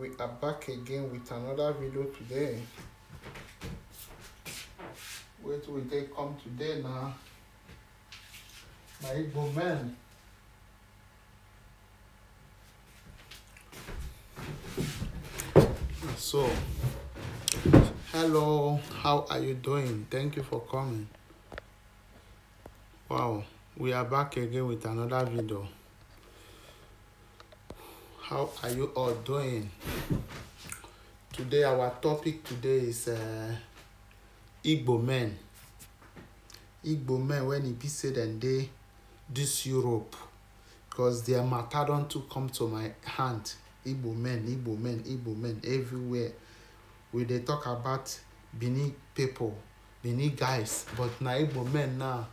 we are back again with another video today Wait, will they come today now my Igbo man so hello how are you doing thank you for coming wow we are back again with another video how are you all doing today our topic today is uh, igbo men igbo men when it be say dem dey dis europe because their matter don't to come to my hand igbo men igbo men igbo men everywhere we they talk about benin people benin guys but na igbo men now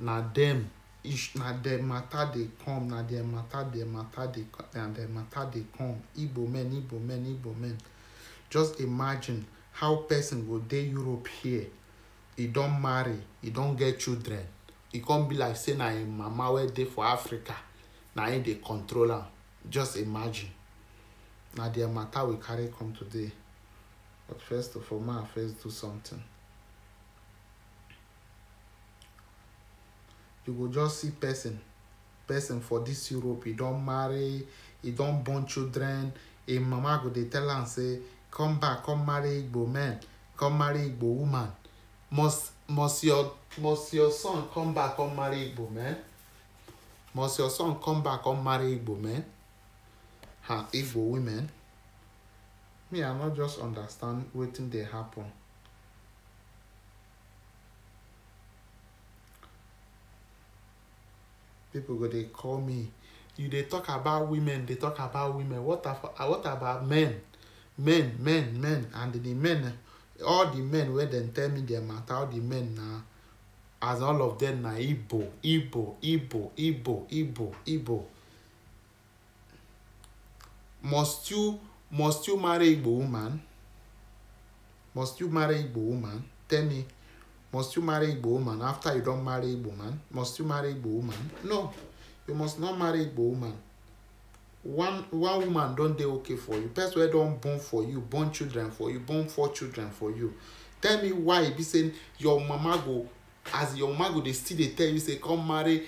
na them ish na the matter dey come na the matter dem matter dey na the matter dey come igbo men igbo men igbo men just imagine how person go dey europe here e don marry e don get children e come be like say na im mama wey dey for africa na im dey control am just imagine na their matter we carry come today but first of all ma first do something you go just see person person for this europe e don marry e don born children im mama go dey tell am say come back come marry igbo man come marry igbo woman must must your must your son come back come marry igbo man must your son come back come marry igbo man and igbo women me i no just understand wetin dey happen. people go they call me you they talk about women They talk about women what, about what about men men men men and the men all the men wey dem tell me their matter all the men na as all of them na igbo igbo igbo igbo igbo igbo must you must you marry igbo woman must you marry igbo woman tell me Must you marry Igbo woman after you don't marry Igbo man? Must you marry Igbo woman? No, you must not marry Igbo woman. One one woman don dey okay for you. Person wey don born for you, born children for you, born four children for you. Tell me why e be say your mama go as your mama go dey still dey tell you say come marry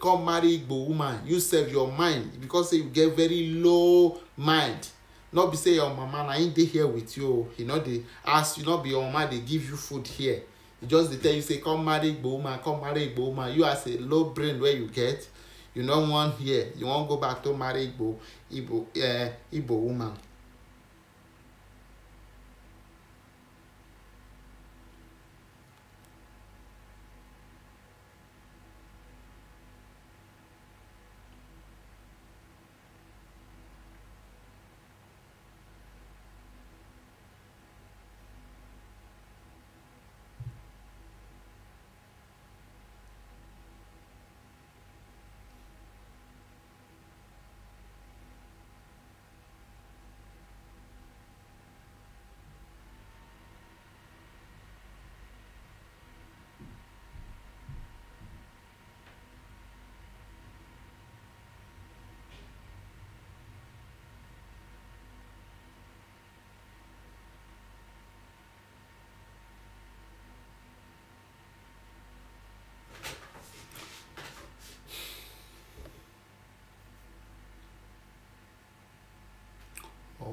come marry igbo woman you sef your mind because say you get very low mind no be say your mama na him dey here with you o he no dey ask you no be your mama dey give you food here just dey tell you say come marry igbo woman come marry igbo woman you as a low brain wey you get you no wan hear you wan go back to marry igbo igbo eh, igbo woman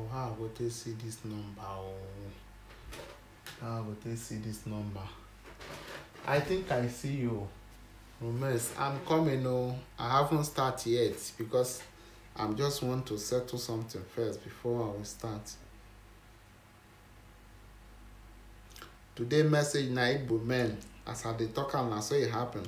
oh how I go take see this number oh how I go take see this number I think I see you Romex I'm coming oh I haven't start yet because I'm just want to settle something first before I will start today message na Igbo men as I dey talk am na so e happen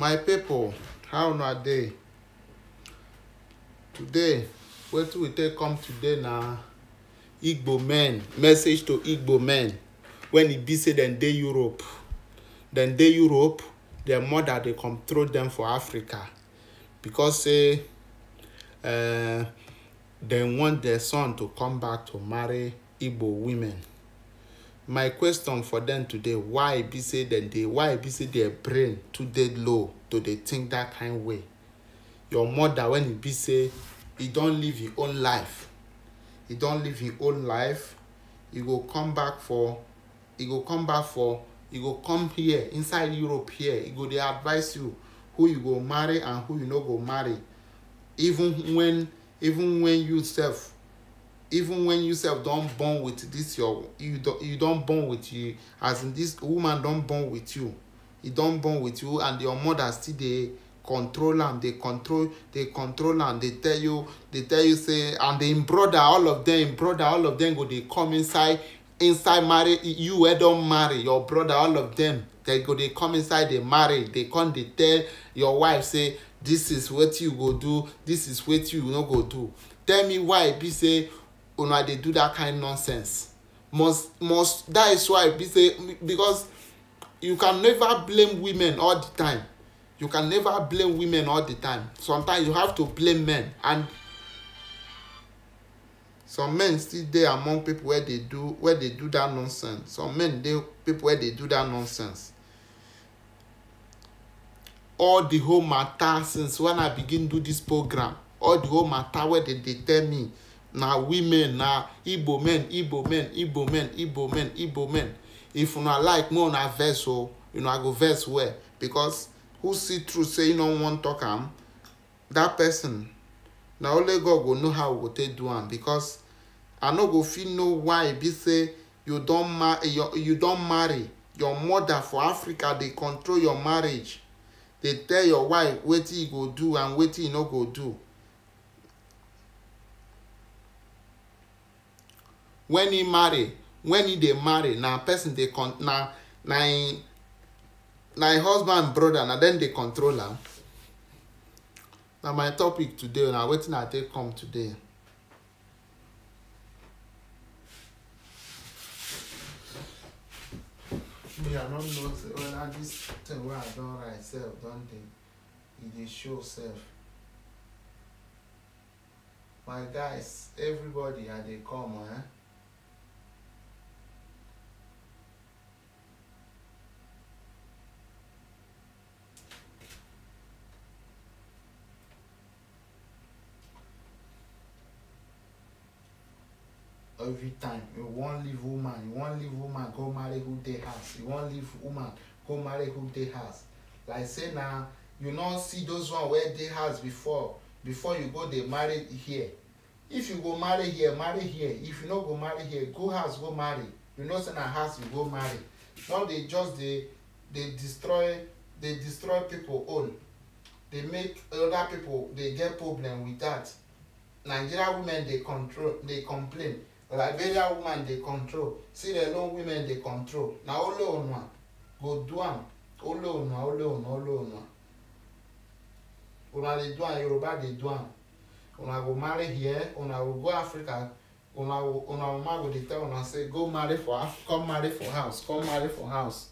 my people, how una dey today wetin we take come today na igbo men message to igbo men when e be say dem dey europe dem dey europe their mother dey control dem for africa because say uh, dem want their son to come back to marry igbo women my question for them today why be say dem dey why be say their brain too dey low to dey think that kind way your mother when e be say e don live im e own life e don live im e own life e go come back for e go come back for e go come here inside europe here e go dey advise you who you go marry and who you no go marry even when even when you sef even when you self don born with this your you don you don born with you as in this woman don born with you e don born with you and your mother still dey control am dey control dey control am dey tell you dey tell you say and im brother all of them im brother all of them go dey come inside inside marry you wey don marry your brother all of them they go dey come inside the marry dey come dey tell your wife say this is wetin you go do this is wetin you no go do tell me why e be say una dey do that kind nonsense must must that is why be say because you can never blame women all the time you can never blame women all the time sometimes you have to blame men and some men still dey among people wey dey do wey dey do that nonsense some men dey people wey dey do that nonsense all the whole matter since when i begin do this program all the whole matter wey dem dey tell me na women na igbo men igbo men igbo men igbo men igbo men if una like more una verse o oh, una go verse well because who see true say e no wan talk am that person na only god go know how we go take do am because i no go fit know why e be say you don ma your you don marry your mother for africa dey control your marriage dey tell your wife wetin you e go do and wetin you e no go do when he marry when he dey marry na person dey con na na him e, na him e husband brother na dem dey control am na my topic today na wetin i take come today. me i no know say whether this thing wey i don write sef don dey e dey show sef my guys everybody i dey come eh. every time you wan leave woman you wan leave woman go marry who dey house you wan leave woman go marry who dey house like say na you no see those one wey dey house before before you go dey marry here if you go marry here marry here if you no go marry here go house go marry you know say na house you go marry no dey just dey dey destroy dey destroy people own dey make other people dey get problem with that nigeria women dey control dey complain liberia woman dey control sierra leone women dey control na only onwa go do am only onwa only onwa only onwa una dey do am yoruba dey do am una go marry here una go go africa una una mama go dey tell una say go marry for come marry for house come marry for house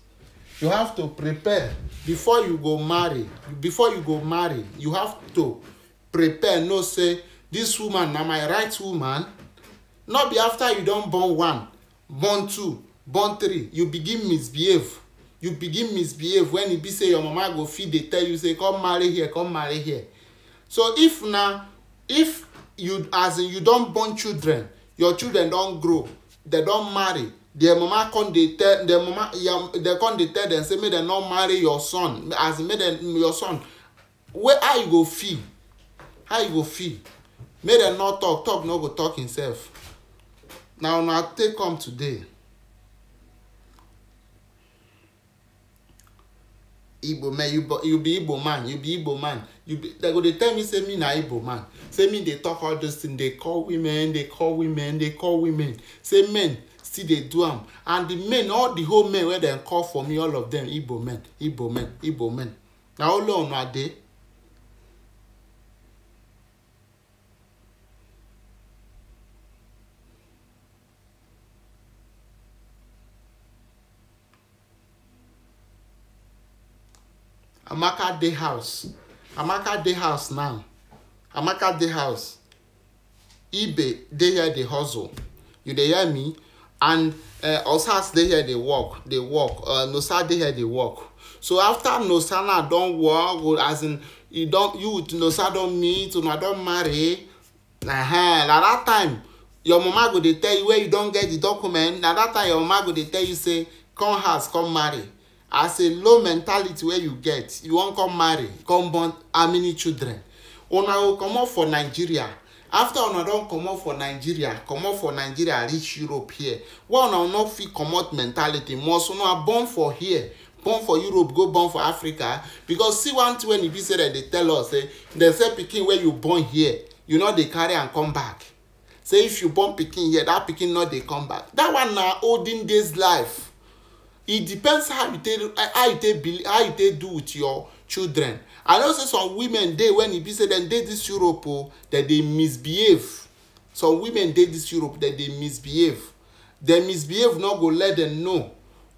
you have to prepare before you go marry before you go marry you have to prepare know say this woman na my right woman not be after you don born one born two born three you begin misbehave you begin misbehave when e be say your mama go fit dey tell you say come marry here come marry here so if na if you as in you don born children your children don grow dem don marry their mama come dey tell their mama dem come dey tell dem say make dem no marry your son as in make dem your son Where how you go feel how you go feel make dem no talk talk no go talk himself na una take come today igbo man you be igbo man you be igbo man you be dem go dey tell me say me na igbo man say me dey talk all those things dey call women dey call women dey call women say men still dey do am and the men all the whole men wey dem call for me all of dem igbo men igbo men igbo men na only una dey. amaka day house amaka day house now amaka day house ibe they hear the hustle you dey hear me and uh, osas dey here dey work they work uh, nosa they hear dey work so after nosa now don work as in you don't you with nosa don't meet una don't marry uh -huh. na that time your mama go dey tell you where you don't get the document At that time your mama go dey tell you say come house come marry as a low mentality wey you get you wan come marry come born how many children una go comot for nigeria after una don comot for nigeria comot for nigeria reach europe here wey una no fit comot mentality must una born for here born for europe go born for africa because see one thing wey e be say dem dey tell us say eh, dem say pikin wey you born here you no dey carry am come back say if you born pikin here that pikin no dey come back that one na olden days life It depends how you take how you take believe how you take do with your children i know say some women dey when e be say dem dey dis europe o dem dey misbehave some women dey this europe dem dey misbehave dem misbehave no go let dem know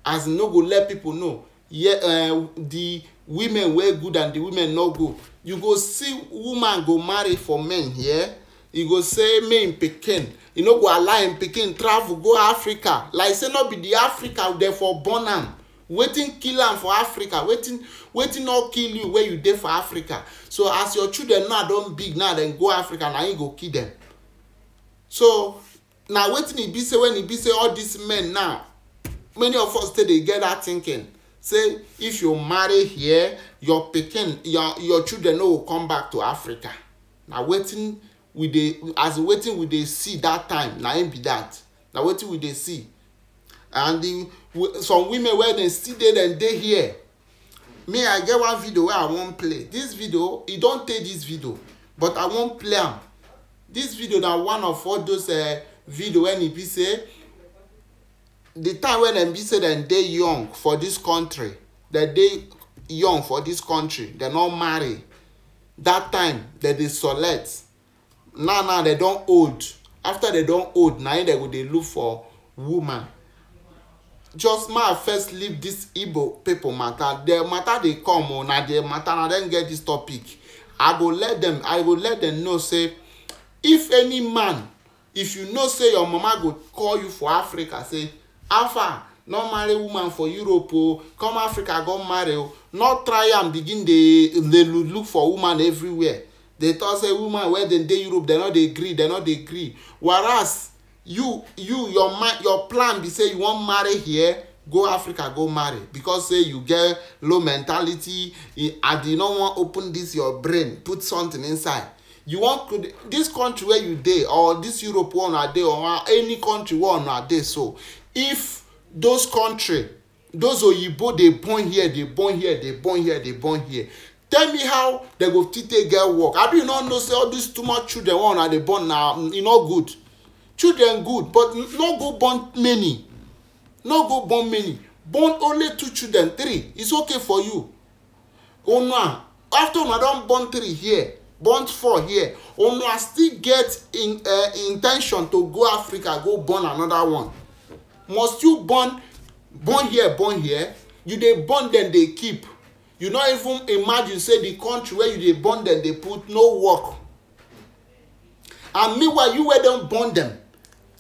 as no go let people know yeah, uh, the women wey good and the women no good you go see woman go marry for men here yeah? e go say me im pikin e no go allow im pikin travel go africa like say no be the africa dem for born am wetin kill am for africa wetin wetin no kill you wey you dey for africa so as your children now don big now dem go africa na im go kill dem so na wetin e be say when e be say all these men now many of us still dey get that thinking say if you marry here your pikin your your children no go come back to africa na wetin we dey as wetin we dey see that time na im be that na wetin we dey see and the some women wey dem still dey dem dey here me i get one video wey i wan play this video e don tey this video but i wan play am this video na one of all those uh, video wey e be say the time wey dem be say dem dey young for this country dem dey young for this country dem no marry that time dem dey select now now they don old after they don old na im dem go dey look for woman just ma first leave this igbo pipo matter. their matter dey come o oh, na their matter na dem get this topic i go let them. i go let them know say if any man if you know say your mama go call you for africa say alpha no marry woman for europe o oh, come africa go marry o oh, no try am begin dey dey look for woman everywhere they talk say woman wey dem dey europe dem no dey gree dem no dey gree whereas you you your mind your plan be say you wan marry here go africa go marry because say you get low mentality and you no wan open this your brain put something inside you wan this country where you dey or this europe wey una dey or any country wey una dey so if those country those oyibo dey born here dey born here dey born here dey born here tell me how dem go fit take get work abi you no know say all this too much children wey una dey born na mm, e no good children good but no go born many no go born many born only two children three it's okay for you una after una don born three here born four here una still get in uh, eh, in ten tion to go africa go born another one must you born born here born here you dey born dem dey keep you no even imagine say the country wey you dey born dem dey put no work and meanwhile you wey don born dem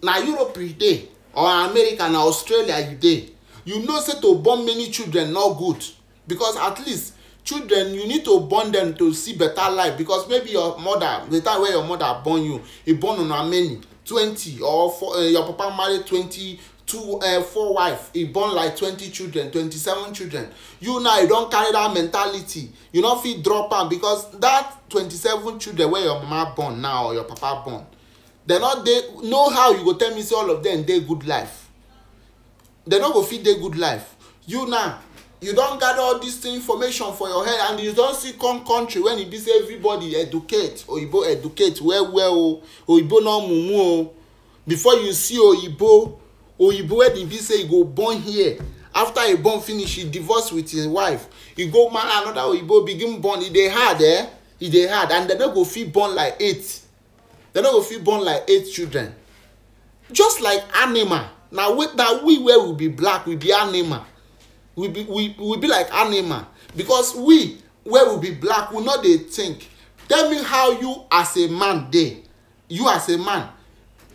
na europe you dey or america na australia you dey you know say to born many children no good because at least children you need to born dem to see better life because maybe your mother the time wey your mother born you e born una many twenty or four uh, your papa marry twenty two uh, eh, four wife He born like twenty children twenty-seven children you now you don carry that mentality you no fit drop am because that twenty-seven children wey your mama born now or your papa born dem no dey know how you go tell me say all of dem dey good life dem no go fit dey good life you now you don gather all this information for your head and you don see come country when e be say everybody educate oyibo educate well well o oyibo no mumu o before you see oyibo oyibo wedding be say he go born here after he born finish he divorce with his wife he go marry another oyibo begin born e dey hard eh e dey hard and dem no go fit born like eight dem no go fit born like eight children just like animal na we na we wey we be black we be animal we be we, we be like animal because we wey we be black we no dey think tell me how you as a man dey you as a man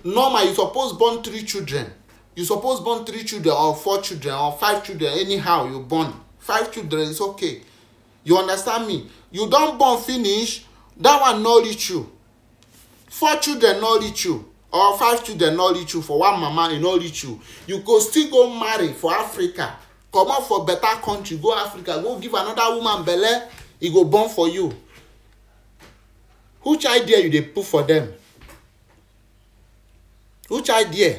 normal you suppose born three children you suppose born three children or four children or five children anyhow you born five children is okay you understand me you don born finish that one no reach you four children no reach you or five children no reach you for one mama e no reach you you go still go marry for africa comot for better country go africa go give another woman belle e go born for you which idea you dey put for them which idea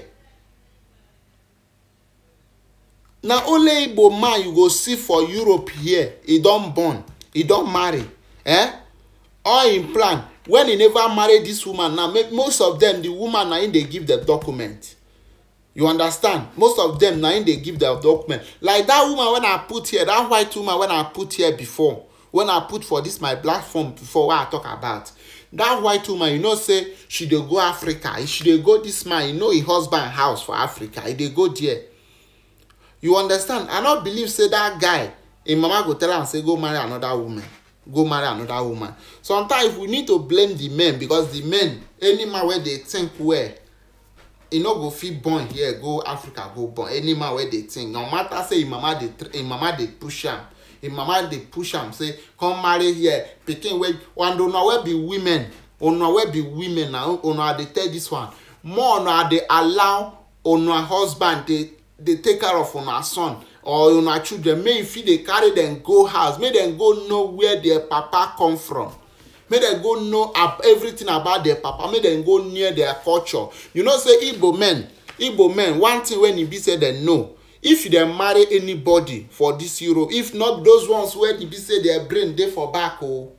na only igbo man you go see for europe here e don born e don marry eh all im plan when e never marry this woman now most of them the woman na im dey give the document you understand most of them na im dey give the document like that woman wey i put here that white woman wey i put here before wey i put for this my platform before wey i talk about that white woman you know say she dey go africa she dey go this man you know e husband house for africa He dey go there you understand i no believe say that guy im mama go tell am say go marry another woman go marry another woman sometimes we need to blame the men because the men any man wey dey think well e no go fit born here go africa go born any man wey dey think no matter say im mama dey push am im mama dey push am say come marry here pikin wey and una wey be women una wey be women na una dey tell dis one more una dey allow una husband dey dey take care of una son or una children make you fit dey carry dem go house make dem go know where their papa come from make dem go know everything about their papa make dem go near their culture you know say igbo men igbo men one thing wey e be say dem know if dem marry anybody for this europe if not those ones wey e be say their brain dey for back o oh,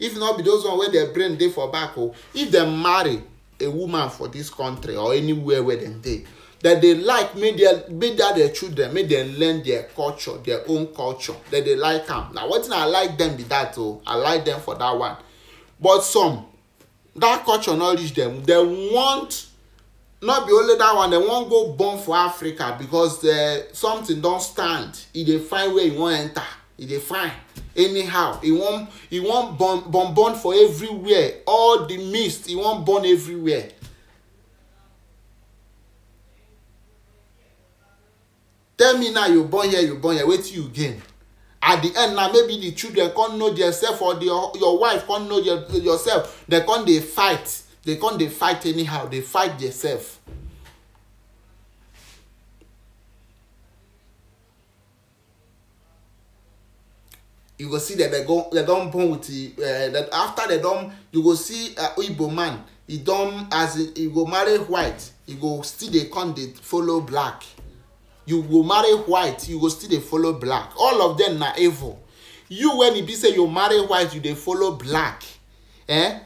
if not be those ones wey their brain dey for back o oh, if dem marry a woman for this country or anywhere wey dem dey that they like make their make that their children make dem learn their culture their own culture that they like am na wetin i like dem be that o oh, i like dem for that one but some that culture no reach dem dem want no be only that one dem wan go born for africa because uh, something don stand e dey find where e wan enter e dey find anyhow e wan e wan born born born for everywhere all the mist e wan born everywhere tell me now you born here you born here wetin you gain at the end na maybe the children come know theirself or the, your wife come know your, yourself They come dey fight They come dey fight anyhow dey fight theirself. you go see dem dem go dem don born with the uh, that after dem don you go see uh, igbo man e don as e go marry white e go still dey come dey follow black you go marry white you go still dey follow black all of them na evil you when e be say you marry white you dey follow black eh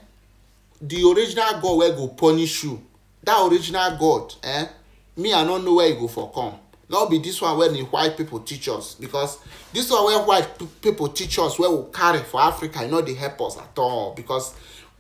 the original god wey go punish you that original god eh me i no know where e go for come no be this one wey the white people teach us because this one wey white people teach us wey we carry for africa e no dey help us at all because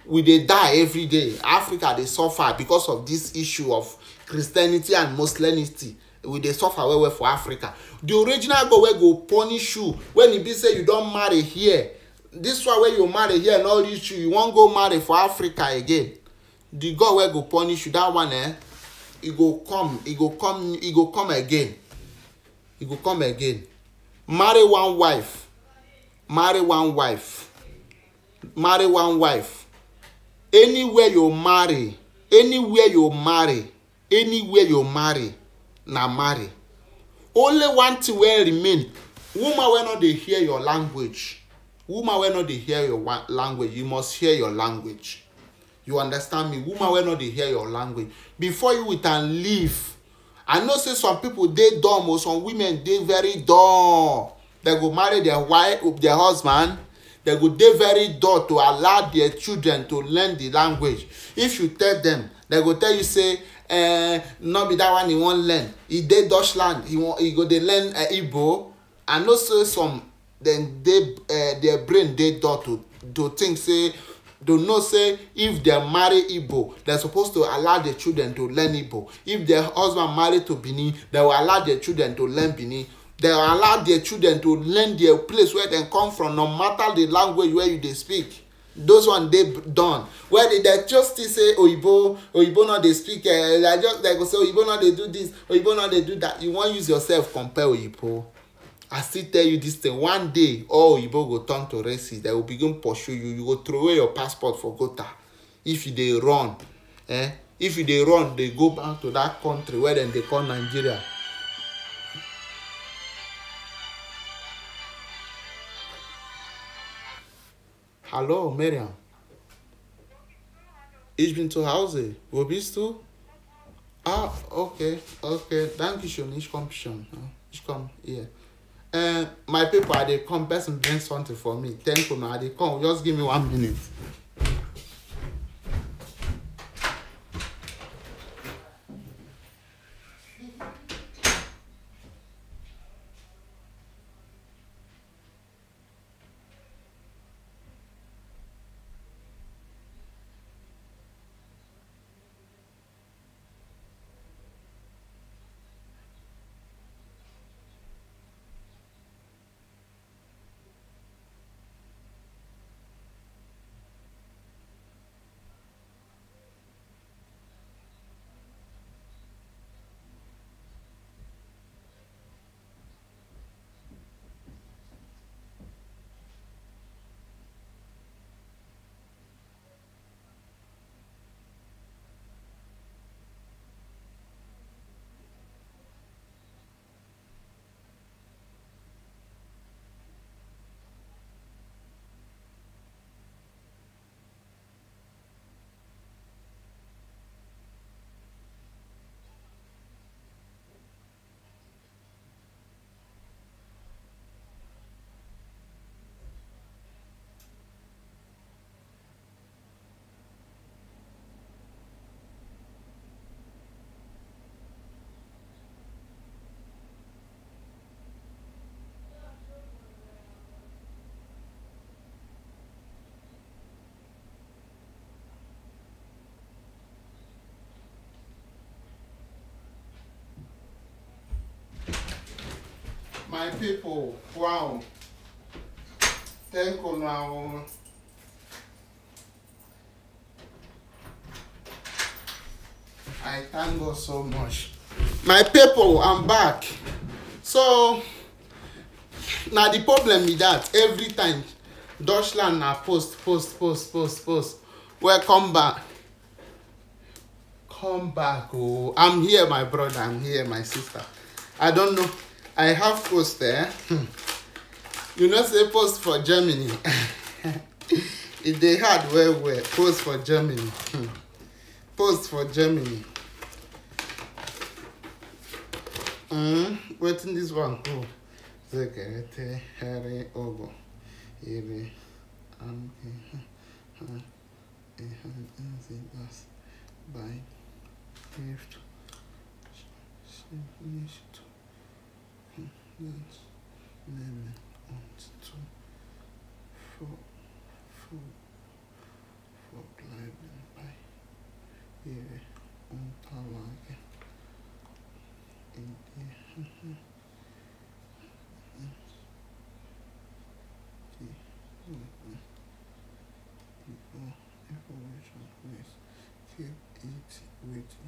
we dey die every day africa dey suffer because of this issue of christianity and muslimity we dey suffer well well for africa the original god wey go punish you when e be say you don marry here this one wey you marry here no reach you you wan go marry for africa again the god wey go punish you that one eh e go come e go come e go come again e go come again marry one wife marry one wife marry one wife anywhere you marry anywhere you marry anywhere you marry na marry only one thing wey remain woman wey no dey hear your language woman wey no dey hear your language you must hear your language you understand me woman wey no dey hear your language before you with am leave i know say some people dey dumb or oh. some women dey very dumb dem go marry their wife their husband dem go dey very dull to allow their children to learn the language if you tell them dem go tell you say uh, eh, no be that one he wan learn e dey deutschland he wan he go dey learn uh, igbo i know say some dem dey uh, eh, their brain dey dull to to think say to know say if dem marry igbo dem suppose to allow their children to learn igbo if their husband marry to benin dem go allow their children to learn benin dem allow their children to learn their place where dem come from no matter the language wey you dey speak those one dey done well dem just still say oyibo oyibo no dey speak eh i eh, just like go say oyibo no dey do this oyibo no dey do that you wan use yourself compare oyibo i still tell you this thing one day all oyibo go turn to racist they go begin pursue you you go throw away your passport for gota if you dey run eh if you dey run dey go back to that country wey dem dey call nigeria Hallo, Miriam. Ich bin zu Hause. Wo bist du? Ah, okay, okay. Danke schön. Ich komme schon. Ah, ich komme hier. Uh, eh, my people, I dey come. Person bring something for me. Thank you, I they come. Just give me one minute. my people wow thank you now i thank god so much my people i'm back so now the problem is that every time deutschland na post post post post post welcome back come back oh i'm here my brother i'm here my sister i don't know I have post there. you know, say post for Germany. if they had where where post for Germany. post for Germany. Mm, wait in this one. Oh, Zekerete, Harry, Ogo, Iri, and it in gift. Finish minutes, eleven, one, two, four, four, four, gliding by here on power again. In the keep it waiting.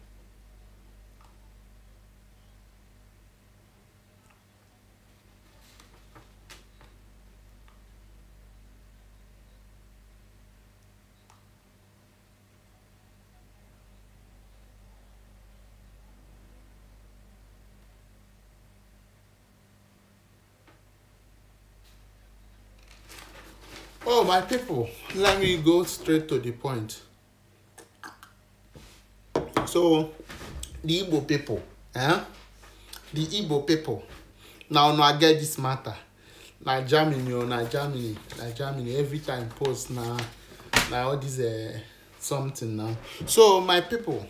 my people let me go straight to the point so the igbo people eh? the igbo people Now, now I get this matter na germany o oh, na germany na germany every time post now, now all this uh, something now so my people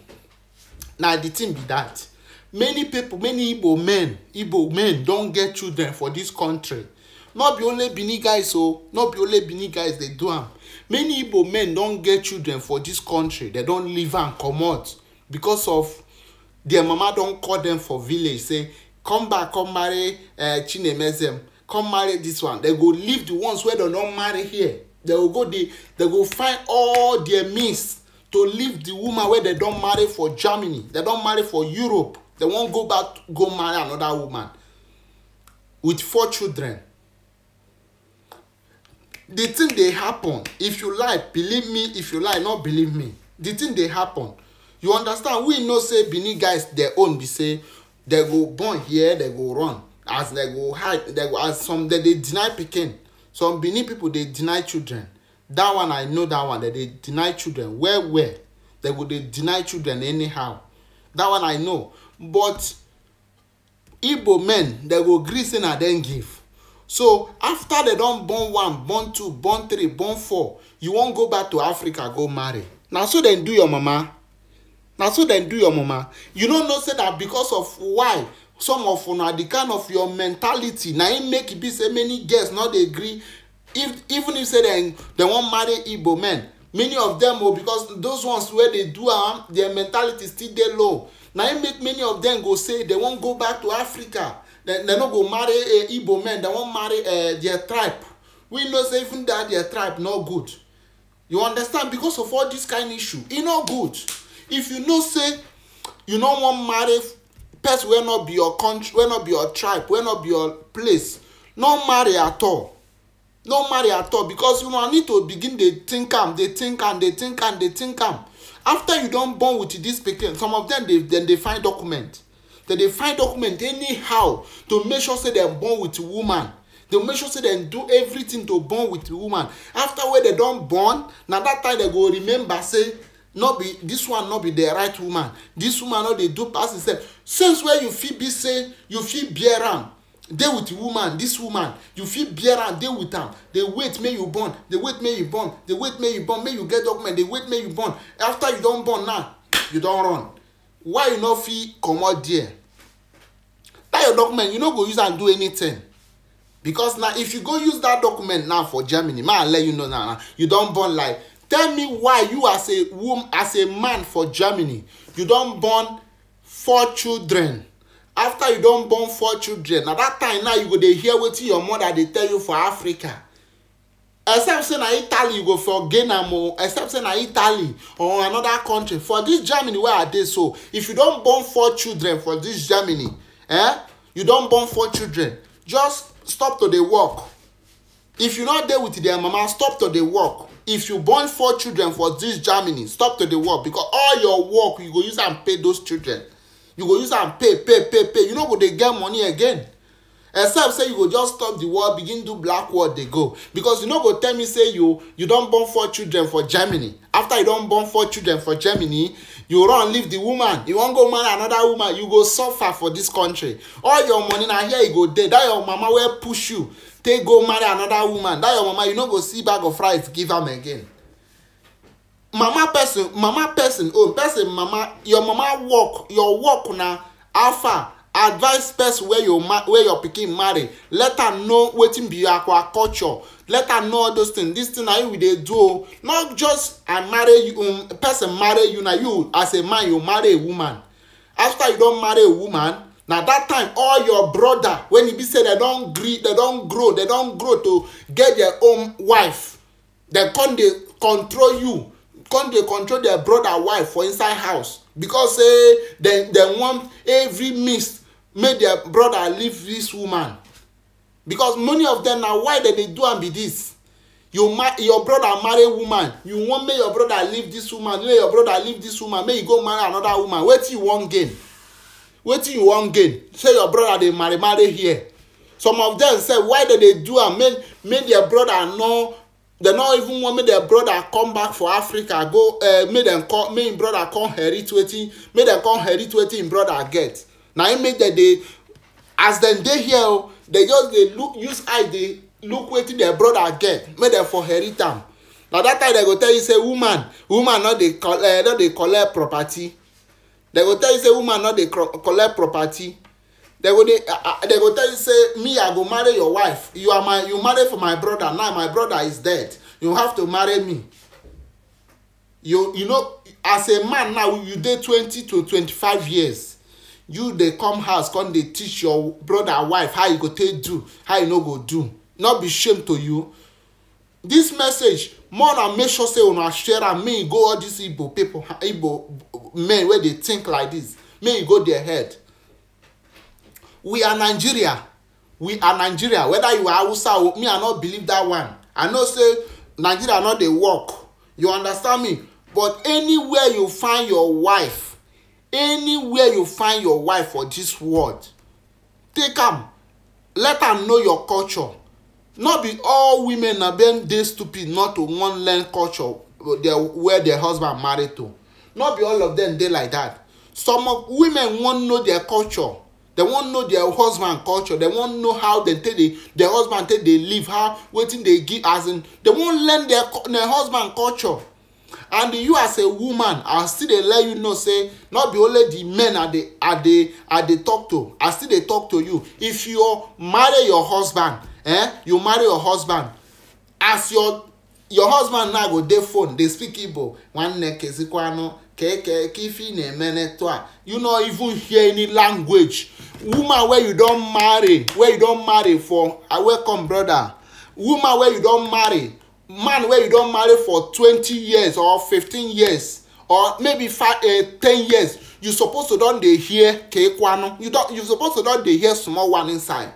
now the thing be that many people many igbo men igbo men don't get children for this country no be only benin guys o no be only benin guys dey do am many igbo men don get children for dis country dem don leave am comot because of their mama don call dem for village say come back come marry uh, chinemezem come marry dis one dem go leave the ones wey dem don marry here dem go go dey dem go find all their means to leave the woman wey dem don marry for germany dem don marry for europe dem wan go back go marry another woman with four children the thing dey happen if you lie believe me if you lie not believe me the thing dey happen you understand we know say benin guys their own be say they go born here they go run as they go hide they go as some they dey deny pikin some benin people dey deny children that one i know that one they dey deny children well well they go dey deny children anyhow that one i know but igbo men they go gree say na dem give so after they don born one born two born three born four you wan go back to africa go marry na so dem do your mama na so dem do your mama you no know say na because of why some of una the kind of your mentality na im make e be say many girls no dey gree if even if say dem dem wan marry igbo men many of dem o because those ones wey dey do am their mentality still dey low na im make many of dem go say dem wan go back to africa they no go marry a eh, igbo men They wan marry uh their tribe we know say even that their tribe no good you understand because of all this kind issue e no good if you know say you no wan marry person wey no be your country wey no be your tribe wey no be your place no marry at all no marry at all because una need to begin dey think am dey think am dey think am dey think am after you don born with this pikin some of them dey dem dey find document dem dey find document anyhow to make sure say dem born with woman dem make sure say dem do everything to born with woman after wey dem don born na that time dem go remember say no be this one no be the right woman this woman no dey do pass herself since wey you fit be say you fit bear am dey with woman this woman you fit bear am dey with am dey wait make you born dey wait make you born dey wait make you born make you get document dey wait make you born after you don born now you don run why you no fit comot there that your document you no go use am do anything because na if you go use that document now for germany may i let you know now you don born like tell me why you as a woman as a man for germany you don born four children after you don born four children na that time now you go dey hear wetin your mother dey tell you for africa except say na italy you go for gain o except say na italy or another country for this germany wey i dey so if you don born four children for this germany eh you don born four children just stop to dey work if you no dey with their mama stop to dey work if you born four children for this germany stop to dey work because all your work you go use am pay those children you go use am pay pay pay pay you no go dey get money again except say you go just stop the war begin do black war dey go because you no go tell me say you you don born four children for germany after you don born four children for germany you run leave the woman you wan go marry another woman you go suffer for this country all your money na here you e go dey That your mama wey push you take go marry another woman That your mama you no go see bag of rice give am again mama person mama person own oh, person mama your mama work your work na far? advice person wey your wey your pikin marry let am know wetin be your culture. let am know all those things this thing na you we dey do o not just i marry you um, person marry you na you as a man you marry a woman after you don marry a woman na that time all your brother when e be say dem don gree dem don grow dem don grow to get their own wife dem come dey control you come dey control their brother wife for inside house because say dem dem want every mist make their brother leave this woman because many of them na why dem dey do am be this you ma your brother marry woman you wan make your brother leave this woman make your brother leave this woman make you go marry another woman wetin you wan gain wetin you wan gain say your brother dey marry marry here some of them say why dem dey do am make make their brother know. They no even want make their brother come back for africa go uh, eh, make them come make im brother come inherit wetin make them come inherit wetin im brother get na im make dem dey as dem dey here o dem just dey look use eye dey look wetin their brother get make dem for inherit am na that time dem go tell you say woman woman no dey collect eh, no dey collect property dem go tell you say woman no dey collect property dem go dey ah, ah, dem go tell you say me i go marry your wife you are my you marry for my brother now my brother is dead you have to marry me you you know as a man now you dey twenty to twenty-five years you dey come house come dey teach your brother wife how you go take do how you no go do no be shame to you This message more na make sure say una share am make e go all these igbo people, igbo men wey dey think like this. May e go their head we are nigeria we are nigeria whether you are hausa or me i no believe that one i know say nigeria no dey work you understand me but anywhere you find your wife anywhere you find your wife for this world take am let am know your culture no be all women na dem dey stupid not to wan learn culture uh, where their husband marry to no be all of dem dey like that. some women wan know their culture dem wan know their husband culture dem wan know how dem take dey their husband take dey live how wetin dey give as in dem wan learn their husband culture and you as a woman i still dey let you know say not be only the men i dey i dey i dey talk to i still dey talk to you if you marry your husband eh you marry your husband as your your husband now go dey phone dey speak igbo nwanne kezikwanu keke kifi na-eme neto a you no even hear any language woman wey you don marry wey you don marry for ah, welcome brother woman wey you don marry man wey you don marry for twenty years or fifteen years or maybe five uh, ten years you suppose to don dey hear kekwanu you don you suppose to don dey hear small one inside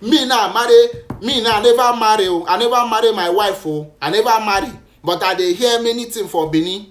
me now marry me now i never marry o i never marry my wife o i never marry but i dey hear many things for benin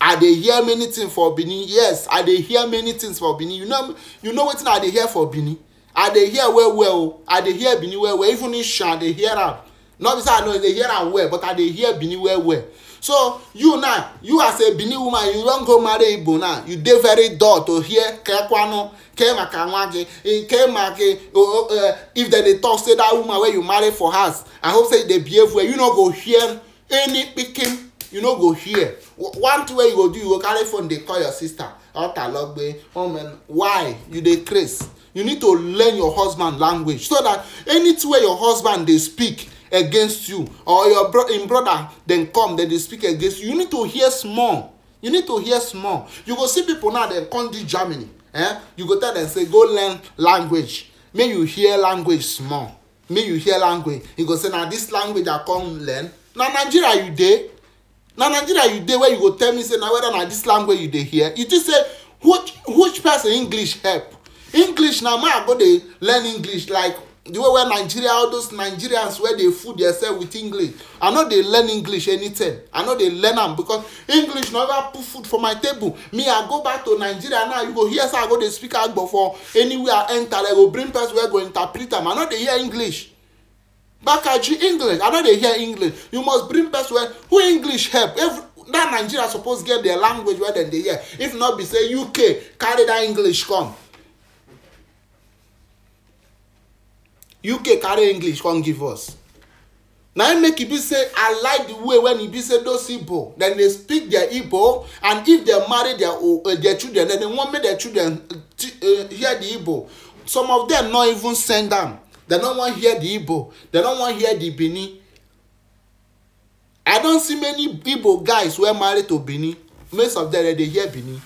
i dey hear many things for benin yes i dey hear many things for benin you know you know wetin i dey hear for benin i dey hear well well o i dey hear benin well well even ishan i dey hear am not be say i no dey hear am well but i dey hear benin well well so you now you as a benin woman you wan go marry igbo now you dey very dull to hear kekwanu ke maka nwa gị ke eh, if dem dey talk say that woman wey you marry for house i hope say you dey behave well you no go hear any pikin you no go hear one thing wey you go do you go carry phone dey call your sister otalogbe omen why you dey craze you need to learn your husband language so that anything wey your husband dey speak against you or your bro in brother dem come dem dey speak against you you need to hear small you need to hear small you go see people now dem come do germany eh you go tell dem say go learn language make you hear language small make you hear language you go say na this language i come learn na nigeria you dey na nigeria you dey Where you go tell me say na whether na this language you dey hear you think say which which person english help english na man go dey learn english like the way where nigeria all those nigerians wey dey fool themselves with english i no dey learn english anytime i no dey learn am because english never put food for my table me i go back to nigeria now you go hear say i go dey speak agbo for anywhere i enter i go bring person wey go interpret am i no dey hear english bakaji english i no dey hear english you must bring person wey who english help every that nigeria suppose get their language wey dem dey hear if not be say uk carry that english come uk carry english come give us na im make e be say i like the way when e be say those igbo dem dey speak their igbo and if dem marry their uh, their children then dem wan make their children uh, hear the igbo some of dem no even send am dem no wan hear the igbo dem no wan hear the benin i don see many igbo guys wey marry to benin most of dem dey hear benin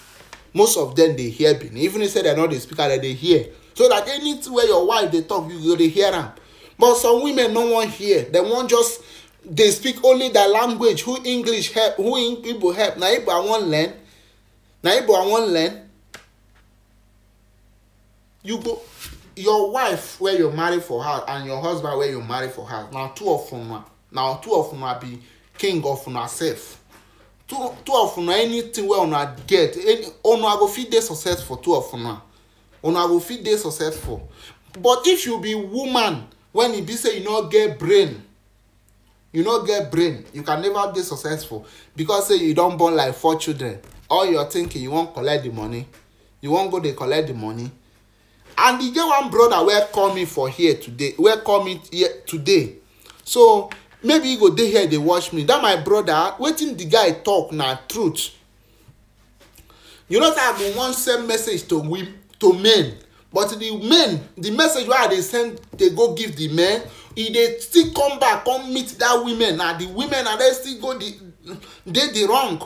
most of dem dey hear benin even if say dem no dey speak am dem dey hear so that anything where your wife dey talk you go dey hear am but some women no wan hear dem wan just dey speak only their language who english help who igbo help na igbo i wan learn na igbo i wan learn you go your wife wey you marry for her and your husband wey you marry for her na two of una na two of una be king of una sef two two of una anything wey una get any una go fit dey success for two of una una go fit dey successful but if you be woman when e be say you no get brain you no get brain you can never dey successful because say you don born like four children all your thinking you wan collect the money you wan go dey collect the money and e get one brother wey call me for here today wey call me here today so maybe you go dey here dey watch me that my brother wetin the guy talk na truth you know say i bin wan send message to him to men but the men the message wey i dey send dey go give the men e dey still come back come meet that women na the women na dem still go the dey the wrong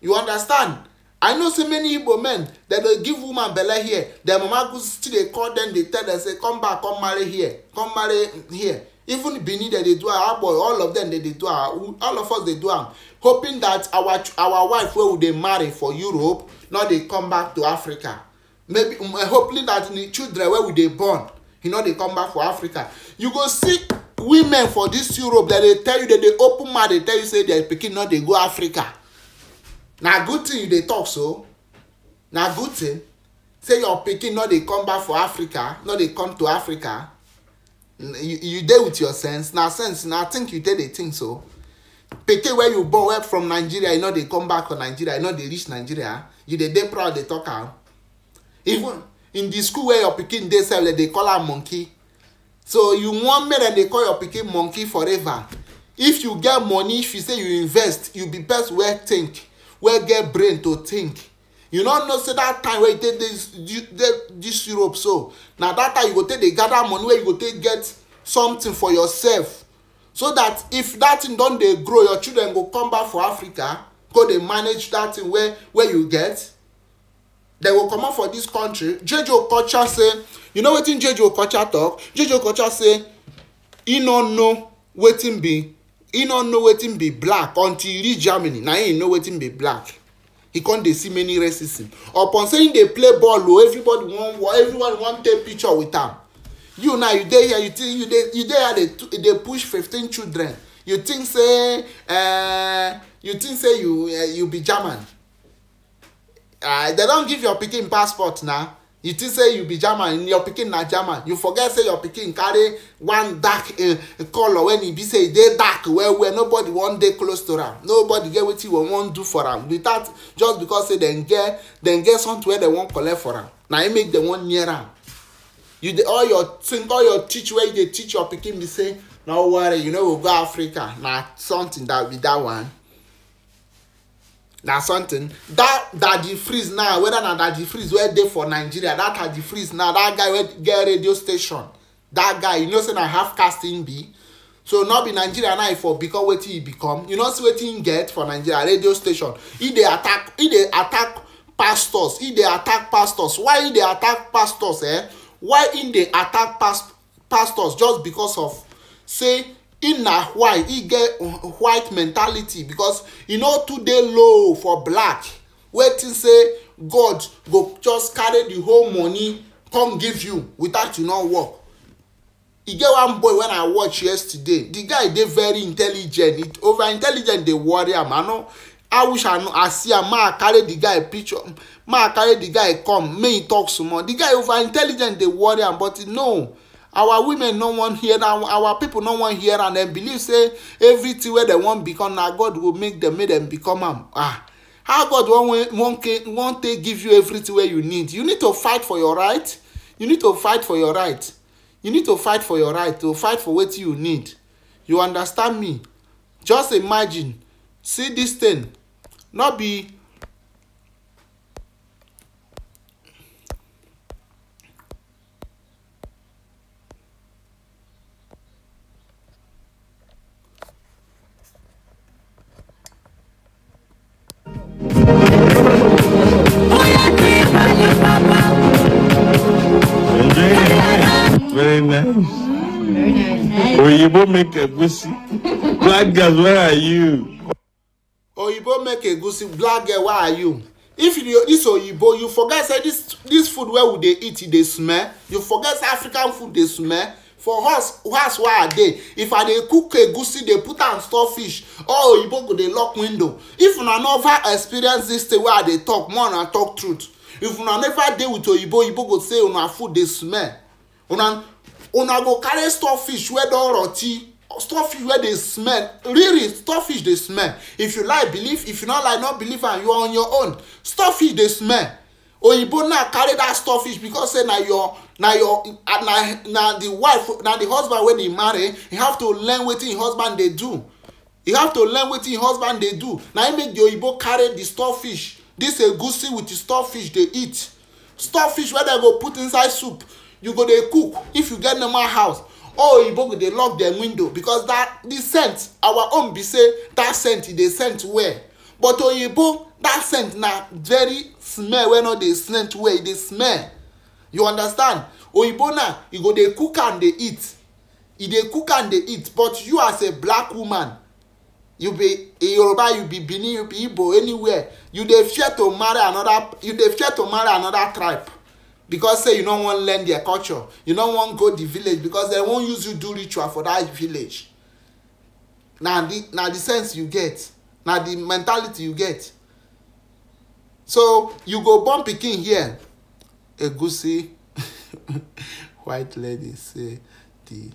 you understand i know say many igbo men dem dey give woman belle here their mama go still dey call dem dey tell dem say come back come marry here come marry here even benin dem dey do am agbo all of dem dey dey do am all of us dey do am hoping that our our wife wey we dey marry for europe no dey come back to africa maybe um, uh, hopefully that the children wey we dey born you know dey come back for africa you go see women for this europe dem dey tell you dem dey open mouth dey tell you say their pikin no dey go africa na good thing you dey talk so na good thing say your pikin no dey come back for africa no dey come to africa mm, you you dey with your sense na sense na think you take dey think so pikin wey you born wey from nigeria e no dey come back for nigeria e no dey reach nigeria you dey dey proud dey talk am even in the school where your pikin dey sef dem dey call am monkey so you wan make dem dey call your pikin monkey forever if you get money if you say you invest you be best wey think wey get brain to think you no know say that time wey you take dey this europe so na that time you go take dey gather money wey you go take get something for yourself so that if that thing don dey grow your children go come back for africa go dey manage that thing wey wey you get dem go comot for dis country jeje okocha say you know wetin jeje okocha talk? jeje okocha say e no know wetin be e no know wetin be black until e reach germany na im know wetin be black He con dey see many racism upon say im dey play ball o oh, everybody wan everyone wan take picture with am you now you dey here you think you dey you dey here dey push fifteen children you think say uh, you think say you uh, you be german uh, they don give your pikin passport na you think say you be german your pikin na german you forget say your pikin carry one dark uh, eh, colour when e be say e dey dark well well nobody wan dey close to am nobody get wetin we wan do for am without just because say dem get dem get something wey dem wan collect for am na im make dem wan near am you dey all your think all your teach wey you dey teach your pikin be say no worry you no know, go go africa na something that be that one na something that that the freeze now whether na the freeze wey dey for nigeria that the freeze now that guy wey get radio station that guy you know say na half caste him be so no be nigeria now e for become wetin e become you know see wetin him get for nigeria radio station He dey attack He dey attack pastors he dey attack pastors why he dey attack pastors eh why he dey attack past pastors just because of say him na white he get white mentality because e no too dey low for black wetin say god go just carry the whole money come give you without you no work e get one boy wen i watch yesterday the guy dey very intelligent over intelligent dey worry am i no i wish i know i see am ma i carry the guy picture ma i carry the guy come May e talk small the guy over intelligent dey worry am but no our women no wan hear na our people no wan hear and dem believe say everything wey dem wan become na god go make dem make dem become am um, ah how god wan wan wan take give you everything wey you need you need to fight for your right you need to fight for your right you need to fight for your right to fight for wetin you need you understand me just imagine see this thing no be Very nice. Very nice. Oyibo make egusi. Black girl, where are you? Oyibo make egusi. Black girl, where are you? If you this Oyibo, you forget say this this food where you dey eat, e dey smell. You forget say African food dey smell. for us us why i dey if i dey cook egusi dey put am store fish all oyibo go dey lock window if una never experience dis thing wey i dey talk more na talk truth if una never dey with oyibo oyibo go say una food dey smell una una go carry fish wey don rot ten fish wey dey smell really fish dey smell if you like believe if you no like no believe am you are on your own fish dey smell oyibo now carry that fish because say na your na your na na the wife na the husband wey dey marry he have to learn wetin him e husband dey do he have to learn wetin him e husband dey do na him make the oyibo carry the fish this egusi with the fish dey eat fish wey dem go put inside soup you go dey cook if you get normal house all oyibo go dey lock dem window because that the scent our own be say that scent e dey scent well but oyibo that scent na very smell wey no dey scent well e dey smell you understand oyibo na you e go dey cook am dey eat e dey cook am dey eat but you as a black woman you be yoruba you be benin you be igbo anywhere you dey fear to marry another you dey fear to marry another tribe because say you no wan learn their culture you no wan go the village because they wan use you do ritual for that village na the na the sense you get na the mentality you get so you go born pikin here egusi white lady say the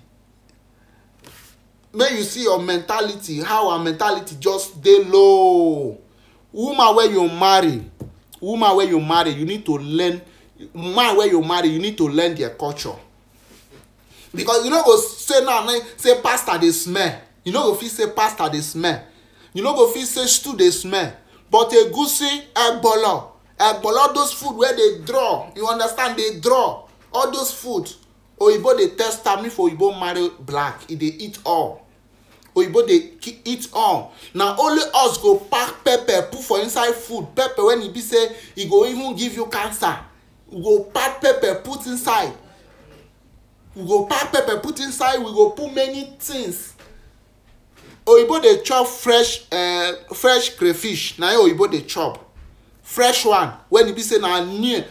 make you see your mentality how our mentality just dey low woman wey you marry woman wey you marry you need to learn man wey you marry you need to learn their culture because you no go say now say pastor dey smell you no go fit say pastor dey smell you no go fit say stew dey smell but egusi egbolo egbolo those food wey dey draw you understand dey draw all those food oyibo dey test am if oyibo marry black e dey eat all oyibo dey eat all na only us go pack pepper put for inside food pepper when e be say e go even give you cancer we go pack pepper put inside we go pack pepper put inside we go put many things oyibo dey chop fresh uh, fresh crayfish na im oyibo dey chop fresh one when e be say na new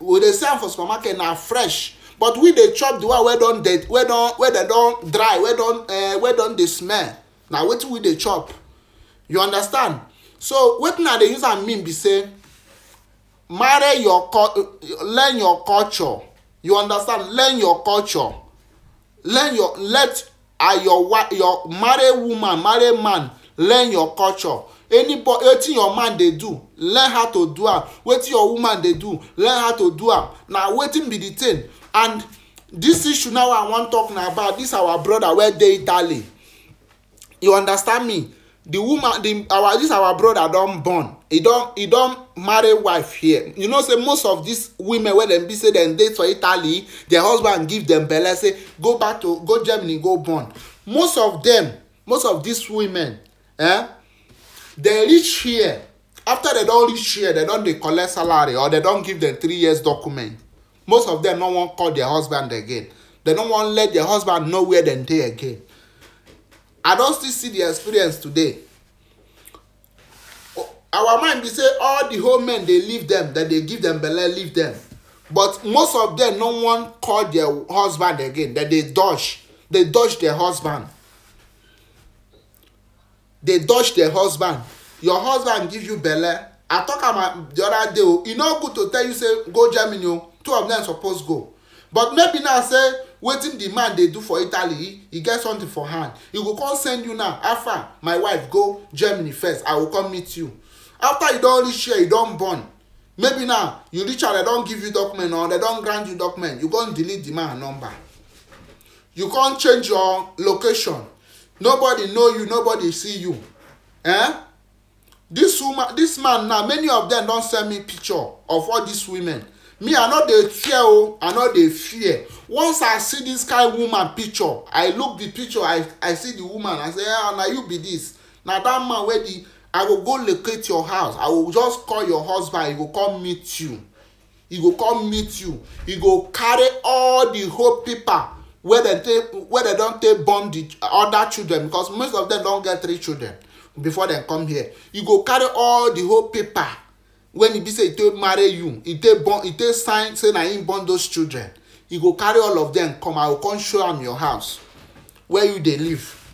we dey sell am for supermarket na fresh but we dey chop the one wey don dey wey don wey dey don dry wey don uh, wey don dey smell na wetin we dey chop you understand so wetin i dey use am mean be say marry your learn your culture you understand learn your culture learn your let uh, your your marry woman marry man learn your culture anybody wetin your man dey do learn how to do am wetin your woman dey do learn how to do am na wetin be the thing and this issue now i wan talk na about this our brother wey dey italy you understand me the woman the our this our brother don born He don he don marry wife here you know say most of these women wey dem be say dem date for italy their husband give dem belle say go back to go germany go born most of dem most of these women eh dem reach here after dem don reach here dem don dey collect salary or dem don give dem three years document most of dem no wan call their husband again dem no wan let their husband know where dem dey again i don still see the experience today our mind be say all the whole men dey leave them dem dey give them belle leave them but most of them no wan call their husband again dem dey dodge dey dodge their husband dey dodge their husband your husband give you belle i talk am uh, the other day o oh, e no good to tell you say go germany o oh. two of them suppose go but maybe now say wetin di man dey do for italy he get something for hand He go come send you now after my wife go germany first i go come meet you after you don reach here you don born maybe now you reach out They don give you document or they don grant you document you come delete the man number you come change your location nobody know you nobody see you eh this woman this man now many of them don send me picture of all these women me i no dey fear o oh. i no dey fear once i see this kind woman picture i look the picture i i see the woman i say ah na you be this na that man wey the i go go locate your house i go just call your husband he go come meet you he go come meet you he go carry all the whole paper wey dem take wey dem don take born the other children because most of them don get three children before dem come here he go carry all the whole paper when e be say e take marry you e take born e take sign say na him born those children e go carry all of them come i go come show am your house where you dey live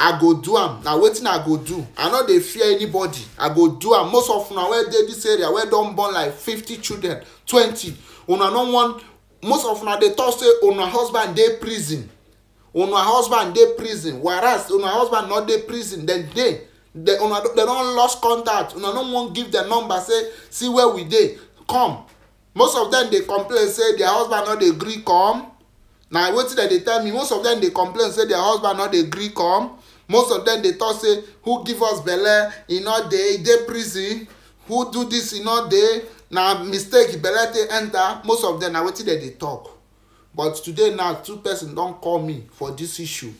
i go do am na wetin i go do i no dey fear anybody i go do am most of una wey dey this area wey don born like fifty children twenty una no wan most of una dey talk say una husband dey prison una husband dey prison whereas una husband no dey prison dem dey they una they don lost contact una no wan give dem number say see where we dey come most of them dey complain say their husband no dey gree come na wetin dem dey tell me most of them dey complain say their husband no dey gree come most of them dey talk say who give us belle e no dey e dey prison who do this e no dey na mistake belle take enter most of them na wetin dem dey talk but today now two person don call me for this issue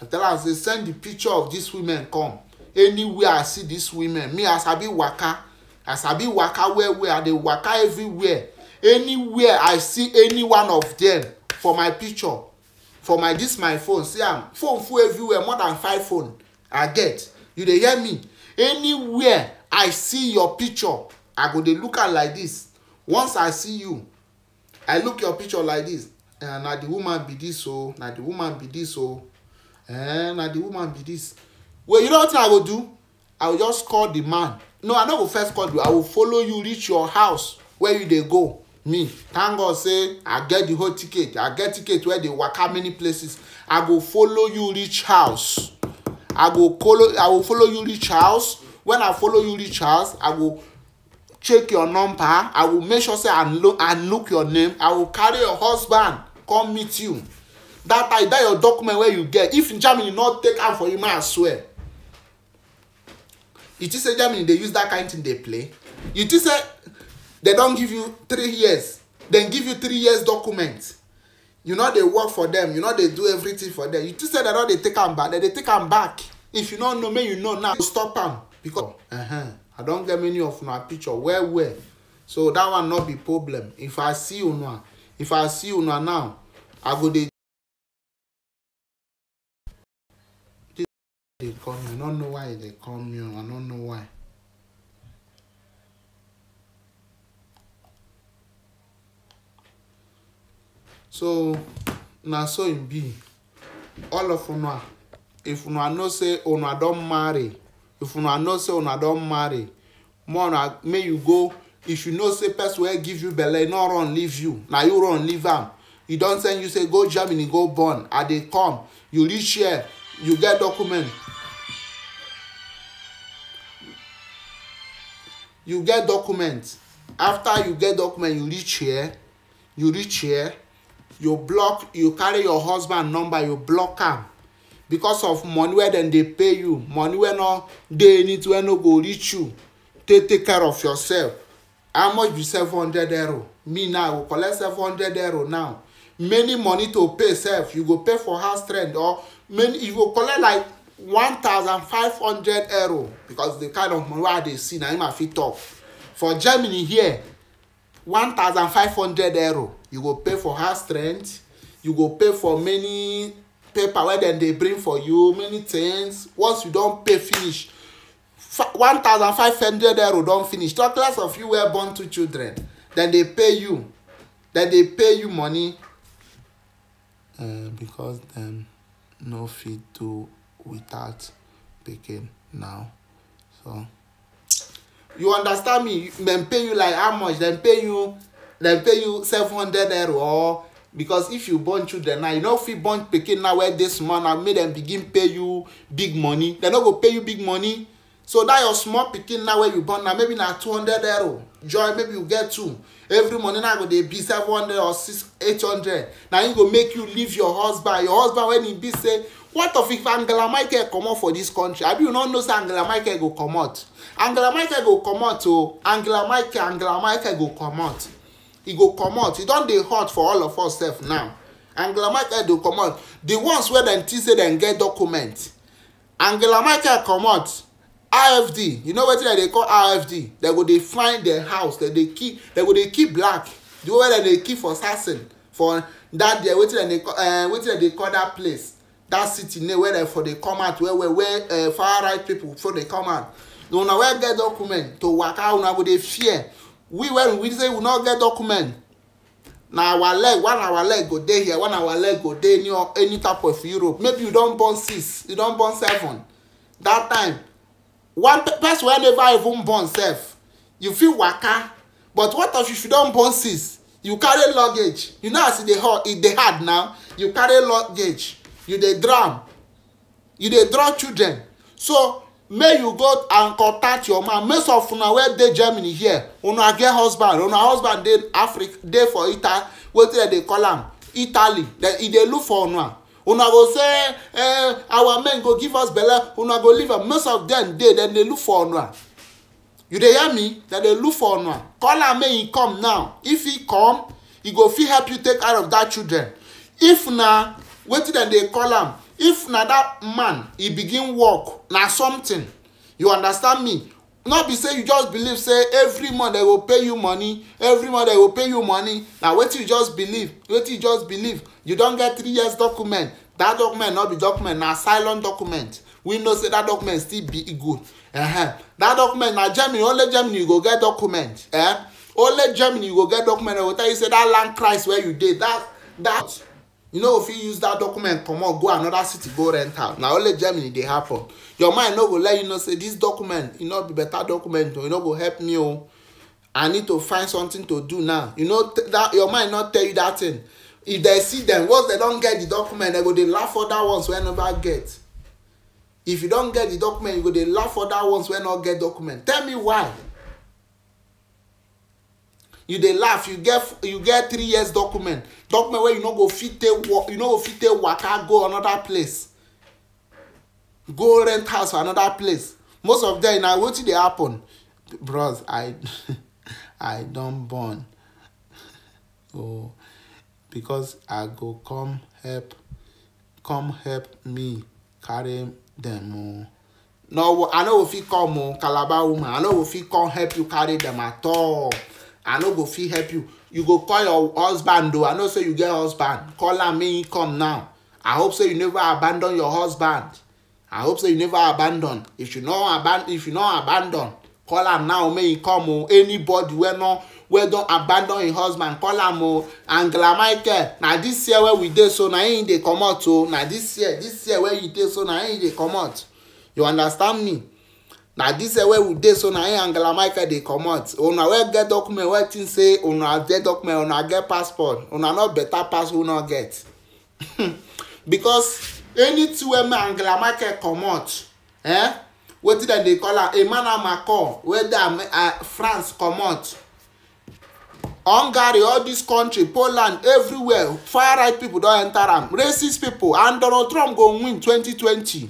i tell am say send the picture of these women come anywhere i see these women me i sabi waka i sabi waka well well i dey waka everywhere anywhere i see any one of them for my picture for my this my phone see am phone full everywhere more than five phone i get you dey hear me anywhere i see your picture i go dey look am like this once i see you i look your picture like this eh, na the woman be this o oh, na the woman be this o oh, eh, na the woman be this well you know what i go do i go just call the man no i no go first call you i go follow you reach your house where you dey go me thank god say i get the whole ticket i get ticket wey dey waka many places i go follow you reach house i go follow i go follow you reach house when i follow you reach house i go check your number i go make sure say i look i look your name i go carry your husband come meet you that time that your document wey you get if germany no take am for you may i swear you think say germany dey use that kind thing dey play you think say they don give you three years dem give you three years document you no dey work for dem you no dey do everything for dem you think say dem no dey take am back dem dey take am back if you no know make you know now stop am because uh -huh, i don get many of una picture well well so that one no be problem if i see una if i see una now i go dey they come you. I don't know why they come you. I don't know why. so na so in B, all of una if una know say una don't marry if una know say una don't marry more may you go if you know say person will give you belle e no run leave you na you run leave them. You e don't send you say go germany go born Are they come you reach here you get document you get document after you get document you reach here you reach here you block you carry your husband number you block am because of money wey dem dey pay you money wey no dey in it wey no go reach you take take care of yourself how much be seven hundred euro me now i go collect seven hundred euro now many money to pay sef you go pay for house rent or many you go collect like one thousand five hundred euro because the kind of money wey i dey see na him i fit talk for germany here one thousand five hundred euro you go pay for house rent you go pay for many paper wey dem dey bring for you many things once you don pay finish one thousand five hundred euro don finish talk less of you wey born two children dem dey pay you dem dey pay you money uh, because dem no fit do without picking now so you understand me dem pay you like how much dem pay you dem pay you seven hundred euro or because if you born children now you no fit born pikin now wey dey small now make dem begin pay you big money dem no go pay you big money so that your small pikin now wey you born now maybe na two hundred euro joy maybe you get two every money now go dey be seven hundred or six eight hundred na him go make you leave your husband your husband when he be say what of if angela michael comot for dis country abi you no know say angela michael go comot angela michael go comot o oh. angela michael angela michael go comot e go comot e don dey hot for all of us sef now angela michael dey comot the ones wey dem think say dem get document angela michael comot rfd you know wetin dem dey call rfd dem go dey find dem house dem dey kill dem go dey kill black the way dem dey kill for sassen for that there wetin dem dey call uh, wetin dem dey call that place that city name wey dem for dey come out well well where uh, far right people for dey come out una wey get document to waka una go dey fear we when we say we no get document na our leg one our leg go dey here one our leg go dey any any type of europe maybe you don born six you don born seven that time one person wey never even born sef you fit waka but what if you don born six you carry luggage you know as e dey hard e dey hard now you carry luggage you dey drown you dey draw children so may you go and contact your man most of una wey dey germany here una get husband una husband dey africa dey for italy wetin dem dey call am italy e dey look for una una go say eh, our men go give us belle una go leave am most of dem dey dem dey look for una you dey hear me dem dey look for una call am make e come now if e come e go fit help you take care of dat children if na wetin dem dey call am if na dat man e begin work na something you understand me no be say you just believe say every month dem go pay you money every month dem go pay you money na wetin you just believe wetin you just believe you don get three years document that document no be document na silent document we know say that document still be good uh -huh. that document na germany only germany you go get document eh? only germany you go get document dem go tell you say that land price where you dey that that you no know, go fit use that document comot go another city go rent am na only germany dey happen your mind no go let you know say this document e no be better document o e no go help me o i need to find something to do now you know that your mind no tell you that thing if they see them once they don get the document they go dey laugh other ones wey never get if you don get the document you go dey laugh other ones wey no get document tell me why you dey laugh you get you get three years document document wey you no go fit take work you no go fit take waka go another place go rent house for another place most of them, na wetin dey happen bros i i don born oh because i go come help come help me carry them o oh. no i no go fit come o oh, calabar woman i no go fit come help you carry them at all i no go fit help you you go call your husband o i know say you get husband call am make he come now i hope say you never abandon your husband I hope so. you never abandon. If you not abandon, if you not abandon, call am now May e come o. Oh. Anybody where no where don't abandon your husband call am o. Oh. Angela Michael Now this year where we did so now na they come out o. Oh. Now this year this year where you did so now na they come out. You understand me? Now this year where we did so now im angela michael dey comot una where get document where think say on una get document on una get passport on una not better pass who not get because anything wey me angela merkel comot eh, wetin dem dey call am emmanuel macron weda uh, uh, france comot hungary all dis country poland everywhere far right pipo don enter am racist pipo and donald trump go win 2020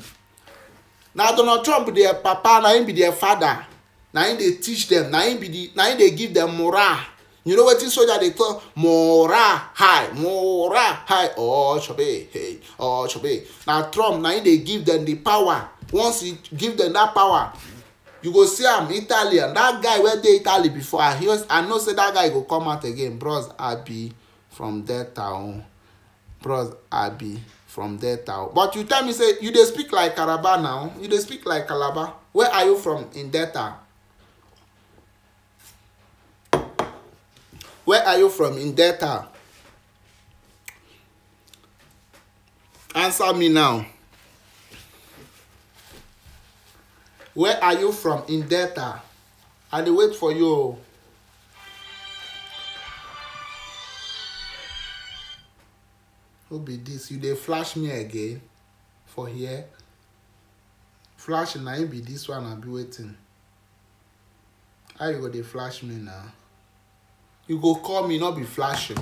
na donald trump their papa na him be their father na him dey teach dem na him dey give dem morale you know wetin soldier dey talk morale high morale high ochobe oh, hey ochobe oh, na trump na him dey give dem di power once he give dem dat power you go see am italian dat guy wey dey italy before i hear i know say dat guy go come out again bros abi from delta o bros abi from delta but you tell me say you dey speak like calabar now you dey speak like calabar where are you from in delta Where are you from? In Delta. Answer me now. Where are you from? In Delta. I dey wait for you o. Who be this? You dey flash me again for here? Flash na im be this one be wetin? How you go dey flash me now? you go call me not be flashing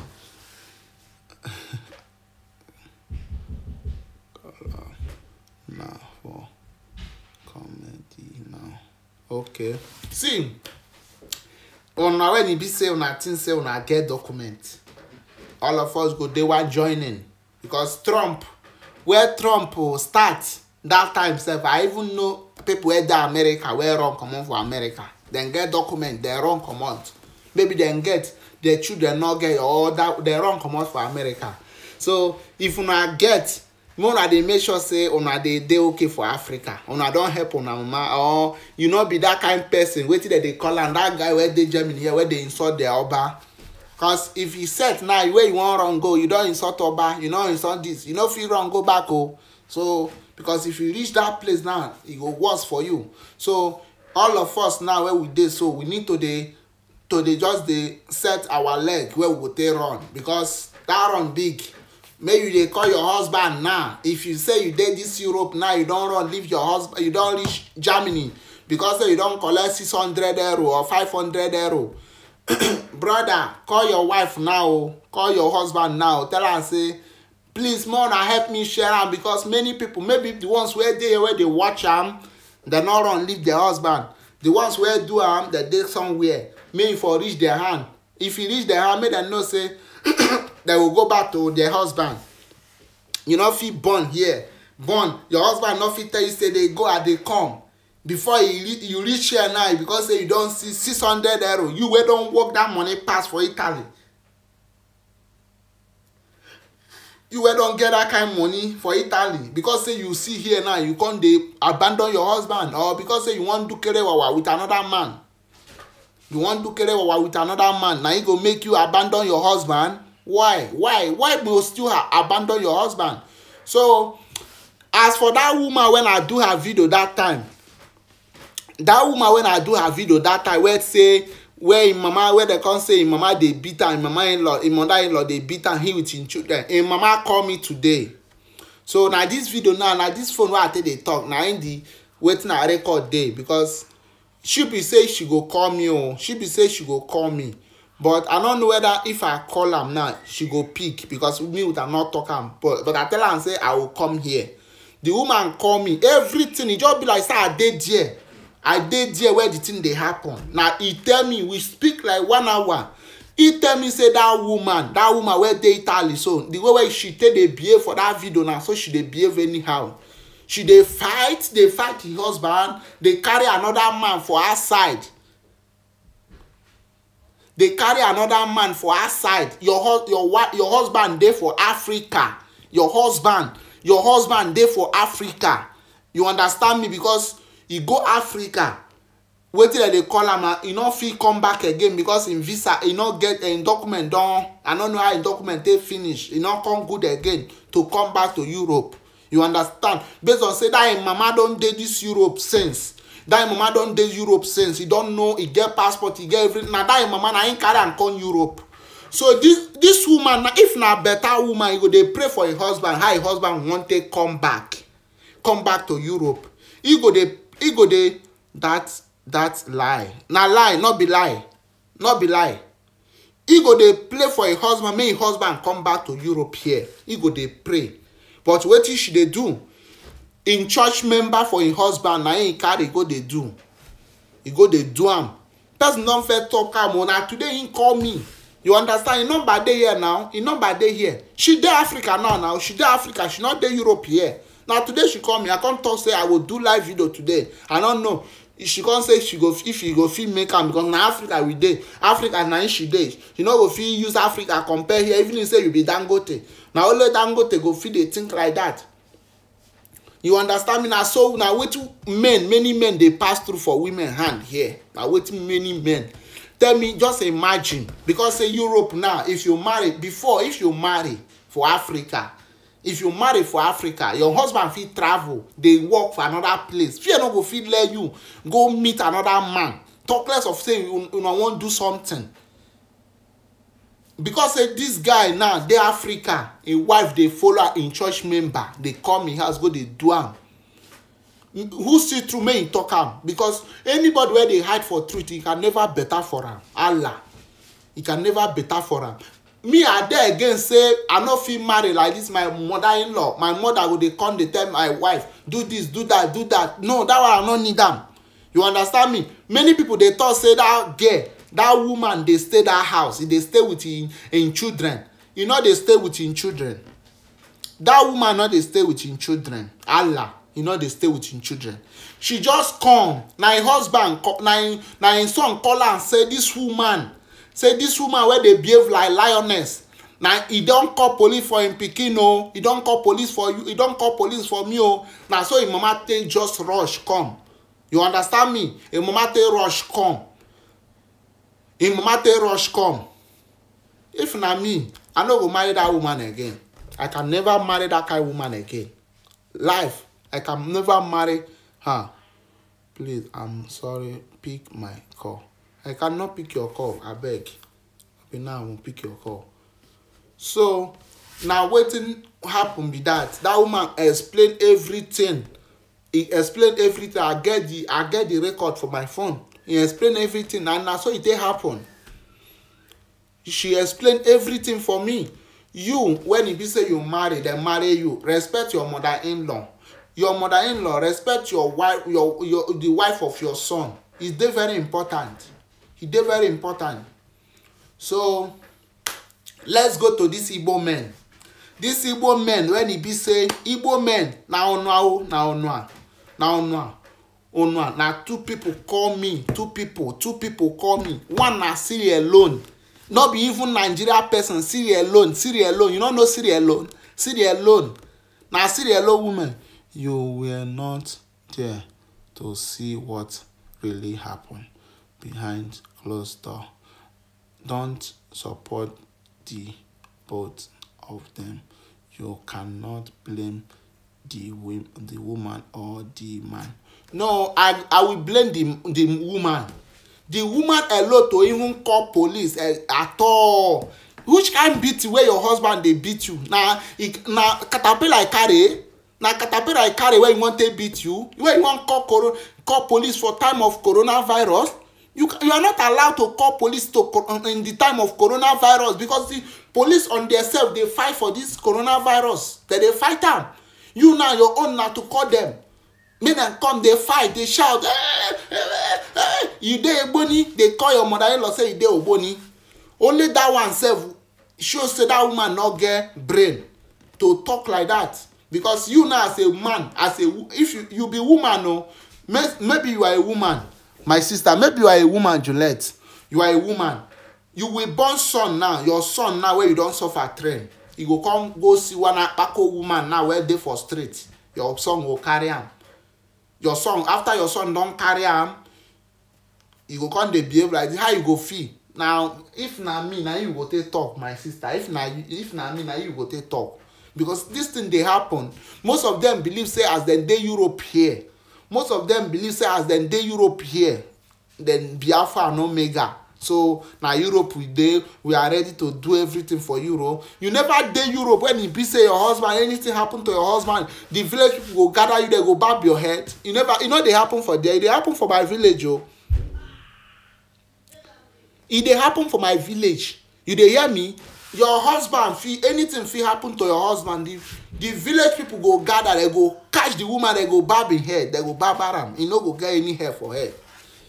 now for comedy now okay see una when e be say una think say una get document all of us go dey one joining because trump where trump start that time sef i even know people wey dey america wey run comot for america dem get document dem run comot maybe dem get their children no get or that dem run comot for america so if una get make una dey make sure say una dey dey okay for africa una don help una mama or you no be that kind person wetin dem dey call am that guy wey dey germany here wey dey insult their oba cause if you set now where you wan run go you don insult oba you no insult this you no fit run go back o oh. so because if you reach that place now e go worse for you so all of us now wey we dey so we need to dey to dey just dey set our leg wey we go take run because that run big make you dey call your husband now if you say you dey this europe now you don run leave your husband you don reach germany because say you don collect six hundred euro or five hundred euro brother call your wife now o call your husband now tell am say please make una help me share am because many people maybe the ones wey dey wey dey watch am dem no run leave their husband the ones wey do am dem dey somewhere make for reach their hand if e reach their hand make dem know say dem go go back to their husband you no fit born here born your husband no fit tell you say dey go i dey come before you reach you reach here now because say you don see six hundred euro you wey don work that money pass for italy you wey don get that kind money for italy because say you see here now you come dey abandon your husband or because say you wan do kerewawa with another man you wan do kere wawa with another man na e go make you abandon your husband why why why go still abandon your husband so as for that woman when i do her video that time that woman when i do her video that time wey say where im mama wey dem come say im mama dey beat am im mama in-law im mother in-law dey beat am he with im children im mama call me today so na dis video now na dis phone wey i take dey talk na im the wetin i record dey because she be say she go call me oh she be say she go call me but i no know whether if i call am now she go pick because me with her no talk am but but i tell am say i go come here the woman call me everything e just be like say i dey there i dey there where the thing dey happen na e tell me we speak like one hour e tell me say that woman that woman wey dey italy so the way wey she take dey behave for that video na so she dey behave anyhow she dey fight dey fight the husband dey carry another man for her side dey carry another man for her side your your your husband dey for africa your husband your husband dey for africa you understand me because e go africa wetin dem dey call am e no fit come back again because im visa e no get eh, im document don i no know how im document take finish e no come good again to come back to europe you understand based on say that im mama don dey this europe since That im mama don dey europe since He don know He get passport He get everything na that im mama na im carry am come europe so this this woman if na better woman e go dey pray for her husband how her husband wan take come back come back to europe He go dey he go dey that that lie na lie not be lie not be lie He go dey pray for her husband make her husband come back to europe here He go dey pray but wetin she dey do im church member for im husband na im carry go dey do e go dey do am person don fair talk am o oh, na today im call me you understand im number dey here now im number dey here she dey africa now now she dey africa she no dey europe here na today she call me i come talk say i go do live video today i no know she come say she go if she go fit make am because na africa we dey africa na im she dey You no go fit use africa compare here even if say you be dangote na only dangote go fit dey think like that you understand me na so na wetin men many men dey pass through for women hand here na wetin many men tell me just imagine because say europe now if you marry before if you marry for africa if you marry for africa your husband fit travel dey work for another place fear no go fit let you go meet another man talk less of say you una wan do something because say this guy now dey africa im wife dey follow im church member dey come im house go dey do am who see through make im talk am because anybody wey dey hide for truth he can never better for am allah he can never better for am me i dey again say i no fit marry like this my mother in law my mother go dey come dey tell my wife do this do that do that no that one i no need am you understand me many people dey talk say that girl that woman dey stay that house e dey stay with im im children e no dey stay with im children that woman no dey stay with im children allah e no dey stay with im children she just come na im husband na im na im son call am say this woman say this woman wey dey behave like lioness na e don call police for im pikin o oh. e don call police for you e don call police for me o oh. na so im mama take just rush come you understand me im mama take rush come im mama take rush come if na me i no go marry dat woman again i can never marry dat kind woman again life i can never marry her please i'm sorry pick my call I cannot pick your call abeg abi now I wan pick your call so now, wetin happened be that that woman explained everything he explained everything i get the i get the record for my phone he explained everything and na so it e take happen she explained everything for me you when e be say you marry dem marry you respect your mother-in-law your mother-in-law respect your wife your your the wife of your son e very important e dey very important so let's go to this igbo men This igbo men when e be say igbo men na onua o na onua na onua onua na two people call me two people two people call me one na siri alone no be even nigeria person siri alone siri alone you no know siri alone siri alone na siri alone woman you were not there to see what really happen behind Cluster, Don't support the both of them. You cannot blame the, the woman or the man. No, I, I will blame the, the woman. The woman alone to even call police uh, at all. Which kind beat you? where your husband dey beat you? Na na caterpillar carry? na caterpillar carry wey you wan take beat you wey you wan call corona call police for time of coronavirus you, you are not allowed to call police to uh, in the time of coronavirus because the police on themselves dey fight for this coronavirus dem dey fight am you now your own na to call them. make dem come dey fight dey shout eh, eh, eh, you dey egboni dey call your mother-in-law say you dey ogboni only that one sef show say that woman no get brain to talk like that because you now as a man as a if you, you be woman o oh, no, maybe you are a woman my sister maybe you are a woman juliet you are a woman you will born son now your son now wey you don suffer train e go come go see one akpako woman now wey dey for street your son go carry am your son after your son don carry am you go come dey behave like how you go feel now if na me na you go take talk my sister if na if na me na you go take talk because this thing dey happen most of them believe say as dem dey europe here most of them believe say as dem dey europe here then biafra no mega so na europe we dey we are ready to do everything for europe you never dey europe when e be say your husband anything happen to your husband the village people go gather you there go barb your head you never e no dey happen for there e dey happen for my village o oh. e dey happen for my village you dey hear me your husband fit anything fit happen to your husband the the village people go gather they go catch the woman they go barb im hair. they go barb am e no go get any hair for her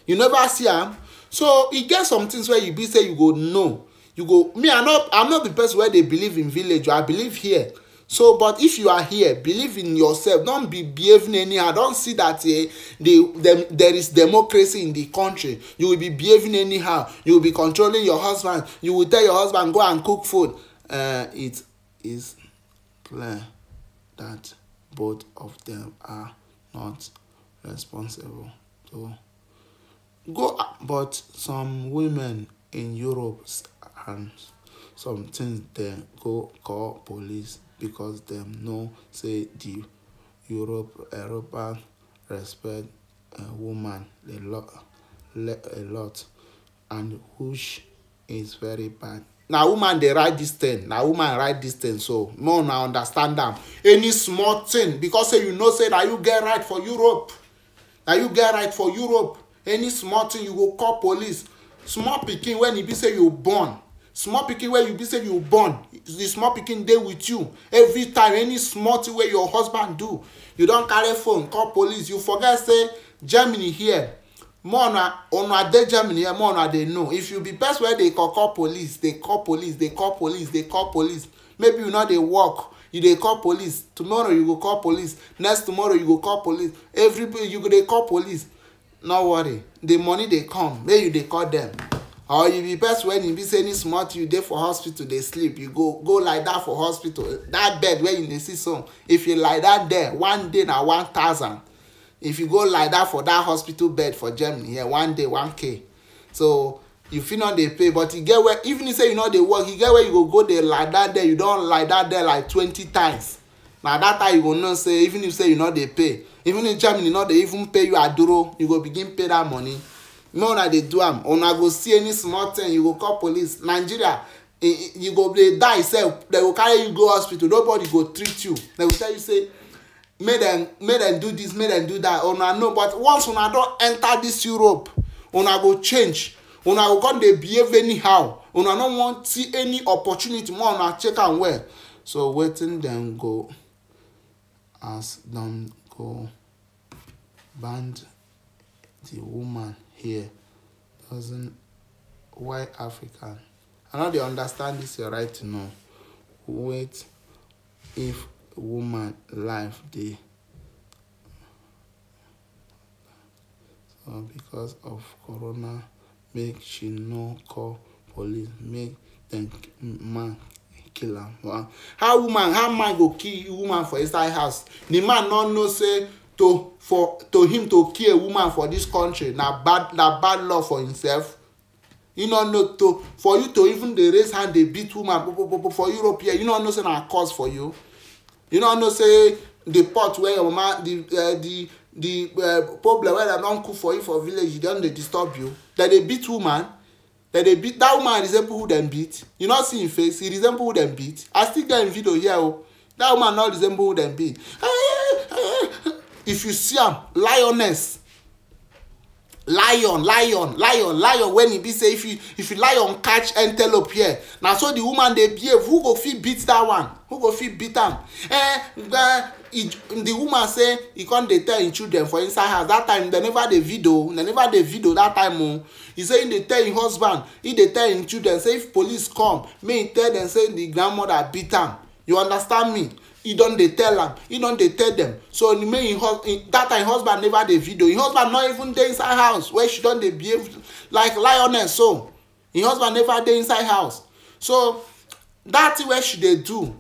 you never see am so e get some things wey you be say you go know you go me i no i'm not the person wey dey believe in village i believe here so but if you are here believe in yourself don't be behaving anyhow don't see that eh, the, the, there is democracy in the country you will be behaving anyhow you will be controlling your husband you will tell your husband go and cook food uh, it is clear that both of them are not responsible to go but some women in europe and some things dem go call police because them know say the Europe european respect woman a lot a lot, and which is very bad Now woman they write dis thing na woman write dis thing so more una understand them. any small thing because say you know say that you get right for europe na you get right for europe any small thing you go call police small picking when e be say you born small pikin wey you be say you born the small pikin dey with you every time any small thing wey your husband do you don carry phone call police you forget say germany here more una una dey germany here more na dey know if you be person wey dey call call police dey call police dey call police dey call police maybe you no dey work you dey call police tomorrow you go call police next tomorrow you go call police every you go dey call police no worry the money dey come make you dey call them or you be person when you be say any small thing you dey for hospital dey sleep you go go lie down for hospital that bed wey you dey see so if you lie down there one day na one thousand if you go lie down for that hospital bed for germany here yeah, one day one k so you fit no dey pay but e get where even if say you no dey work e get where you go go dey lie down there you don lie down there like twenty times na that time you go know say even if say you no dey pay even if germany no dey even pay you aduro you go begin pay that money make una dey do am una go see any small thing you go call police nigeria you go dey die sef dem go carry you go hospital nobody go treat you dem go tell you say make dem make dem do this make dem do that una know but once una don enter this europe una go change una go come dey behave anyhow una no wan see any opportunity more una check am well so wetin dem go as dem go band the woman here doesn't why African? I know they understand this your right to know. Wait if woman life dey so uh, because of corona make she no call police make dem man kill am wow how woman how man go kill woman for inside house the man no know say to for to him to kill a woman for this country na bad na bad law for himself you no know to for you to even dey raise hand dey beat woman popopopo for europe here you no know say na cause for you you no know say the pot wey your mama the uh, the the uh, problem wey dem don cook for you for village e don dey disturb you dem dey beat woman dem dey beat that woman resemble who dem beat you no see im face e resemble who dem beat i still get im video here o oh. that woman no resemble who dem beat if you see am lioness lion lion lion lion when e be say if you if you lion catch antelope here na so the woman dey behave who go fit beat that one who go fit beat am eh the the woman say e come dey tell im children for inside house that time dem never dey video dem never dey video that time o oh. e say im dey tell im husband e dey tell im children say if police come may im tell dem say the grandmother beat am you understand me He don dey tell am He don dey tell dem so make im that time husband never dey video im husband not even dey inside house where she don dey behave like lioness so im husband never dey inside house so dat thing wey she dey do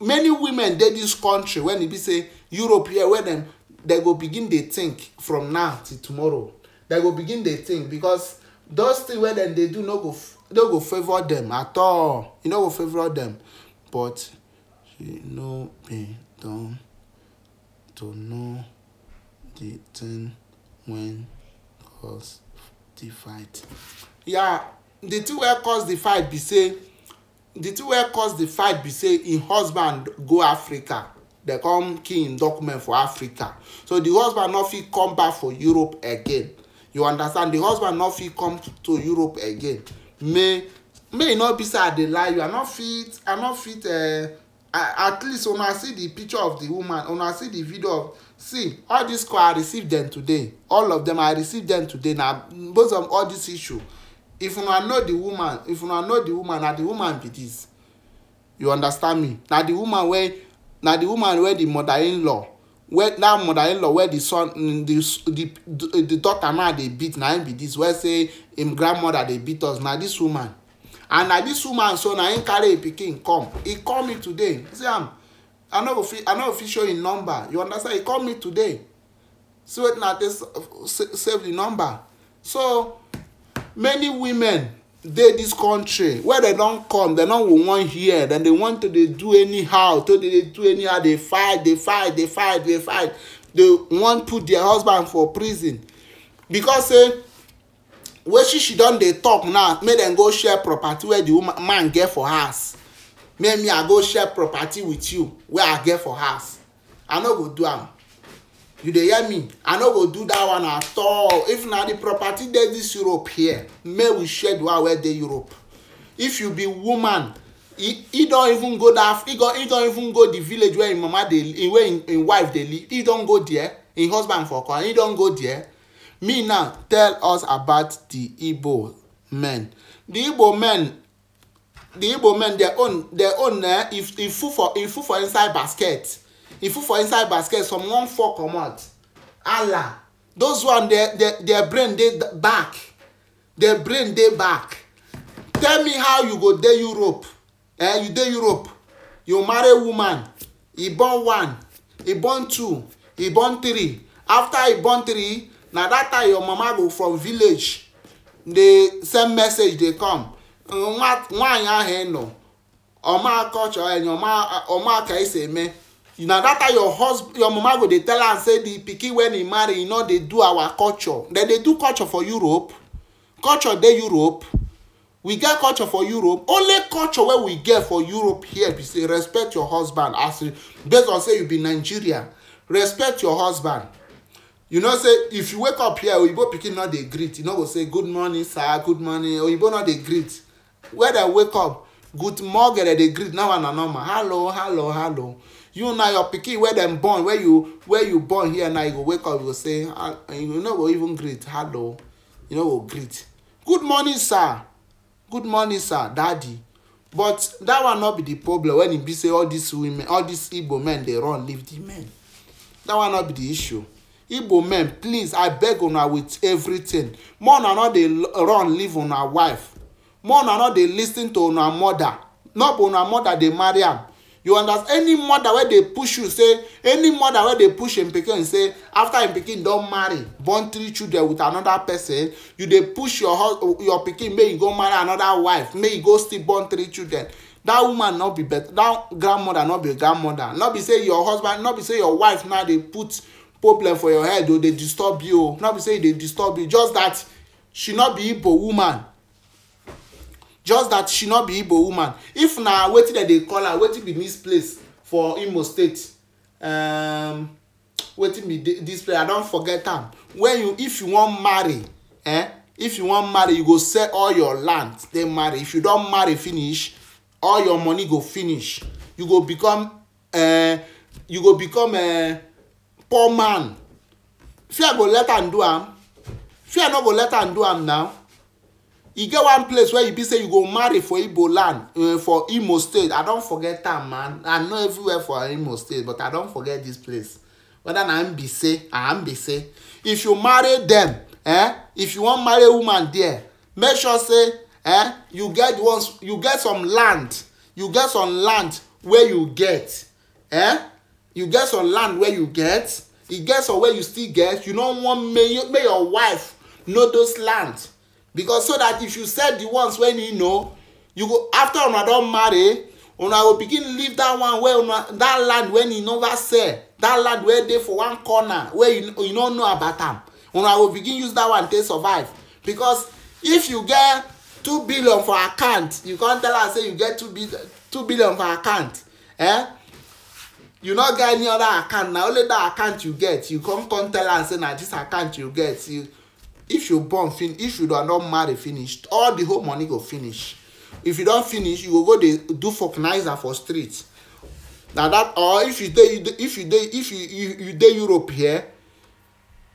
many women dey this country when e be say europe here wey dem dem go begin dey think from now till tomorrow dem go begin dey think because those things wey dem dey do no go no go favour dem at all e no go favour dem but You no be don to know the thing wen cause the fight. Yeah, the thing wey cause the fight be say the thing wey cause the fight be say im husband go africa dey come kill im document for africa so the husband no fit come back for europe again you understand the husband no fit come to europe again may may e no be say i dey lie you i no fit i no fit. Uh, at least una see the picture of the woman una see the video of see all this call i receive them today all of them i receive them today na based of all this issue if una know the woman if una know the woman na the woman be this you understand me na the woman wey na the woman wey the mother-in-law wey that mother-in-law wey the son mm, the the the daughter now dey beat na him be this wey say him grandmother dey beat us na this woman and na dis woman so na him carry him pikin come e call me today see am i no go fit i no go fit show him number you understand he call me today see wetin i take save the number so many women dey dis country wey dem don come dem no go wan hear dem dey want to dey do anyhow to dey do anyhow dey fight dey fight dey fight dey fight dey wan put their husband for prison because say wetin she she don dey talk now make dem go share property wey the woman man get for house make me i go share property with you wey i get for house i no go do am you dey hear me i no go do that one at all if na the property dey this europe here make we share the one wey dey europe if you be woman he he don even go that he go he don even go the village where him mama dey where him him wife dey live he don go there him husband for come he don go there me now tell us about the igbo men the igbo men the igbo men their own their own eh, if if full for if full for inside basket if full for inside basket someone one come out. allah those one their their their brain dey back their brain dey back tell me how you go there europe eh you there europe you marry woman e born one e born two e born three after e born three na that time your mama go from village dey send message dey come nwaanyị ahụ ị nọ ọma culture enyi eh, ọma ka esi eme na that time your husband your mama go dey tell am say the pikin wey he marry he no dey do our culture dem dey do culture for europe culture dey europe we get culture for europe only culture wey we get for europe here be say respect your husband as based on say you be Nigerian, respect your husband you know say if you wake up here oyibo pikin no dey greet you no go say good morning sir good morning oyibo no dey greet Where dem wake up good morning dem dey greet now na normal hello hello hello you na your pikin wey dem born wey you wey you born here now you go wake up you go say ah, eh, you no go even greet hello you no go greet good morning sir good morning sir daddy but that one no be the problem when e be say all these women all these igbo men dey run leave the men that one no be the issue igbo men please i beg una with everything more una no dey run leave una wife more una no dey lis ten to una mother no be una mother dey marry am you understand any mother wey dey push you say any mother wey dey push im pikin say after im pikin don marry born three children with another person you dey push your husband, your pikin make he go marry another wife make he go still born three children that woman no be better that grandmother no be grandmother no be say your husband no be say your wife now dey put problem for your head o dey disturb you o no be say e dey disturb you just that she no be igbo woman just that she no be igbo woman if na wetin dem dey call her wetin be dis place for imo state um, wetin be dis place i don forget am when you if you wan marry eh if you wan marry you go sell all your land then marry if you don marry finish all your money go finish you go become uh, you go become. Uh, poor man fear go let am do am fear no go let am do am now e get one place where you be say you go marry for igbo land uh, for imo state i don forget am man i know everywhere for imo state but i don forget this place whether na mbise or mbise if you marry them, eh if you wan marry woman there make sure say eh you get once, you get some land you get some land wey you get eh you get some land wey you get e get some wey you still get you no wan make you, make your wife know those land because so that if you sell the ones wey you know you go after una don marry una go begin leave that one wey una that land wey you never sell that land wey dey for one corner wey you, you no know about am una go begin use that one take survive because if you get two billion for account you come tell her say you get two, bi two billion for account eh you no get any other account na only that account you get you come come tell am say na this account you get you if you born fin if you don don marry finish all the whole money go finish if you don finish you go go dey do vulcanizer for street na that or if you dey if you dey if you you, you dey europe here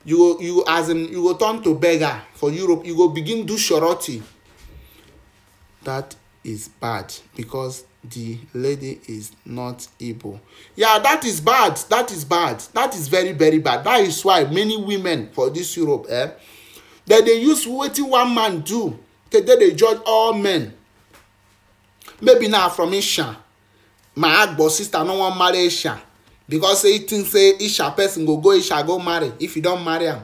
you go you as in you go turn to beggar for europe you go begin do surety that is bad because the lady is not able. Yeah, that is bad. That is bad. That is very, very bad. That is why many women for this Europe, eh, that they use wetin one man do. Okay, they judge all men. Maybe now from Isha. My agbo sister no wan marry Isha. Because say think say Isha person go go Isha go marry. If you don't marry him,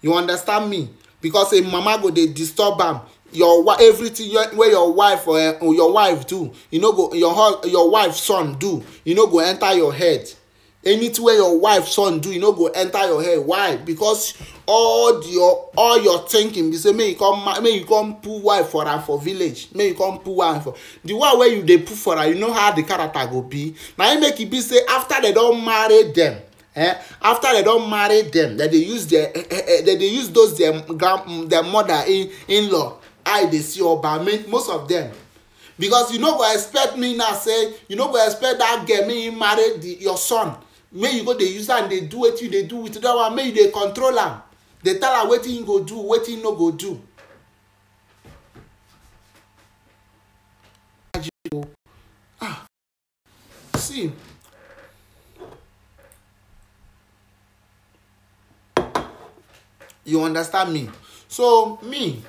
You understand me? Because a mama go they disturb am your wife everything your, wey your wife or uh, oh, your wife do you no go your your wife son do you no go enter your head anything wey your wife son do you no go enter your head why because all your all your thinking be say make you come make you come put wife for am for village make you come put wife for the one wey you dey put for am you know how the character go be na im make e be say after they don marry them eh after they don marry them dem dey use their eh, eh, dem eh, dey use those their mm, grand mm, their mother in in law i dey see oba most of them, because you no go expect me now say you no go expect that girl make you marry your son make you go dey use am dey do wetin you dey do with that one make you dey control am dey tell am wetin you go do wetin you no go do ah, see you understand me so me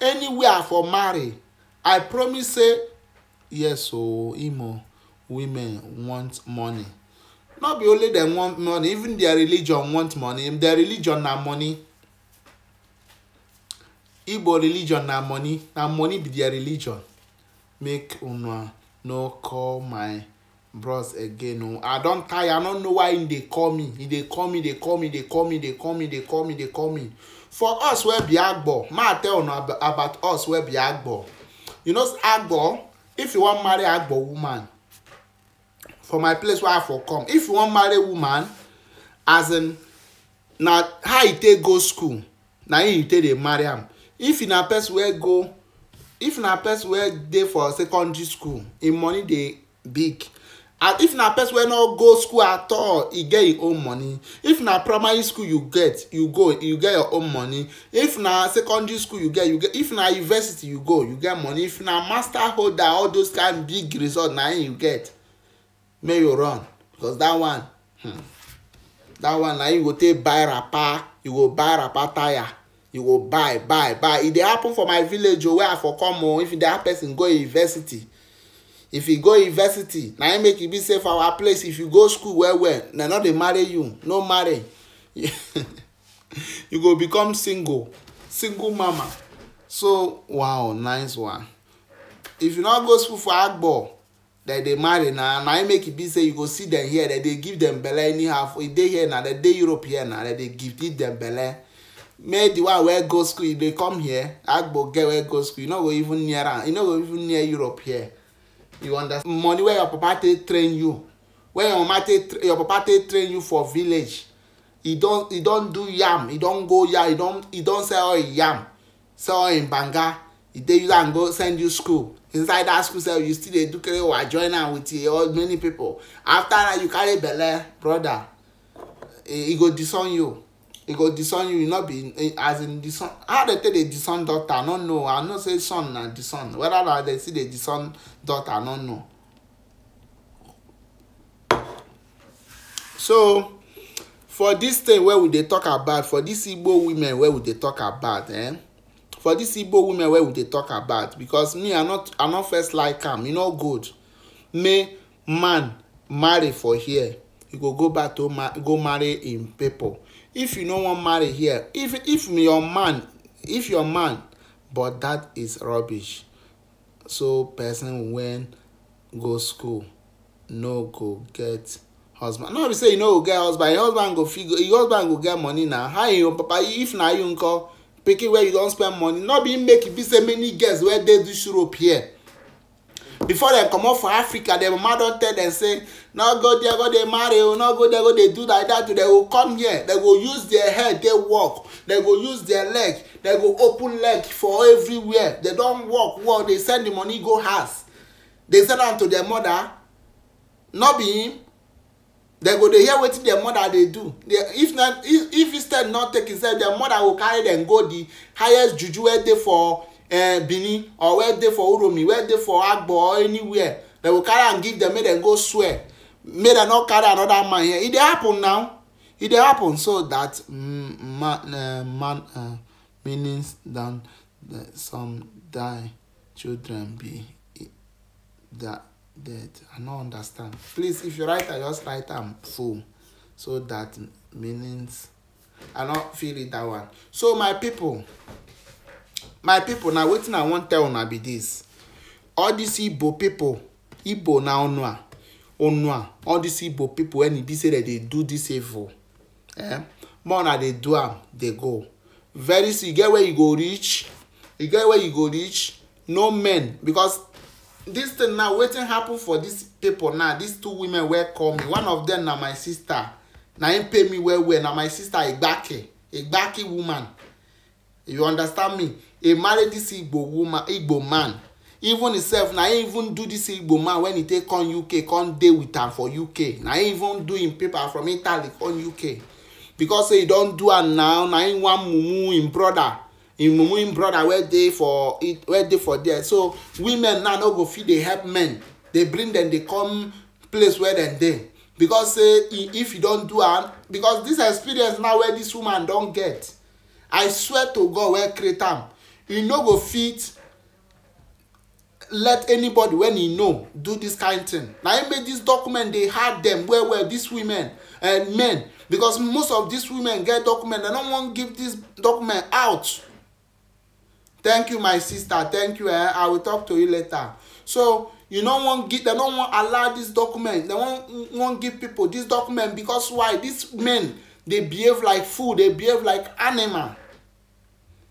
anywhere for marry i promise say yes o imo women want money no be only dem want money even their religion want money their religion na money igbo religion na money na money be their religion make una no call my bros again o i don tire i no know why im dey call me e call me dey call me dey call me dey call me dey call me dey call me. Dey call me for us wey be agbo ma tell una about us wey be agbo you know agbo if you wan marry agbo woman for my place wey i for come if you wan marry woman as in na how you e take go school na him you take dey marry am if na person wey go if na person wey dey for secondary school him money dey big and if na person wey no go school at all e get im e own money if na primary school you get you go you get your own money if na secondary school you get you get if na university you go you get money if na master holder all those kind big result na im you get make you run because that one hmm, that one na you go take buy wrapper you go buy wrapper tire you go buy buy buy e dey happen for my village o oh, where i for come o oh, if dey that person go university if you go university na im make e be safe for our place if you go school well well na no dey marry you no marry you go become single single mama so wow nice one if you no go school for agbo dem dey marry na na im make e be say you go see dem here dem dey give dem belle anyhow for e dey here na dem dey europe here na dem dey give give dem belle make the one wey go school e dey come here agbo get wey go school You e no go even near am You e no go even near europe here you understand money wey your papa take train you wey your mama take your papa take train you for village e don e don do yam e don go yam e don e don sell all im yam sell all im banga e dey use am go send you school inside that school sef you still dey do kerewa join am with your many people after that you carry belle brother e go disown you e go disown you you no be eh, as in disown how dem take dey disown daughter, i no know i know say son na disown whether na dem still dey disown daughter i no know so for dis thing wey we dey talk about for dis igbo women wey we dey talk about eh for dis igbo women wey we dey talk about because me i not i not first like am e no good make man marry for here e go go back to go marry im people if you no wan marry here if if your man if your man but that is rubbish so person wen go school no go get husband no be say you no go get husband your husband go fit your husband go get money na how your papa if na you nko pikin wey you don spend money no be make e be say many girls wey dey this europe here before dem comot for africa dem mama don tell dem say no go there go dey marry o no go there go dey do like that o dem go come here dem go use their head dey work dem go use their leg dem go open leg for everywhere dem don work well dey send the money go house dey send am to their mother no be him dem go dey hear wetin their mother dey do if not, if if instead not take himself, their mother go carry dem go the highest juju wey dey for uh, benin or where they for uromi where they for agbo or anywhere they will carry and give them, make dem go swear make dem not carry another man here It dey happen now it dey happen so that mm, man, uh, man uh, eh, meanings than some die children be that dead i no understand please if you write I just write am full so that meanings i no feel it that one so my people my pipo na wetin i wan tell una be dis all dis igbo pipo igbo na onua onua all dis igbo pipo wen e be say dem dey do dis evil eh more na dey do am dey go very soon e get where you go reach e get where you go reach no men because dis thing now wetin happen for dis pipo now dis two women wey call me one of dem na my sister na im pay me well well na my sister igbake igbake woman you understand me A married, this igbo woman igbo man even himself na him even do this igbo man when he take come uk come dey with am for uk na him even do him paper from italy come uk because say he don do am now na him wan mumu him brother him mumu him brother wey dey for wey dey for there so women now no go fit dey help men dey bring dem dey come place where dem dey because say if you don do am because this experience now wey this woman don get i swear to god wey create am He no go fit let anybody wen he know do this kind thing na im make this document dey hard them well well dis women and eh, men because most of these women get document They no wan give this document out thank you my sister thank you eh i will talk to you later so you no wan give They no wan allow this document They wan wan give people this document because why These men dey behave like fool dey behave like animal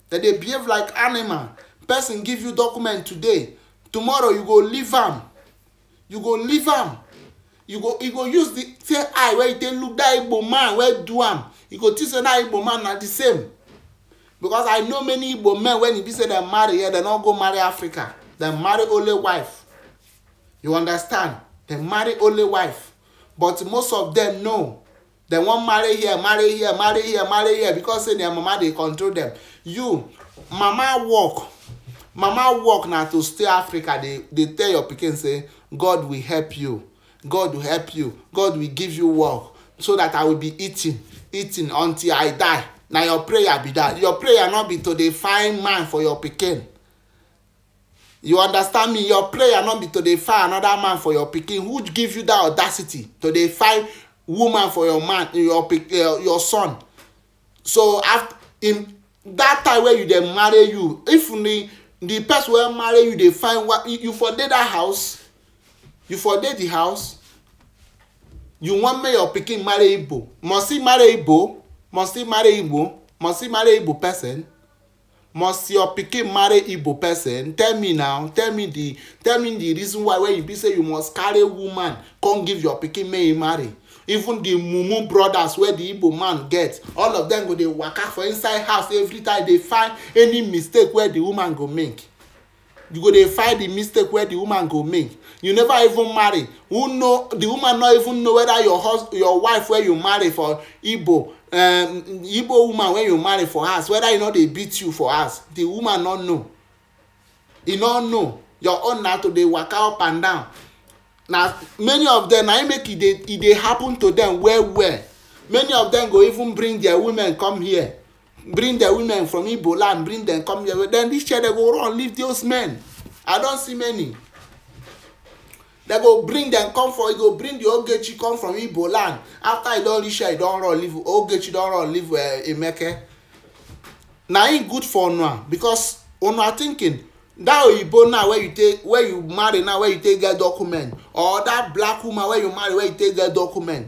that dey behave like animal person give you document today tomorrow you go leave am you go leave am you go you go use the same eye wey you take look that igbo man wey do am you go think say that igbo man na the same because i know many igbo men when e be say dem marry here yeah, dem no go marry africa dem marry only wife you understand dem marry only wife but most of dem no dem wan marry here marry here marry here marry here because say their mama dey control dem you mama work mama work na to stay africa dey dey tell your pikin say god will help you god will help you god will give you work so that i will be eating eating until i die na your prayer be that your prayer no be to dey find man for your pikin you understand me your prayer no be to dey find another man for your pikin who give you that audacity to dey find woman for your man your pikin your son so after im that time wey you dey marry you if the the person wey marry you dey find wa you for dey that house you for dey the house you wan make your pikin marry igbo must he marry igbo must he marry igbo must he marry igbo person must your pikin marry igbo person tell me now tell me the tell me the reason why when you be say you must carry woman come give your pikin make he marry even the mumu brothers wey the igbo man get all of them go dey waka for inside house every time dey find any mistake wey the woman go make you go dey find the mistake wey the woman go make you never even marry who know the woman no even know whether your hus your wife wey you marry for igbo um, woman wey you marry for house whether e no dey beat you for house the woman no know e no know your own na to dey waka up and down na many of them na im make e dey e dey happen to them well well many of them go even bring their women come here bring their women from igbo land bring them come here then this year they go run leave those men i don see many they go bring them come for e go bring the ogechi come from igbo land after e don reach here e don run leave ogechi don run leave uh, emeke na im good for una because una thinking that oyibo now where you take where you marry now where you take get document or that black woman where you marry where you take get document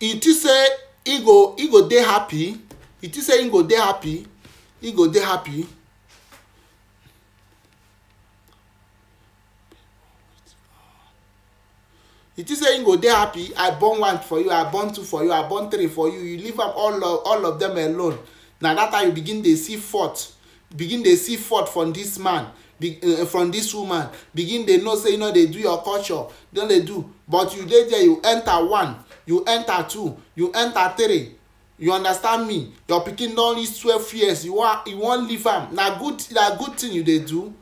e think say e go e go dey happy e think say e go dey happy e go dey happy It is say e go dey happy i born one for you i born two for you i born three for you you leave am all of all of them alone na that time you begin dey see fault begin dey see fault from this man be, uh, from this woman begin dey know say you no dey do your culture don dey do but you dey there you enter one you enter two you enter three you understand me your pikin don reach twelve years you wan you wan leave am na good na good thing you dey do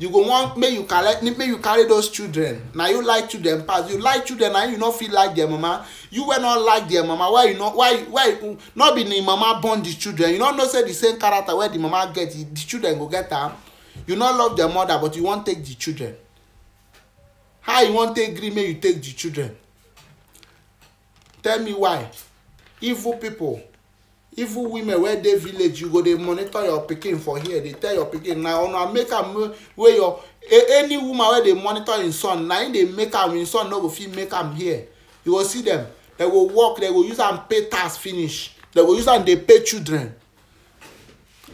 you go wan make you collect make you carry those children na you like children pass you like children na you no fit like their mama you wey no like their mama why you no why why no be the mama born the children you no know say the same character wey the mama get the children go get am you no love the mother but you wan take the children how you wan take gree make you take the children tell me why evil people evil women wey dey village you go dey monitor your pikin for here dey tell your pikin na una make am wey your any woman wey dey monitor im son na im dey make am im son no go fit make am here you go see dem dem go work dem go use am pay tax finish dem go use am dey pay children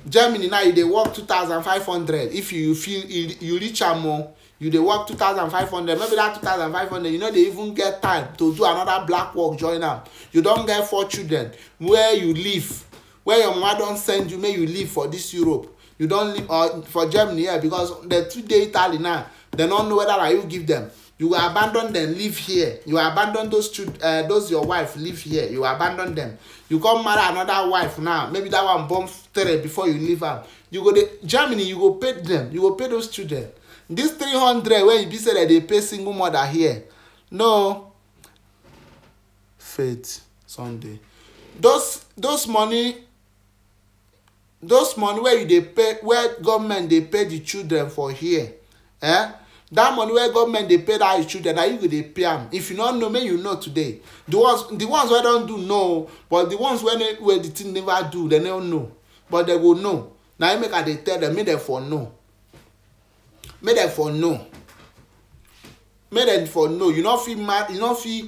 germany now you dey work two thousand five hundred if you feel you, you reach am o oh, you dey work two thousand five hundred maybe that two thousand five hundred you no dey even get time to do another black work join am you don get four children where you live where your mama don send you make you live for this europe you don live uh, for germany here yeah, because the two dey italy now dem no know whether na you give dem you go abandon dem live here you abandon those children uh, those your wife live here you abandon dem you come marry another wife now maybe that one born three before you leave am you go dey germany you go pay them. you go pay those children this three hundred wey you be say dem dey pay single mother here no faith sunday those those money those money wey you dey pay wey government dey pay the children for here eh that money wey government dey pay that children na you go dey pay am if you no know make you know today the ones the ones wey don do know but the ones wey wey the thing never do they no know but they go know na im make i dey tell them, make them for know make them for know make them for know you no fit mar you no fit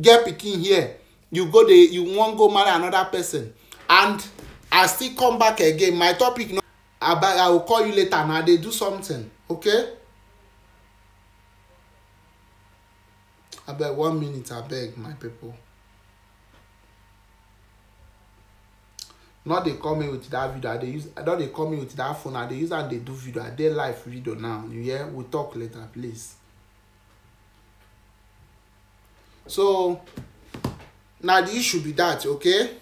get pikin here you go dey you wan go marry another person and i still come back again my topic no about i go call you later na i dey do something okay. abeg one minute abeg my people no dey come me with that video i dey use no dey come me with that phone i dey use am dey do video i dey live video now you hear we talk later please so na the issue be that okay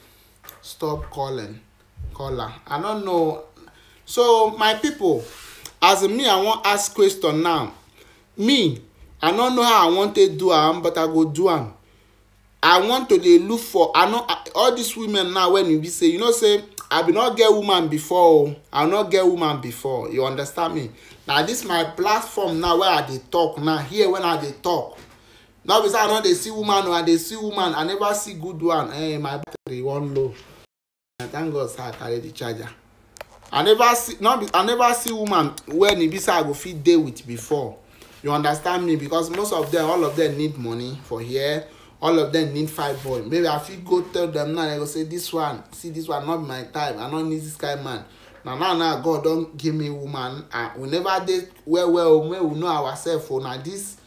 stop calling caller i no know so my people as me i wan ask question now me i no know how i wan take do am but i go do am i want to dey look for i no all these women now when e be say you know say i bin no get woman before o i no get woman before you understand me na this my platform now wey i dey talk now here when i dey talk no be say i no dey see woman o i dey see woman i never see good one eh my battery wan low i thank god say i carry the charger i never see no be i never see woman when e be say i go fit dey with before you understand me because most of them all of them need money for here all of them need five boy maybe i fit go tell them now i go say this one see this one not my type i no need this kind man na now now god don give me woman and we never dey well well o oh, make we know ourselves o oh, na this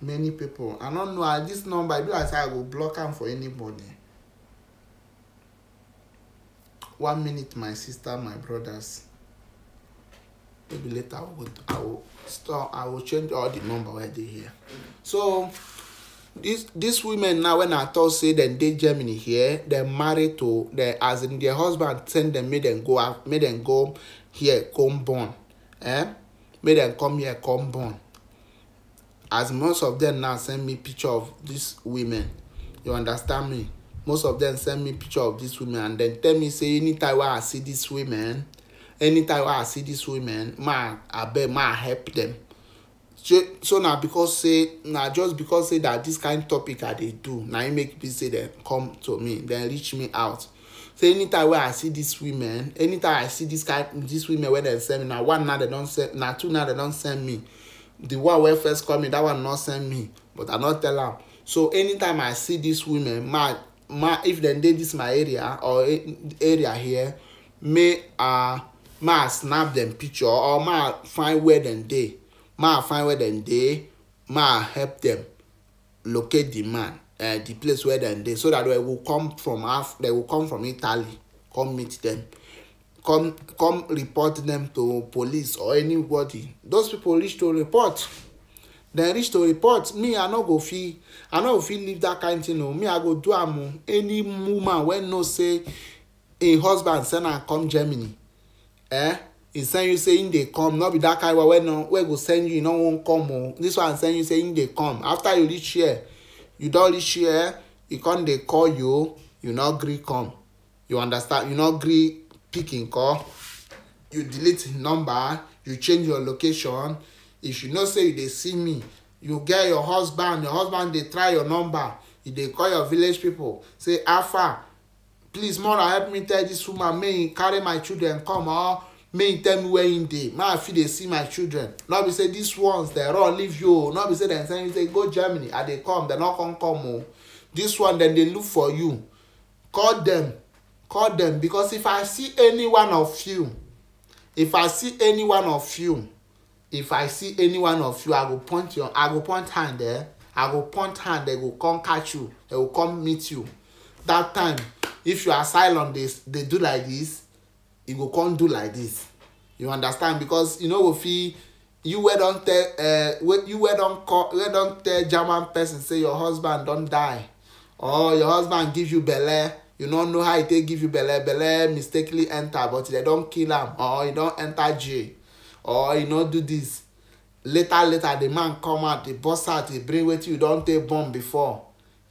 many people i no know and this number e be like say i go block am for anybody one minute my sister my brothers maybe later I will, I will store I will change all the number where they here so this this women now when I told say dem dey Germany here they married to dem as in their husband send them made them go out make dem go here come born eh Made them come here come born as most of them now send me picture of these women you understand me most of them send me picture of these women and then tell me say anytime wey I see these women anytime i ah, see dis women ma abeg ma help dem so so na because say na just because say na dis kind topic i dey do na im make be say dem come to me dem reach me out so anytime wey i see dis women anytime i see dis women wey dem send me na one na na two na dem don send me the one wey first call me that one not send me but i not tell am so anytime i see dis women ma ma if dem dey dis my area or area here may i ah, ma snap dem picture or ma find where dem dey ma find where dem dey ma help dem locate the man uh, the place where dem dey so that they go come from af they go come from italy come meet dem come come report dem to police or anybody those people reach to report dem reach to report me i no go fit i no go fit leave that kind of thing o oh. me i go do am o oh. any woman wey know say im husband send am come germany eh e send you say him dey come no be that kind one wey no wey go send you e no wan come o oh. this one send you say him dey come after you reach here you don reach here He come dey call you you no gree come you understand you no gree pick him call you delete him number you change your location if you know say you dey see me you get your husband your husband dey try your number He dey call your village people say how far please mother, help me tell this woman May carry my children come or may tell me where im dey make i fit dey see my children no be say this ones dem run leave you o no be say dem send you say go germany i dey come dem no come come o oh. dis one dem dey look for you call dem call dem because if i see any one of you if i see any one of you if i see any one of you i go point your i go point hand eh i go point hand dem go come catch you dem go come meet you that time if you asylum dey they do like this e go come do like this you understand because you no go fit you wey don tell uh, you wey don call wey don tell german person say your husband don die or your husband give you belle you no know how e take give you belle belle mistakenly enter but dem don kill am or e don enter jail or e no do this later later the man come out dey burst out dey bring wetin you don take born before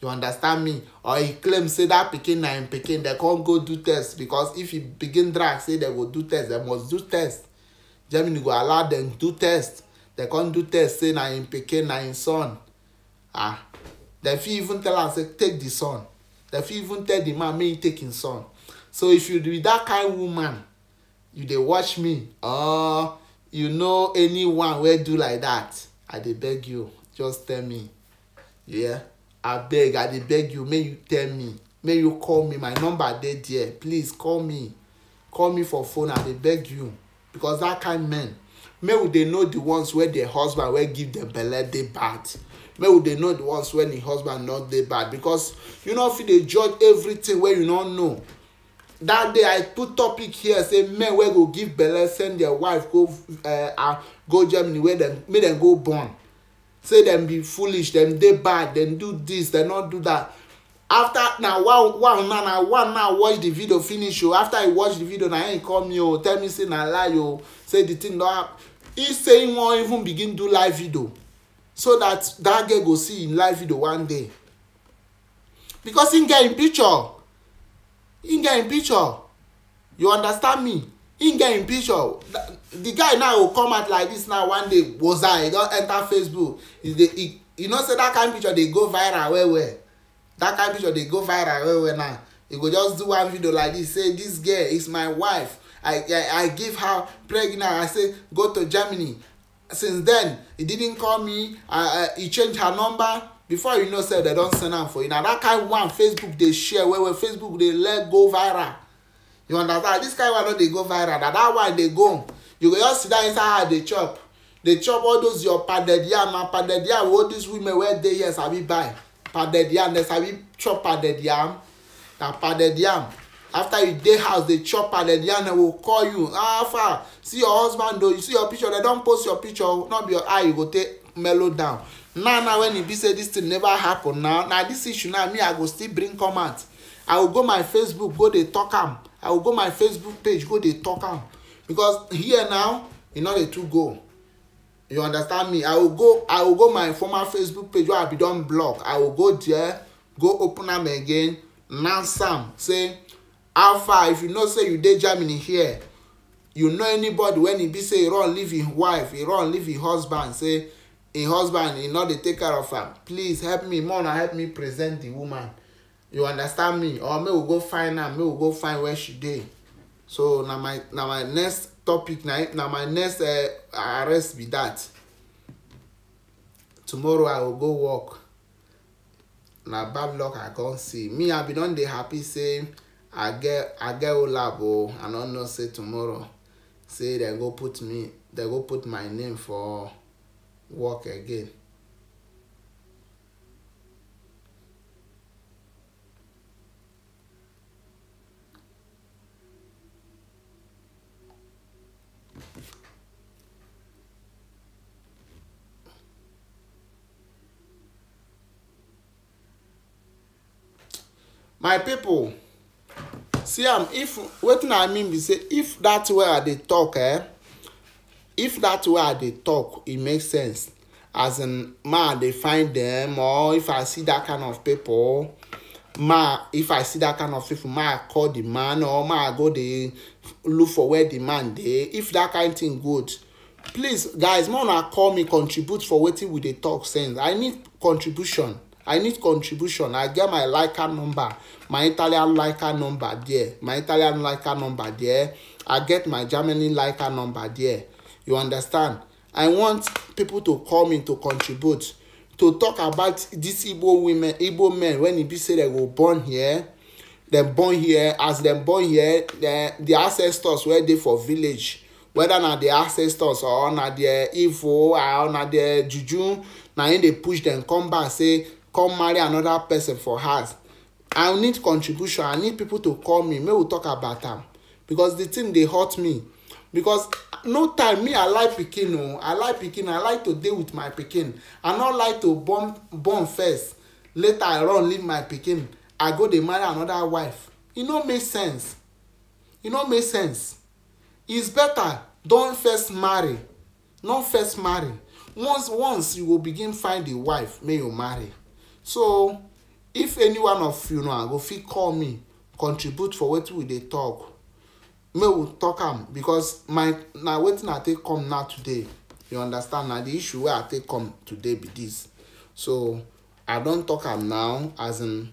you understand me or he claim say that pikin na im pikin dem con go do test because if he begin drag say dem go do test dem must do test germany go allow dem do test dem con do test say na im pikin na im son ah dem fit even tell am say take the son dem fit even tell the man make e take im son so if you be that kind woman you dey watch me or you know anyone wey do like that. i dey beg you just tell me yeah abeg i dey beg you make you tell me make you call me my number dey there please call me call me for phone i dey beg you because that kind men make we dey know the ones wey their husband wey give dem belle dey bad make we dey know the ones when the husband not dey bad because you no fit dey judge everything wey you no know that day i put topic here say men wey go give belle send their wife go uh, uh, go germany wey dem make dem go born say dem be foolish dem dey bad dem do dis dem no do dat after na one one now na one now watch the video finish o oh. after he watch the video na him call me o oh. tell me say na lie o oh. say the thing don happen he say he wan even begin do live video so that that girl go see him live video one day because him get him picture him get him picture you understand me him get him picture the guy now go come out like this now one day gboza he don enter facebook he dey he you know say that kind of picture dey go viral well well that kind of picture dey go viral well well now he go just do one video like this say this girl is my wife i i, I give her pregnant i say go to germany since then he didn't call me I I he change her number before you know say they don send am for you na that kind of one facebook dey share well well facebook dey let go viral you understand this kind one no dey go viral na that one dey go you go just sit down inside her dey chop dey chop all those your pounded yam and pounded yam wey all these women wey dey here sabi buy pounded yam dem sabi chop pounded yam na pounded yam after you dey house dey chop pounded yam dem go call you ah far see your husband o you see your picture dem don post your picture no be your eye you go take mellow down now now when e be say this thing never happen now na this issue now me i go still bring come out i go go my facebook go dey talk am i will go my facebook page go dey talk am because here now you e know they too go you understand me i will go i will go my former facebook page where i be done block i will go there go open them again announce am say alpha if you know say you dey germany here you know anybody when he be say e run leave im wife e run leave im husband say a husband you know they take care of her. please help me Mona, help me present the woman you understand me or make we go find am make we go find where she dey so na my na my next topic na na my next uh, arrest be that tomorrow i go go work na bad luck i come see me i be don dey happy say i get i get olab o i no know say tomorrow say dem go put me dem go put my name for work again my people see am um, if wetin i mean be say if that way i dey talk eh if that way i dey talk e make sense as in ma i dey find dem or if i see that kind of people ma if i see that kind of people ma i call the man or ma i go dey look for where the man dey if that kind thing good please guys more una call me contribute for wetin we dey talk sense i need contribution I need contribution. I get my Leica number, my Italian Leica number there, my Italian Leica number there. I get my Germany Leica number there. You understand? I want people to come in to contribute, to talk about these Igbo women, Igbo men, when it e be say they were born here, dem born here, as dem born here, the, the ancestors were there for village. Whether na the ancestors or na the Igbo or na the Juju, na im dey push dem come back say come marry another person for house i need contribution i need people to call me make we talk about am because the thing dey hurt me because no time me i like pikin o oh. i like pikin i like to dey with my pikin i no like to born born first later i run leave my pikin i go dey marry another wife e no make sense e no make sense it's better don first marry no first marry once once you go begin find a wife make you marry so if any one of you now ah, go fit call me contribute for wetin we dey talk make we talk am because my na wetin i take come now today you understand na the issue wey i take come today be this so i don talk am now as in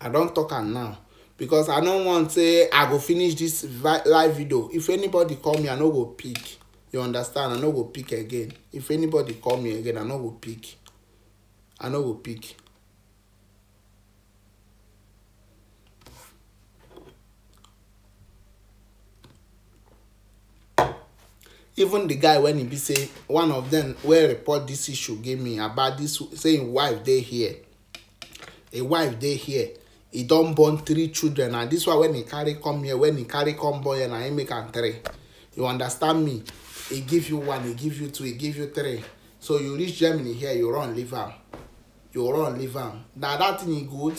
i don talk am now because i no want say i go finish this live video if anybody call me i no go pick you understand i no go pick again if anybody call me again i no go pick i know go pick even the guy when he be say one of them where report this issue gave me about this saying wife they here a wife they here he don't born three children and this one when he carry come here when he carry come boy and I make am three you understand me he give you one he give you two he give you three so you reach germany here you run leave am you run leave am na that thing e good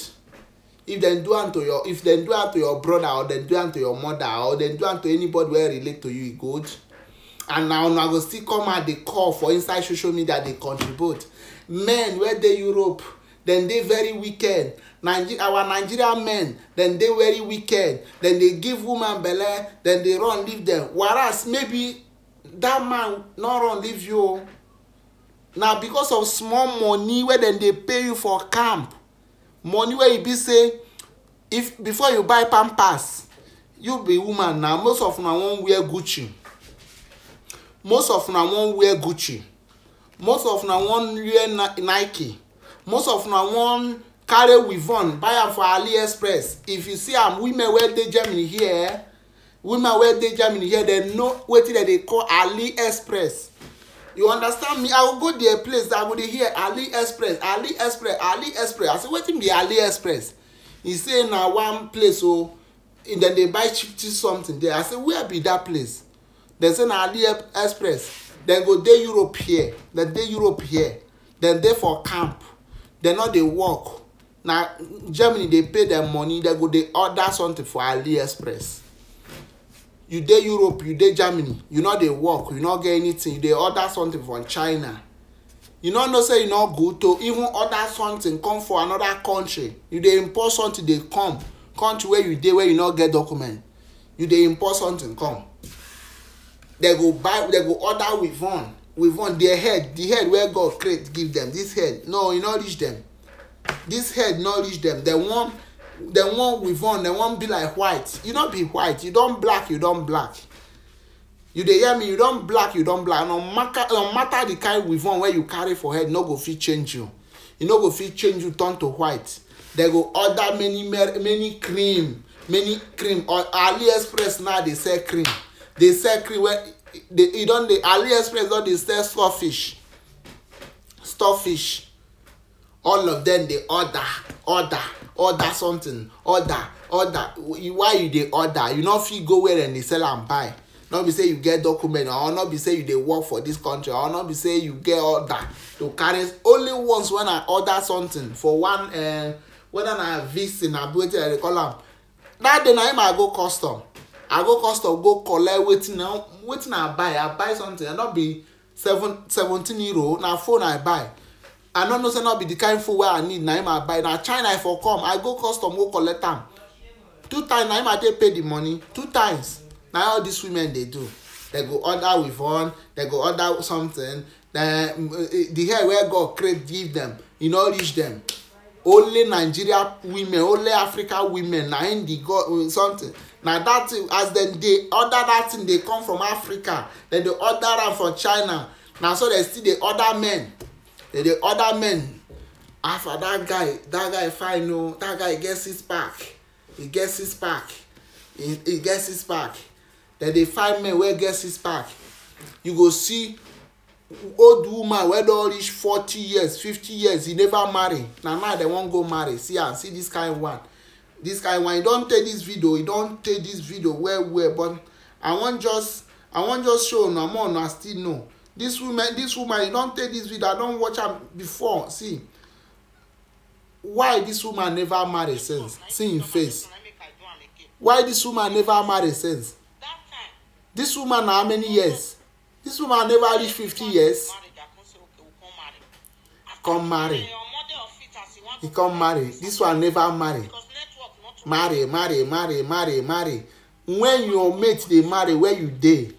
if dem do am to your if dem do am to your brother or dem do am to your mother or dem do am to anybody wey relate to you e good and na una go still come out dey call for inside social media dey contribute men wey dey europe dem dey very wicked Niger our nigerian men dem dey very wicked dem dey give woman belle dem dey run leave dem whereas maybe that man no run leave you o na because of small money wey dem dey pay you for camp money wey e be say if before you buy pampers you be woman na most of una wan wear gucci most of una wan wear gucci most of una wan wear nike most of una wan carry wivon buy am for aliexpress if you see am women wey dey germany here women wey dey germany here dem know wetin dem dey call aliexpress you understand me i will go there place i go dey hear Express. Ali Express. i say wetin be Ali Express? he say na one place o oh, dem dey buy cheap cheap something there i say where be that place dem say na Express. dem go dey europe here dem dey europe here dem dey for camp dem no dey work na germany dey pay dem money dem go dey order something for Ali Express you dey europe you dey germany you no dey work you no get anything you dey order something from china you no know say e no good to even order something come for another country you dey import something dey come country wey you dey wey you no get document you dey import something come dem go buy dem go order with one with one their head the head wey god create give them this head no e no reach them this head no reach them dem wan one wan weavon dem one be like white you no be white you don black you don black you dey hear me you don black you don black no matter no matter the kind weavon wey you carry for head no go fit change you e no go fit change you turn to white dem go order many many cream many cream or aliexpress now dey sell cream dey sell cream wey e, e don dey aliexpress don dey sell storefish storefish all of dem dey order order order something order order why you dey order you no fit go where dem dey sell am buy no be say you get document or no be say you dey work for dis country or no be say you get order to carry only once when i order something for one uh, whether na visa na wetin i dey call am that day na im i go custom i go custom go collect wetin i wetin i buy i buy something i e no be seven seventeen euro na phone i buy i no know say no be the kind food wey i need na him i buy na china i for come i go custom go collect am two times na him i take pay the money two times na all these women dey do dem go order with one dem go order something dem eh, the hair wey god create give them, e no reach dem only nigeria women only africa women na im dey go eh, something na that thing as dem dey order that thing dey come from africa dem dey order am from china na so dem still dey order men then the other men after that guy that guy fine o that guy get six pack he get six pack he, he get six pack then the five men wey get six pack you go see old woman wey don reach forty years fifty years he never marry na now dem wan go marry see am see this kind one this kind one he don take this video he don take this video well well but i wan just i wan just show una more una still know This woman this woman you don take this video i don watch am before see why this woman never marry since? see im face why this woman never marry since? This woman na how many years This woman never reach fifty years come marry he come marry This one never marry marry marry marry marry marry when your mate dey marry where you dey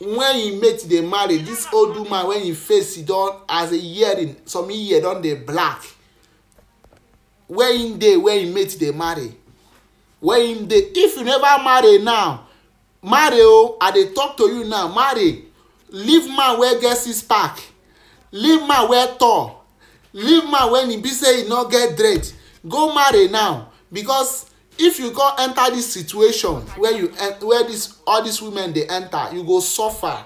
When he mate dey marry This old woman wen im face don as a hearing some year don dey black When im dey where im mate dey marry When im dey if you never marry now marry o oh, i dey talk to you now marry leave man wey get six pack leave man wey tall leave man wen e be say e no get dread go marry now because if you go enter this situation where you where this all these women dey enter you go suffer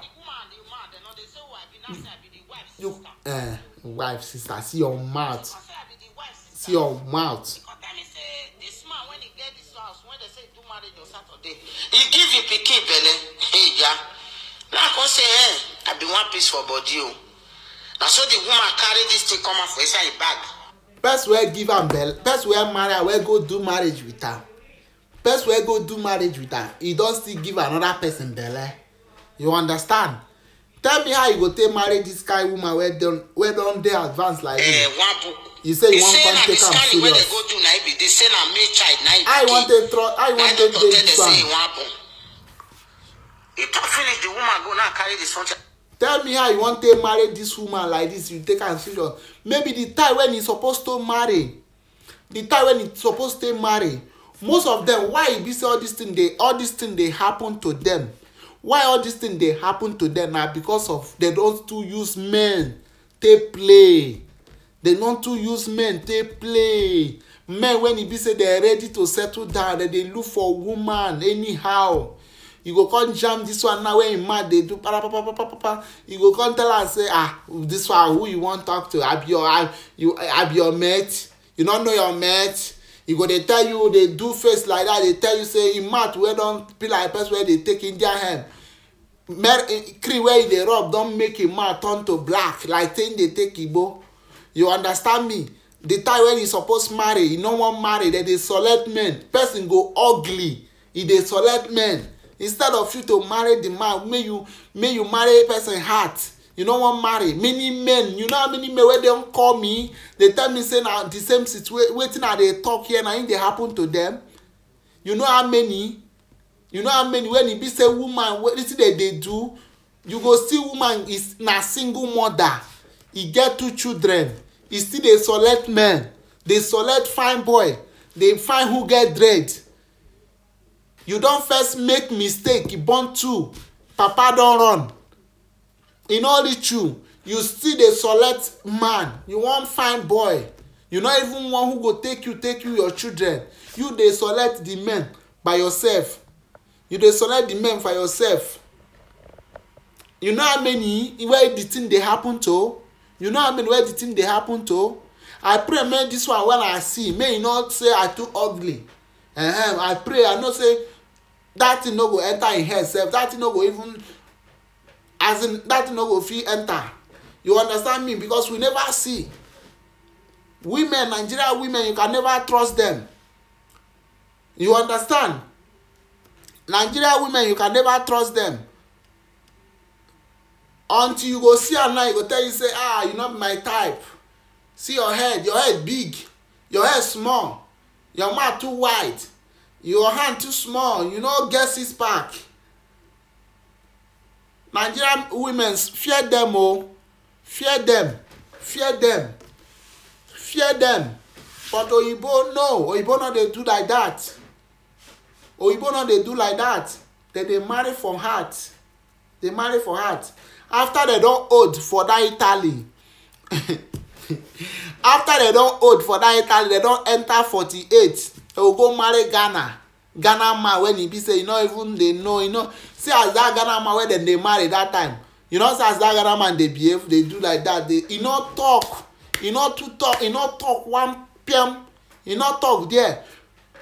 you uh, wife sister see your mouth see your mouth. He give im pikin belle eya na come say eh i bin wan peace for body o oh. na so the woman carry this thing come out for inside im bag person wey give am belle person wey marry am wey go do marriage with am person wey go do marriage with am e don still give another person belle you understand tell me how you go take marry this kind woman wey don wey don dey advanced like you eh, you say you wan come take am serious how you wan take trust how you wan take dey with am. e talk finish the woman go now carry the son tell me how you wan take marry dis woman like dis you take am serious maybe the time when e suppose to marry the time when e suppose to marry most of dem why e be say all dis thing dey all dis thing dey happen to dem why all dis thing dey happen to dem na because of dem don too use men take play dem don too use men take play men when e be say dem ready to settle down dem dey look for woman anyhow you go come jam this one now when him mad dey do para para para para para you go come tell am say ah this one who you wan talk to abi your ab you abi your mate you no know your mate e go dey tell you dey do face like that dey tell you say im mouth wey don be like person wey dey take indian hemp mer eh, cream wey e dey rub don make him mouth turn to black like say im dey take igbo you understand me the time when e suppose marry e no wan marry dem dey select men person go ugly e dey select men instead of you to marry the man may you may you marry person heart you no wan marry many men you know how many men wey don call me dey tell me say na the same situation wetin i dey talk here na im dey happen to them you know how many you know how many when e be say woman wetin dey dey do you go see woman is na single mother e get two children e still dey select men dey select fine boy dey find who get dread you don first make mistake You born two papa don run e no reach you you still dey select man you wan find boy you no even wan who go take you take you your children you dey select the men by yourself you dey select the men for yourself you know how many where the thing dey happen to you know how many where the thing dey happen to i pray make this one wey i see may e not say i too ugly uh -huh. i pray i know say That thing no go enter in head sef dat thing no go even as in dat thing no go fit enter you understand me because we never see women nigeria women you can never trust them. you understand nigeria women you can never trust them. until you go see am now you go tell you say ah you not be my type see your head your head big your head small your mouth too wide your hand too small you no get six pack nigerian women fear dem o oh. fear dem fear dem fear dem but oyibo no oyibo no dey do like that oyibo no dey do like that dem dey marry for heart dey marry for heart after dem don old for that italy after dem don old for that italy dem don enter forty-eight will go marry ghana ghana man when e be say you no even dey know you know. see as that ghana man wey dem dey marry that time you know see as that ghana man dey behave dey do like that dey e no talk e no too talk e no talk one pm e no talk there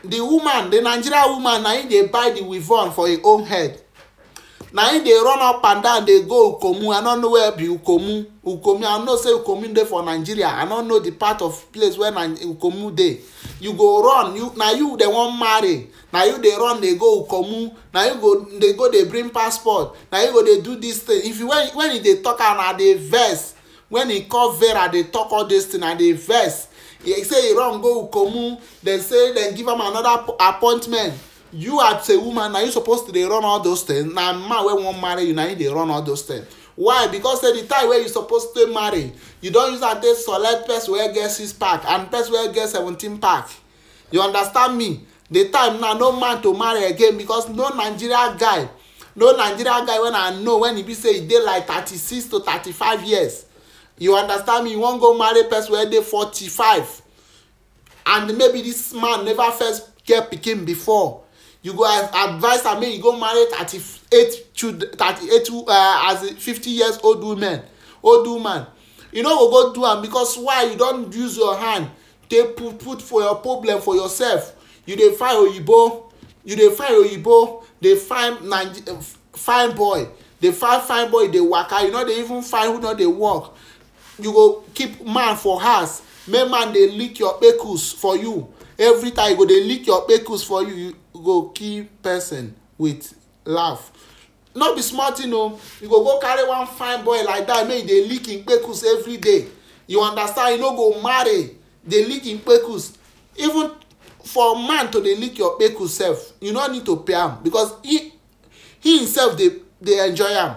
the woman the nigeria woman na im dey buy the weave for im own head na im dey run up and down dey go ukomu i no know where be ukomu ukomu i know say ukomu dey for nigeria i no know the part of place where ukomu dey you go run you na you dey wan marry na you dey run dey go ukomu na you go dey go dey bring passport na you go dey do this thing if you when when you dey talk am i dey vex when e call vera dey talk all this thing i dey vex He say he run go ukomu dem say dem give am another appointment you as a woman na you suppose to dey run all those things na man wey wan marry you na him dey run all those things why because say the time wey you suppose to marry you don use am take select person wey get six pack and person wey get seventeen pack you understand me the time na no man to marry again because no nigeria guy no nigeria guy wey i know when e be say e dey like thirty-six to thirty-five years you understand me you wan go marry person wey dey forty-five and maybe this man never first get pikin before you go advise am make you go marry thirty-eight children thirty-eight uh, as a fifty years old woman old woman you no go go do am because why you don use your hand take put put for your problem for yourself you dey find oyibo you dey find oyibo dey find naija fine boy dey find fine boy dey waka you no dey even find who no dey work you go keep man for house make man dey lick your pekus for you every time you go dey lick your pekus for you, you go kill person with laugh no be small thing o you go go carry one fine boy like that make he dey lick him kpekus every day you understand you no go marry dey lick him kpekus even for man to dey lick your kpekus sef you no need to pay am because he he himself dey dey enjoy am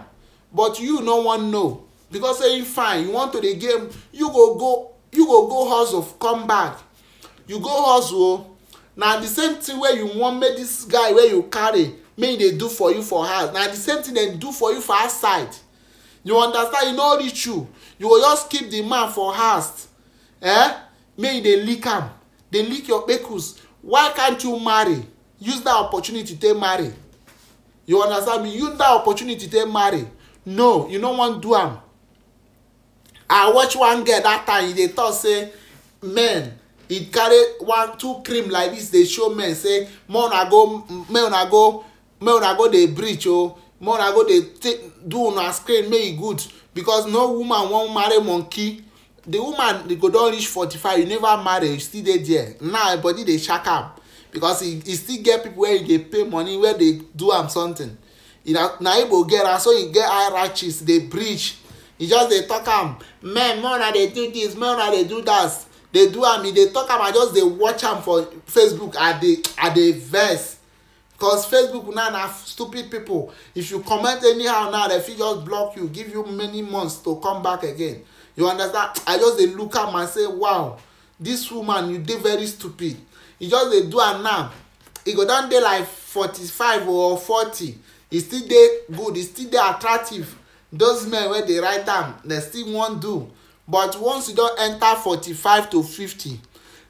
but you no wan know because say you fine you want to dey game you go go you go go hustle come back you go hustle o na the same thing wey you wan make this guy wey you carry make he dey do for you for house na the same thing dem do for you for outside you understand e no reach you you go just keep the man for house eh make you dey lick am dey lick your kpekus why can't you marry use that opportunity take marry you understand me use that opportunity take marry no you no wan do am i watch one girl that time e dey talk say men e carry one two cream like this dey show men say make una go make una go make una go dey breach o oh. make una go dey do una screen May e good because no woman wan marry monkey the woman the go don reach forty-five you never marry you still dey there now her body dey shak am because he he still get people wey e dey pay money wey dey do am something He na na igbo get am so he get high hierarchies dey breach He just dey talk am men make una dey do this make una dey do that dey do am e dey talk am i just dey watch am for facebook i dey i dey vex cause facebook now na stupid people if you comment anyhow now dem fit just block you give you many months to come back again you understand i just dey look am and say wow this woman you dey very stupid He just dey do am now He go don dey like forty-five or forty He still dey good He still dey attractive those men wey dey write am dem still wan do but once you don enter forty-five to fifty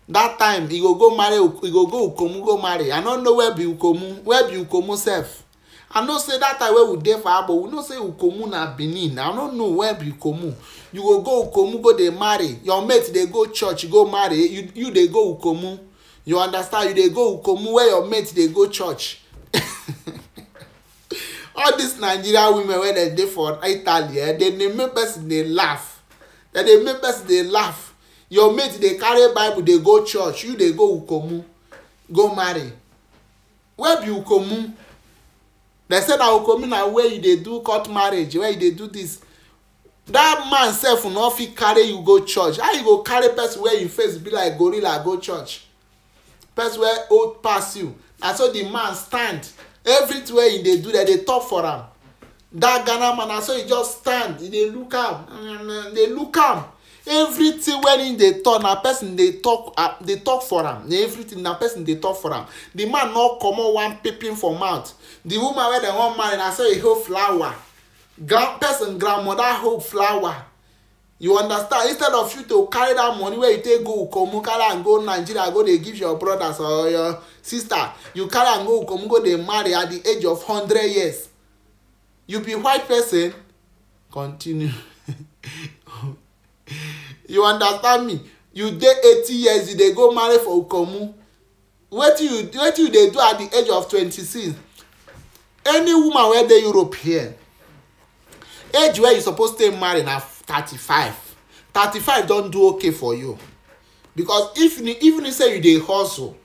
that time e go go marry e go go ukomu go marry i no know where be ukomu where be ukomu sef i know say that time wey we dey for abo we know say ukomu na benin i no know where be ukomu you go go ukomu go dey marry your mate dey go church go marry you you dey go ukomu you understand you dey go ukomu where your mate dey go church all these Nigerian women wey dem dey for italy eh dem dey make person dey laugh dem dey make person dey laugh your mate dey carry bible dey go church you dey go ukomu go marry where be ukomu dem say na ukomu na where you dey do court marriage where you dey do this that man sef no fit carry you go church how you go carry person wey you face be like gorilla go church person wey old pass you na so the man stand everything wey he dey do dem dey talk for am That ghana man na so he just stand e dey look am uh, dey look am everything wey him dey talk na person dey talk uh, talk for am na everything na person dey talk for am the man no comot one peeping for mouth the woman wey dem wan marry na so e hold flower grand person grandmother hold flower you understand instead of you to carry that money wey you take go ukomu carry am go nigeria go dey give your brothers or your sister you carry am go ukomu go dey marry at the age of hundred years you be white person continue you understand me you dey eighty years you dey go marry for ukomu wetin you wetin you dey do at the age of twenty-six any woman wey dey europe here age wey you suppose take marry na thirty-five thirty-five don do okay for you because if even if say you dey hustle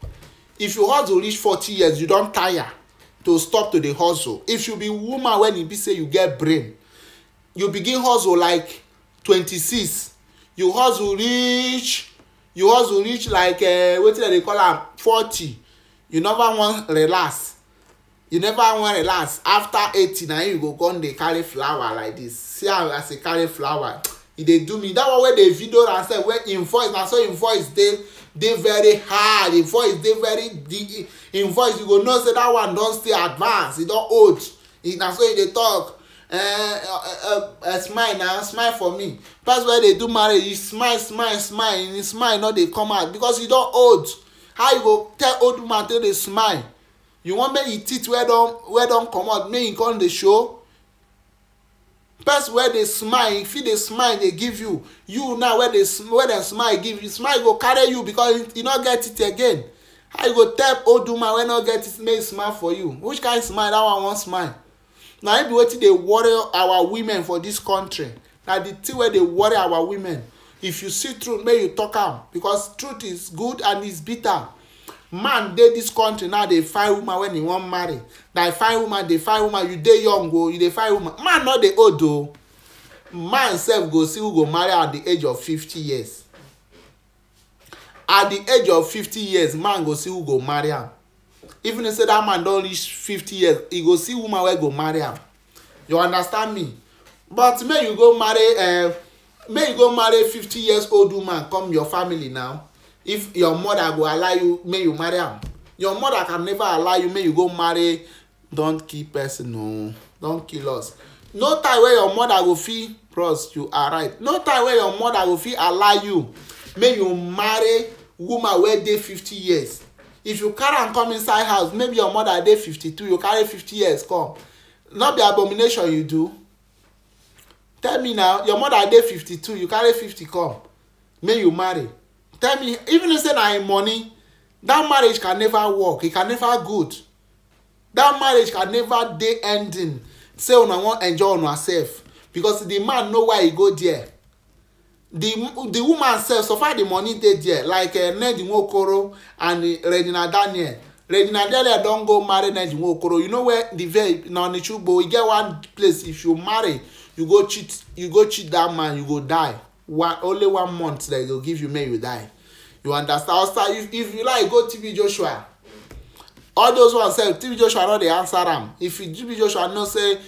if you hustle reach forty years you don tire to stop to dey hustle if you be woman when e be say you get brain you begin hustle like twenty-six you hustle reach you hustle reach like uh, wetin dem dey call am forty you never wan relax you never wan relax after eighty na you go come dey carry flower like this see how as e carry flower e dey do me that one wey dey video am sef wey im voice na so im voice dey dey very high im voice dey very deep im voice you go know say that one don stay advance He don old e, na so e dey talk uh, uh, uh, smile na smile for me person wey dey do marriage you smile smile smile and e, smile no dey come out because he don old how you go tell old man to dey smile you wan make e teeth wey don wey don comot make e come dey show person wey dey smile e fit dey smile dey give you you now wey dey wey dem smile give you smile go carry you because you no get it again how you go tell old woman wey no get it make e smile for you which kind smile that one wan smile na im be wetin dey worry our women for this country na the thing wey dey worry our women if you see truth make you talk am because truth is good and it's bitter man dey dis country now dey find woman wen e wan marry dey find woman dey find woman you dey young o oh, you dey find woman man no dey old o oh. man sef go see who go marry at the age of fifty years at the age of fifty years man go see who go marry am even if say that man don reach fifty years he go see woman wey go marry am you understand me but make you go marry uh, eh, make you go marry fifty years old woman come your family now if your mother go allow you make you marry am your mother can never allow you make you go marry don kill person o don kill us no time wey your mother go fit bros you are right no time wey your mother go fit allow you make you marry woman wey dey fifty years if you carry am come inside house maybe your mother dey fifty-two you carry fifty years come no be abomination you do tell me now your mother dey fifty-two you carry fifty come make you marry tell me even if say na him money that marriage can never work e can never good that marriage can never dey ending say una wan enjoy una sef because the man know why e go there the the woman sef far the money dey there like uh, ned nwokoro and uh, regina daniel regina daniel don go marry ned nwokoro you know where the veil na onitsugbo e get one place if you marry you go cheat you go cheat that man you go die one, only one month that they'll give you may you die you understand outside if, if you like go tb joshua all those ones sef tb joshua no dey answer am if you tb joshua know say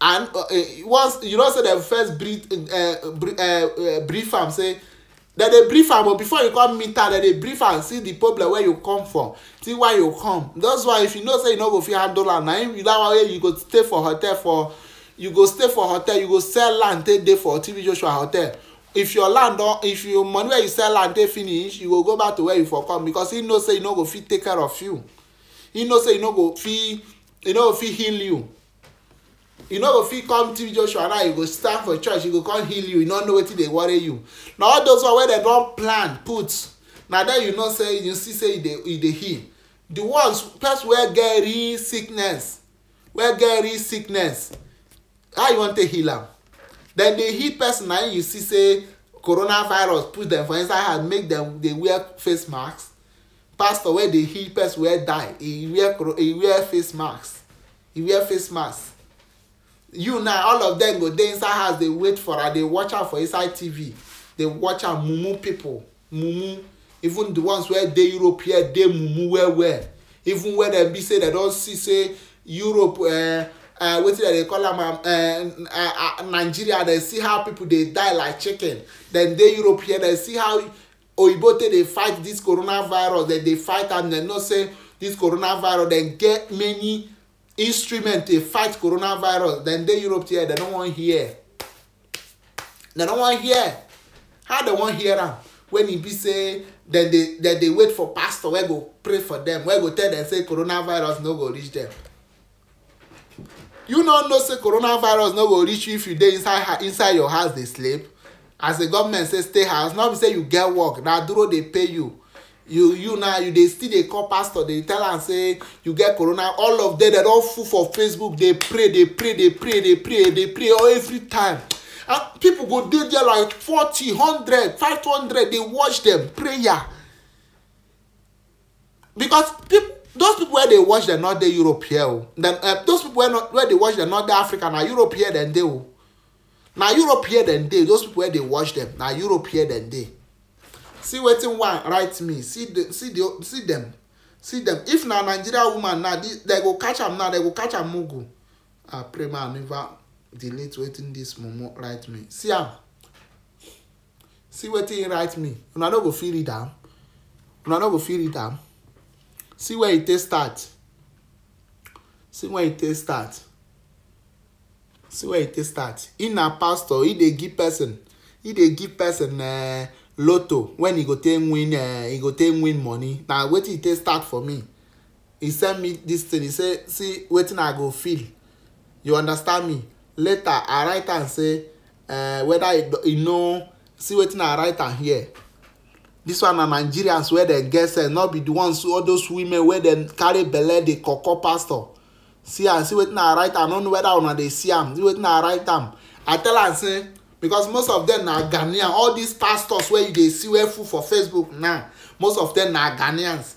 and uh, eh, once you know say dem first brief uh, eh, eh, brief, uh, uh, brief am say dem dey brief am but before you come meet am dem dey brief am see the problem wey you come from see why you come that's why if you know say you no go fit handle am na im that one wey you go stay for hotel for you go stay for hotel you go sell land take dey for tv joshua hotel if your land don if your money wey you sell land dey finish you go go back to where you for come because he know say he no go fit take care of you he know say he no go fit he no go fit heal you He no go fit come tv joshua now you go stand for church He go come heal you He no know wetin dey worry you na all those one wey dem don plan put na there you know say you see say e dey e dey heal the ones person wey get real sickness wey get real sickness how you wan take heal am dem dey heal person na you see say coronavirus put dem for inside house make dem dey wear face mask pastor wey dey heal person wey die e wear e wear face mask e wear face mask you now all of dem go dey inside house dey wait for am dey watch am for inside tv dey watch am mumu pipo mumu even the ones wey dey europe here dey mumu well well even when dem be say dem don see say europe uh, uh, wetin dem dey call am uh, uh, nigeria dem see how people dey die like chicken dem dey europe here dem see how oyibo take dey fight this coronavirus dem dey fight am dem know say this coronavirus dem get many instrument to fight coronavirus dem dey europe here dem no wan hear dem no wan hear how dem wan hear am when e be say dem dey dem dey wait for pastor wey go pray for dem wey go tell dem say coronavirus no go reach dem you no know say coronavirus no go reach you if you dey inside inside your house dey sleep as the government say stay house no be say you get work na duro dey pay you you you na you dey still dey call pastor dey tell am say you get corona all of them dem don full for facebook dey pray dey pray dey pray dey pray dey pray all every time and people go dey there like forty hundred five hundred dey watch them prayer because people those people wey dey watch dem no dey europe here o oh, dem uh, those people wey no wey dey watch dem no dey africa na europe here dem dey o na europe here dem dey those people wey dey watch dem na europe here dem dey see wetin one write me see the see the see dem see dem if na nigeria woman na dem go catch am now dem go catch am mugu ah pray ma never delete wetin dis mumu write me see am see wetin he write me una no go fit read am una no go fit read am see where it take start see where it take start see where it take start He na pastor He dey give person He dey give person uh, lotto when he go take win uh, e go take win money na wetin e take start for me He send me this thing He say see wetin i go feel you understand me later i write am say uh, whether he know. see wetin i write am here This one na nigerians wey dem get sense no be the ones all those women wey dem carry belle dey koko pastor see am see wetin i write am no know whether una dey see am see wetin i write am i tell am say because most of them na ghanaian all these pastors wey you dey see wey full for facebook now most of them na ghanaians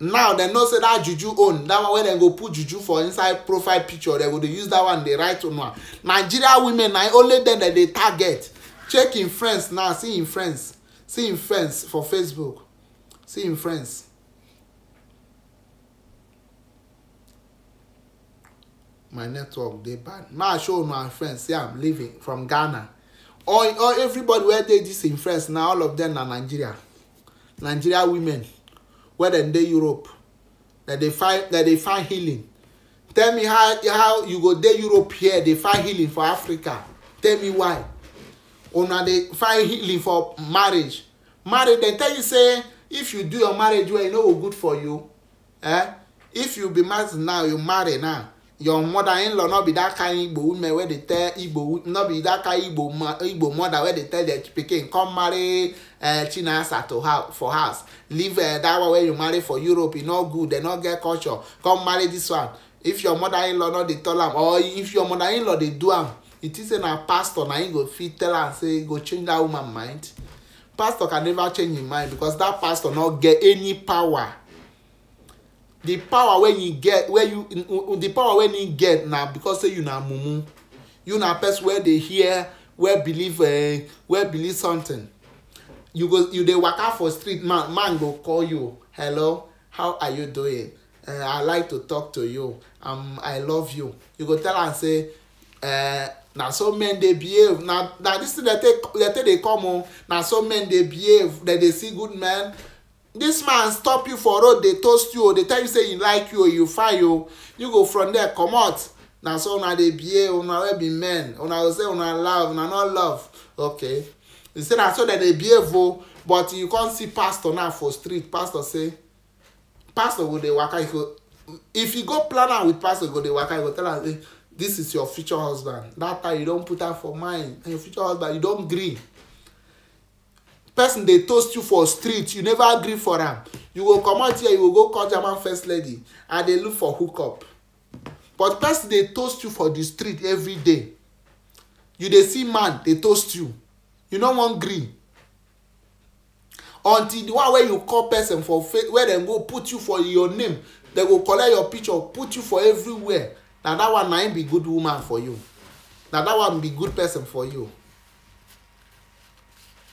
now dem know say that juju own that one wey dem go put juju for inside profile picture dem go dey use that one dey write una nigeria women na only dem dem dey target check im friends now see im friends see him friends for facebook see him friends my network they bad now show my friends Yeah, i'm leaving from ghana all all everybody where they dis in friends now. all of them are nigeria nigeria women where they in europe that they find that they find healing tell me how how you go there europe here they find healing for africa tell me why una dey find healing for marriage marriage dem tell you say if you do your marriage well e no go good for you eh if you be married now you marry now your mother in law no be that kind igbo woman wey dey tell igbo no be that kind igbo igbo mother wey dey tell their pikin come marry uh, chinasa to house for house leave uh, that one wey you marry for europe e no good dem no get culture come marry this one if your mother in law no dey tell am or if your mother in law dey do am you think say na pastor na him go fit tell am say go change that woman mind pastor can never change him mind because that pastor no get any power the power wey you get wey you the power wey you get na because say you na mumu you na person wey dey hear wey believe uh, wey believe something you go you dey waka for street man man go call you hello how are you doing uh, i like to talk to you um, i love you you go tell am say uh, na so men dey behave na na dis thing dey take dey take dey come o na so men dey behave dem dey see good men dis man stop you for road dey toast you o dey tell you say he like you o you fine o you go from there comot na so una dey behave una wey be men una go say una love una no love okay you say na so dem dey behave o oh. but you come see pastor now for street pastor say pastor go dey waka he go if you go plan am with pastor go dey waka he go tell am say this is your future husband that time you don put am for mind and your future husband you don gree person dey toast you for street you never gree for am you go comot here you go go call german first lady and dey look for hook up. but person dey toast you for the street every day you dey see man dey toast you you no wan gree until the one wey you call person for face wey dem go put you for your name dem go collect your picture put you for everywhere na that one na him be good woman for you na that one be good person for you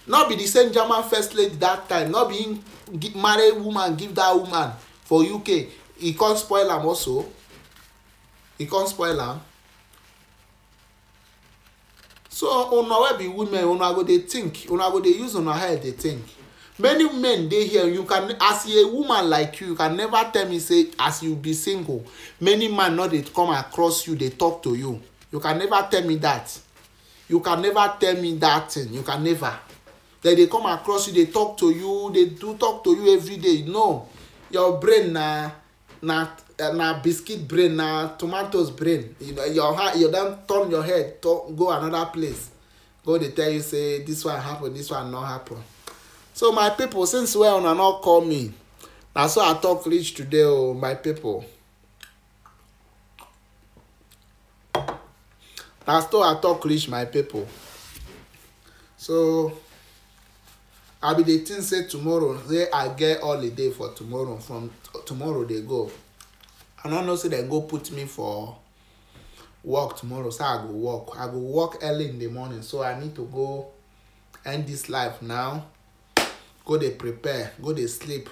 no be the same german first lady that time no be him marry woman give that woman for uk He come spoil am also He come spoil am so una wey be women una go dey think una go dey use una head dey think many men dey here you can as a woman like you you can never tell me say as you be single many man no dey come across you dey talk to you you can never tell me that you can never tell me that thing you can never dem dey come across you dey talk to you dey do talk to you every day no your brain na na na biscuit brain na tomatoes brain you know your heart you don turn your head to, go another place go dey tell you say this one happen this one no happen so my people, since wey una no call me na so i talk reach today o oh, my people. na so i talk reach my people. so i be dey think say tomorrow say i get holiday for tomorrow from tomorrow dey go i no know say dem go put me for work tomorrow so i go work i go work early in the morning so i need to go end this life now go dey prepare go dey sleep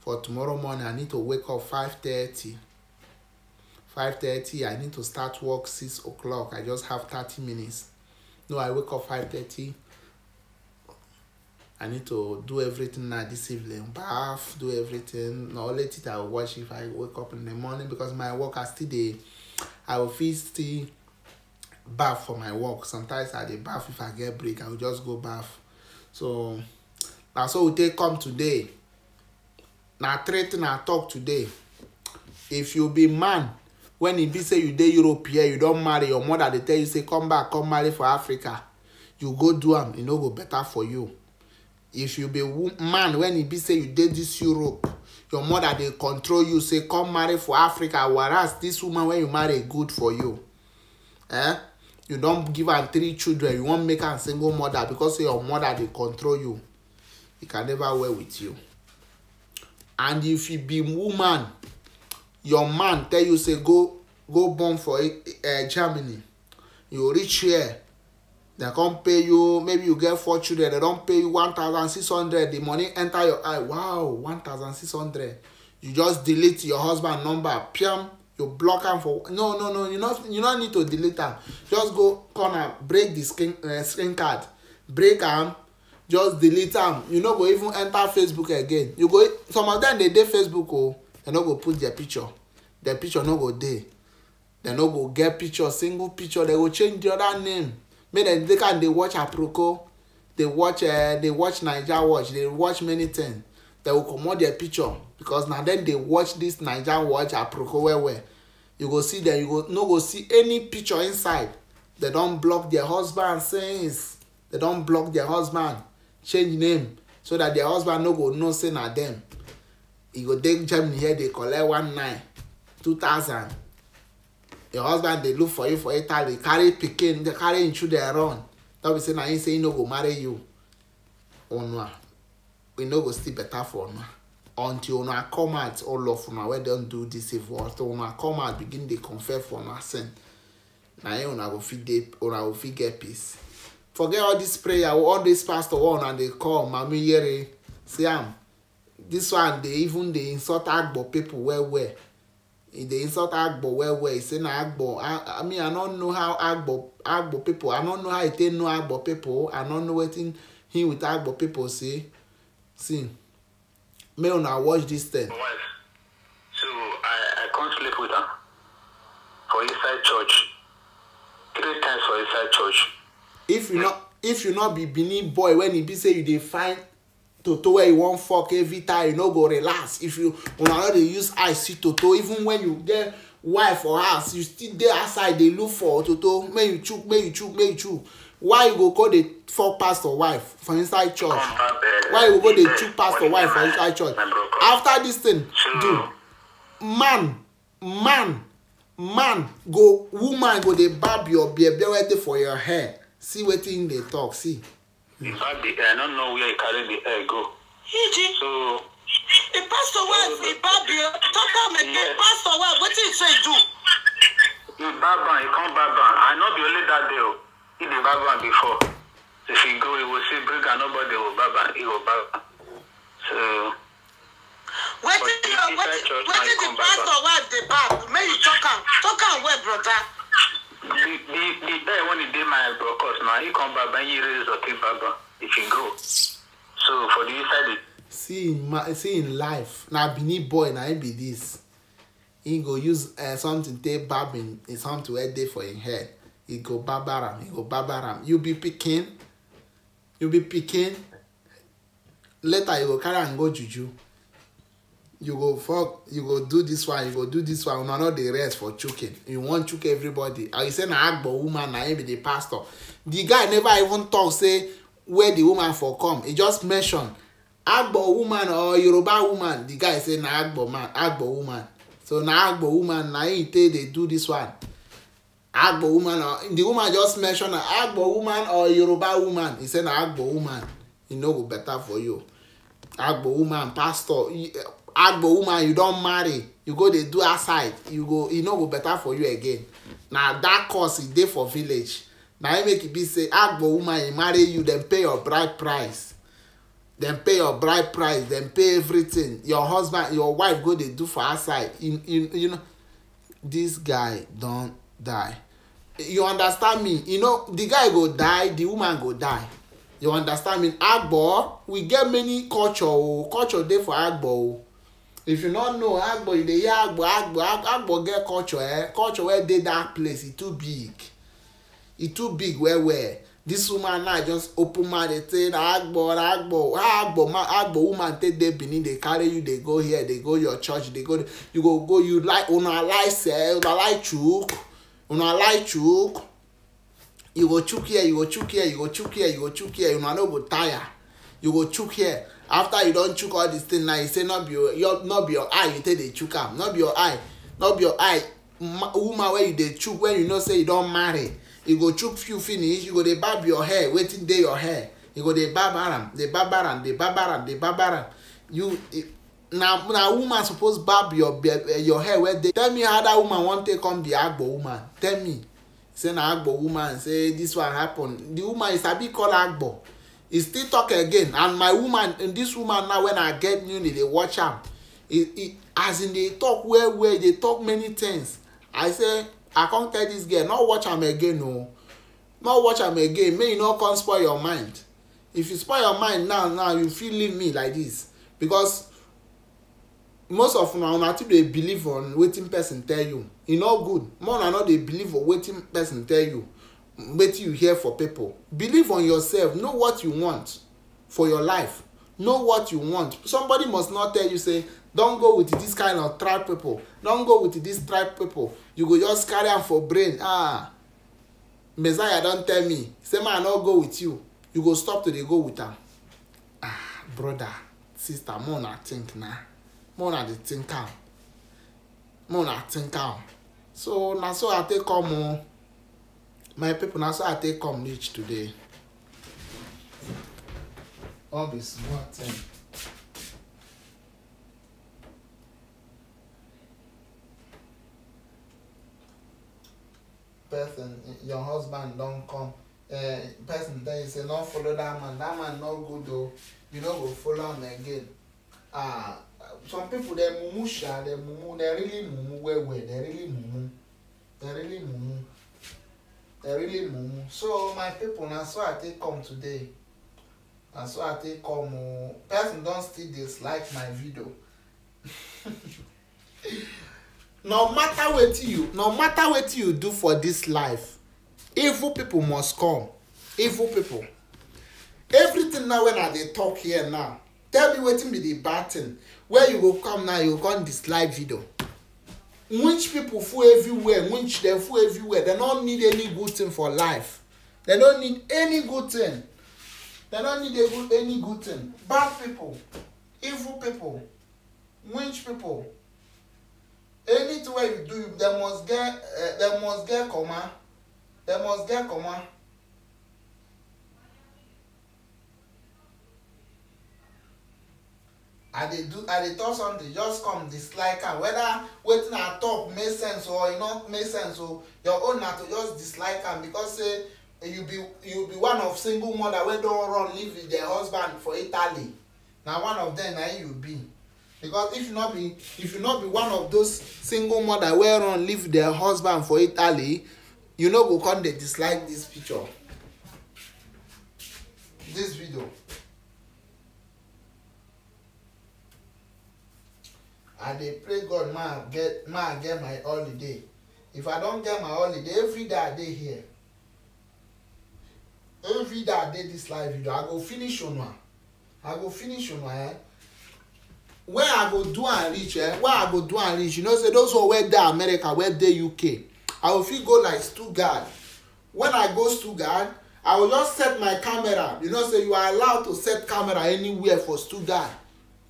for tomorrow morning i need to wake up five thirty five thirty i need to start work six o'clock i just have thirty minutes no i wake up five thirty i need to do everything now this evening bath do everything na only thing i go watch if i wake up in the morning because my work i still dey i will fit still baff for my work sometimes i dey baff if i get break i go just go baff so na so we take come today na treat na talk today if you be man when e be say you dey europe here you don marry your mother dey tell you say come back come marry for africa you go do am e no go better for you if you be man when e be say you dey this europe your mother dey control you say come marry for africa whereas this woman wey you marry e good for you eh you don give am three children you wan make am single mother because say your mother dey control you he can never wear with you and if you be woman your man tell you say go go born for uh, germany you reach here dem come pay you maybe you get four children dem don pay you one thousand six hundred the money enter your eye wow one thousand six hundred you just delete your husband number piam you block am for no no no you no you no need to delete am just go corner break the screen uh, screen card break am just delete am you no go even enter facebook again you go some of dem dey dey facebook o oh. dem no go put their picture their picture no go dey dem no go get picture single picture dem go change the other name make dem take am dey watch aproko dey watch uh, eh, dey watch naija watch dey watch many things dem go comot their picture because na dem dey watch this naija watch aproko well well you go see dem you go no go see any picture inside dem don block their husband since dem don block their husband change name so that their husband no go know say na dem e go take germany here dey collect one nine two thousand your husband dey look for you for italy carry pikin carry him children run no be say na him say he no go marry you una we no go still better for una until una come out all of una wey don do dis evil until una come out begin dey confess for una sin na him una go fit dey una go fit get peace forget all this prayer all this pastor one and they call mami yere see am um, this one dey even dey insult agbo people well well e dey insult agbo well well e say na agbo i I mean i no know how agbo agbo people i no know how e take know agbo people i no know wetin him with agbo people say see make una watch this thing. so i i come sleep with am for inside church three times for inside church if you not if you not be benin boy when e be say you dey find toto wey you wan fok every time you no go relax if you una no dey use eye see toto even when you get wife or house you still dey outside dey look for toto may you chook may you chook may you chook why you go go dey fok pastor wife for inside church why you go go dey chook pastor wife for inside church after dis thing do man man man go woman go dey barb your bear bear wey dey for your hair see wetin dey talk see. in fact the i no know where he carry the hair oh. go. iji so. the pastor wey the babi talk am again pastor wey wetin he say do. he barb am he come barb am and no be only that day o oh. he dey barb am before if he go he go see bring am nobody go barb am he go barb am so. wetin your wetin wetin the pastor wife dey barb make you talk am talk am well brother? the, the guy when he did my broadcast now, he come back and he raise the thing back if he go. So for the inside See in my see in life. Now Benin boy now be this. He go use uh, something take barbing is something where day for his head. He go barbaram, he go barbaram. You be picking, you be picking. Later you go carry and go juju you go fuck you go do this one you go do this one una no dey rest for choking you wan choke everybody and you say na agbo woman na him be the pastor the guy never even talk say where the woman for come he just mention agbo woman or yoruba woman the guy say na agbo man agbo woman so na agbo woman na him take dey do this one agbo woman or the woman just mention na agbo woman or yoruba woman he say na agbo woman e no go better for you agbo woman pastor agbo woman you don marry you go dey do outside you go e no go better for you again na that cause e dey for village na im make e be say agbo woman e marry you dem pay your bride price dem pay your bride price dem pay everything your husband your wife go dey do for outside you, you, you know this guy don die you understand me you know the guy go die the woman go die you understand me agbo we get many culture o oh. culture dey for agbo o oh if you no know agbo you dey hear agbo agbo agbo get culture eh culture wey dey that place e too big e too big well well this woman now just open mouth dey say na agbo na agbo how agbo man agbo woman take dey benin dey carry you dey go here dey go your church dey go you go go you like una like sef una like chook una like chook you go chook here you go chook here you go chook here you go chook here una no go tire you go chook here after you don chook all dis thing now you say not be your eye you take dey chook am not be your eye woman wey you dey chook when you know say you don marry you go chook few finish you go dey barb your hair wetin dey your hair you go dey barb am dey barb am dey barb am dey barb am you na woman suppose barb your hair wey dey tell me how woman wan take come be agbo woman tell me say na agbo woman say dis one happen the woman you sabi call agbo He still talk again and my woman and this woman now when i get newly dey watch am He he, as e dey talk well well e dey talk many things i say i come tell this girl no watch am again o oh. no watch am again make you no come spoil your mind if you spoil your mind now now you fit leave me like this because most of una una too dey believe on wetin person tell you e no good more una no dey believe on wetin person tell you wetin you hear for people believe on yourself know what you want for your life know what you want somebody must not tell you say don go with this kind of tribe people don go with this tribe people you go just carry am for brain ah messiah don tell me say ma i no go with you you go stop to dey go with am ah brother sister More una think na More una dey think am mo una think am so na so i take come o. Oh my people now so i take come reach today all be small thing. person your husband don come uh, person tell you say no follow that man that man no good oo you no go follow am again ah some people dey mumu sha dey mumu dey really mumu well well dey really mumu dey really mumu dem really mumu so my people na so i take come today na so i take come oo person don still dislike my video no matter what you no matter what you do for this life evil people must come evil people everything now when i they talk here now tell me wetin be the bad thing where you will come now you go come dislike video Rich people full everywhere, rich they full everywhere. They don't need any good thing for life. They don't need any good thing. They don't need good, any good thing. Bad people, evil people, rich people. Anything you do, they must get, uh, they must get comma. They must get comma. i dey do i dey talk something just come dislike am whether wetin i talk make sense or e no make sense o your own na to just dislike am because say you be you be one of single mother wey don run leave with their husband for italy na one of them na you be because if you no be if you no be one of those single mother wey run leave their husband for italy you no go come dey dislike this picture this video. i dey pray god may i get may i get my holiday if i don get my holiday every day i dey here every day i dey this live video i go finish una i go finish una eh when i go do am reach eh when i go do am reach you know say those one wey dey america wey dey uk i go fit go like stuttgart when i go stuttgart i go just set my camera you know say you are allowed to set camera anywhere for stuttgart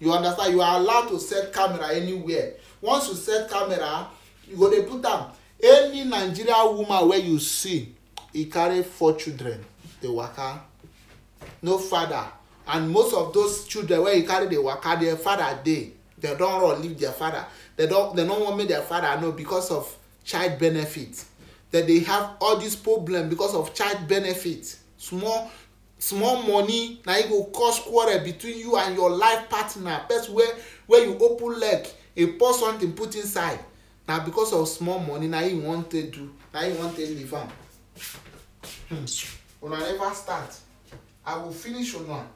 you understand you are allowed to set camera anywhere once you set camera you go dey put am any Nigerian woman wey you see e carry four children dey waka no father and most of those children wey e carry dey waka their father dey dem don run leave their father dem don dem no wan make their father know because of child benefit dem dey have all these problems because of child benefit small small money na e go cause quarrel between you and your life partner person wey wey you open leg e pour something put inside na because of small money na him e wan take do na him e wan take leave am hmm. una never start i go finish una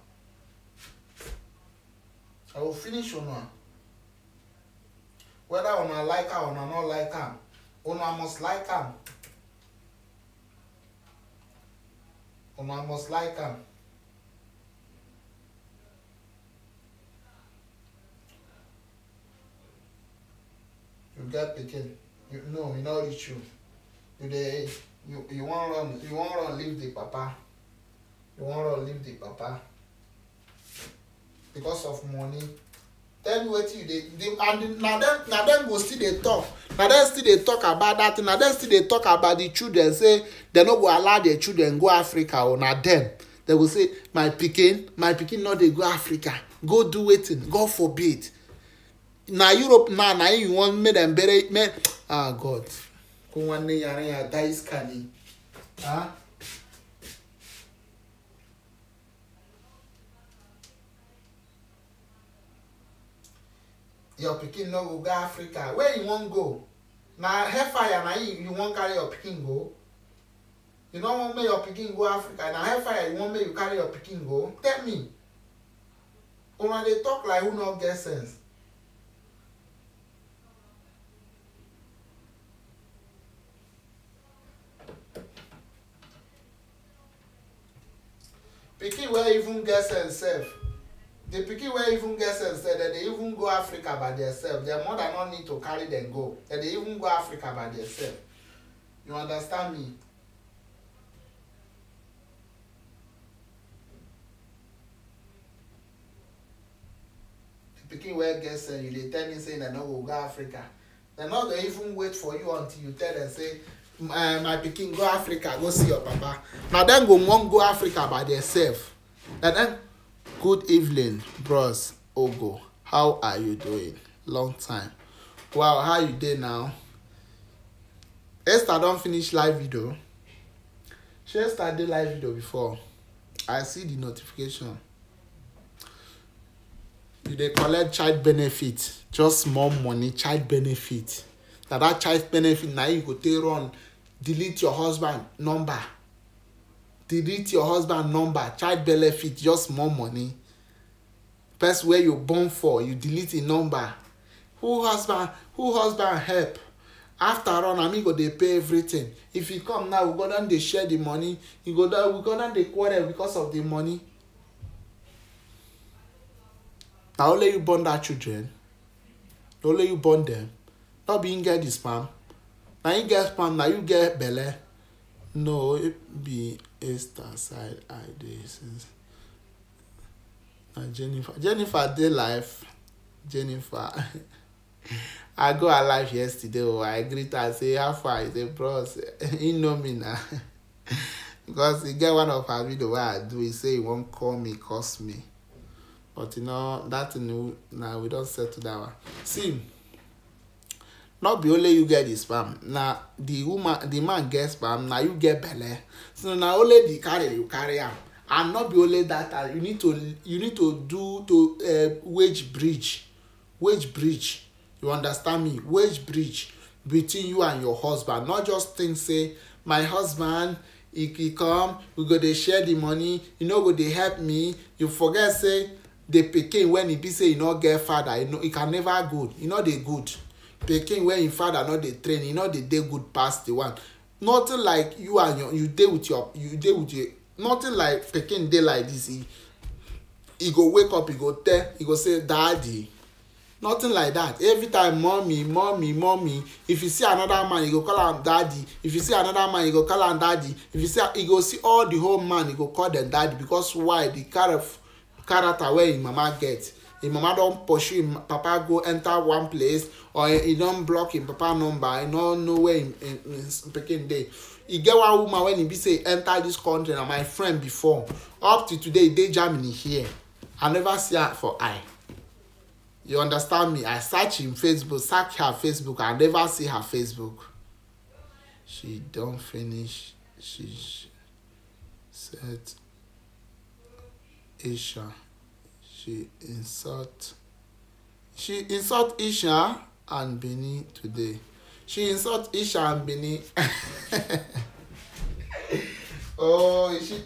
i go finish una whether una like am una no like am una must like am una must like am you get pikin you no you know reach you you dey you you wan run you wan run leave the papa you wan run leave the papa because of money tell me wetin you dey and na dem na dem go still dey talk na dem still dey talk about dat thing na dem still dey talk about the children say dem no go allow their children go africa o oh, na dem dem go say my pikin my pikin no dey go africa go do wetin god forbid na europe now na you want make dem bury make ah god kó nwanne yàrá yàrá dáìsì kàní. your pikin no go go africa where you wan go na hellfire na you you wan carry your pikin go you no wan make your pikin go africa na hellfire you wan make you carry your pikin go tell me una dey talk like who no get sense pikin wey even get sense sef the pikin wey even get sense say dem dey even go africa by themselves their mother no need to carry dem go dem dey even go africa by themselves you understand me the pikin wey get sense you dey tell me say dem no go go africa dem no go even wait for you until you tell dem say my my pikin go africa go see your papa na dem go wan go africa by themselves na dem. Good evening, bros. Ogo. How are you doing? Long time. Wow, how you dey now? Esther don finish live video. She Esther dey live video before. I see the notification. You dey collect child benefit, just small money, child benefit. Na that child benefit na you go take run delete your husband number delete your husband number child benefit just more money First, where you born for you delete the number who husband who husband help after all na me go dey pay everything if he come now we go don dey share the money you go don we go don dey quarrel because of the money na only you born that children na only you born them. no be him get the sperm na him get sperm na you get belle No, it be Esther side eye there since na Jennifer. Jennifer day life. Jennifer. I go her life yesterday oh I greet her say how far? is say bros you know me na. because he get one of her video wey I do He say he won't call me curse me. But you know that thing na we don settle that one. See not be only you get the sperm na the woman the man get sperm na you get belle so na only the carry you carry am and not be only that uh, you need to you need to do to uh, wage bridge wage bridge you understand me wage bridge between you and your husband not just think say my husband he, he come we go dey share the money you no go dey help me you forget say the pikin when e be say e no get father e no e can never good e no dey good pikin wey im father no dey train e no dey dey good pass the one nothing like you and your you dey with your you dey with your nothing like pikin dey like this e e go wake up e go tell e go say daddy nothing like that every time mommy mommy mommy if you see another man you e go call am daddy if you see another man you e go call am daddy if you see you e go see all the whole man you go call them daddy because why the kind of character wey im mama get him mama don pursue him papa go enter one place or he don block him papa number he no know where him pikin dey e get one woman wen e be say enter this country na my friend before up to today e dey germany here i never see her for eye you understand me i search him facebook search her facebook i never see her facebook she don finish she set asia she insult she insult Isha and Bini today she insult Isha and Bini oh she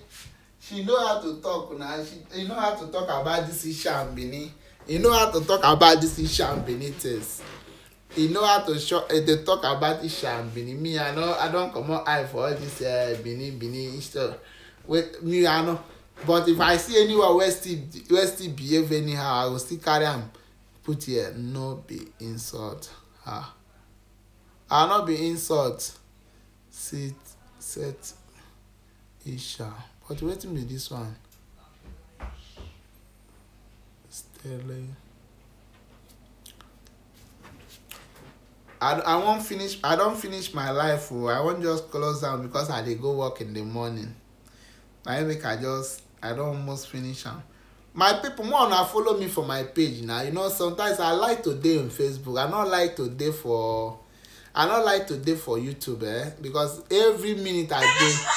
she know how to talk na she you know how to talk about this Isha and Bini you know how to talk about this Isha and Bini things you know how to show uh, eh, dey talk about Isha and Bini me i no i don comot eye for all this uh, Bini Bini stuff wey me i no but if i see anyone wey still wey still behave anyhow i go still carry am put here no be insult ah ah no be insult sit set isha but wetin be this one stele i i wan finish i don finish my life o oh. i wan just close down because i dey go work in the morning na make i just i don almost finish am my people more una follow me for my page na you know sometimes i like to dey on facebook i no like to dey for i no like to dey for youtube eh because every minute i dey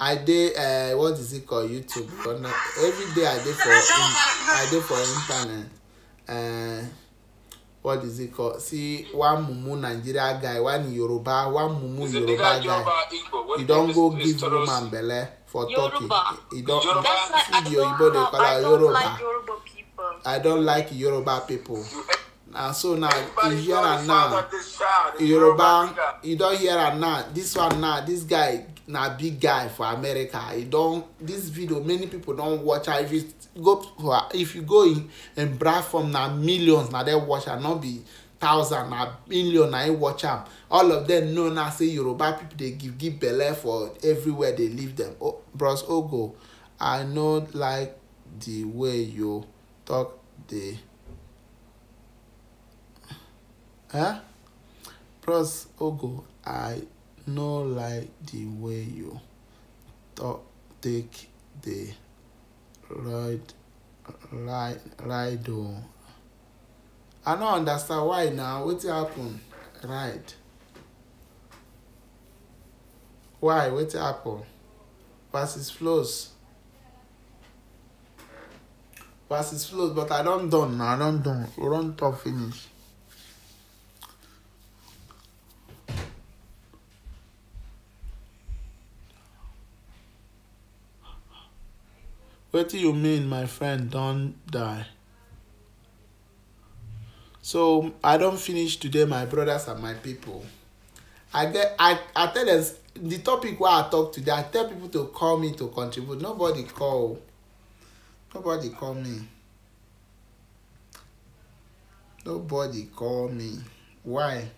i dey uh, what is it called youtube but no every day i dey for in, i dey for internet uh, what is it called see one mumu nigeria guy one yoruba one mumu yoruba guy he don go give woman belle for Turkey. It don't, Yoruba. That's why I don't, have, I don't Yoruba. like Yoruba people. I don't like Yoruba people. And so now, Everybody you hear and now, Yoruba, you don't hear and now, this one now, this guy, na big guy for America. He don't, this video, many people don't watch her. If you go, if you go in, in Bradford, now millions, now they watch her, not be thousand na million na him watch am all of them. know now say yoruba people dey give give belle for everywhere dey leave them. oh, bros ogo oh, i no like the way you talk The, huh, bros ogo oh, i no like the way you talk take the ride ride ride o i no understand why na wetin happen right? why wetin happen versus flows versus flows but i don done na i don done we don talk finish. wetin you mean my friend don die So I don't finish today, my brothers and my people. I get I, I tell them the topic where I talk today, I tell people to call me to contribute. Nobody call. Nobody call me. Nobody call me. Why?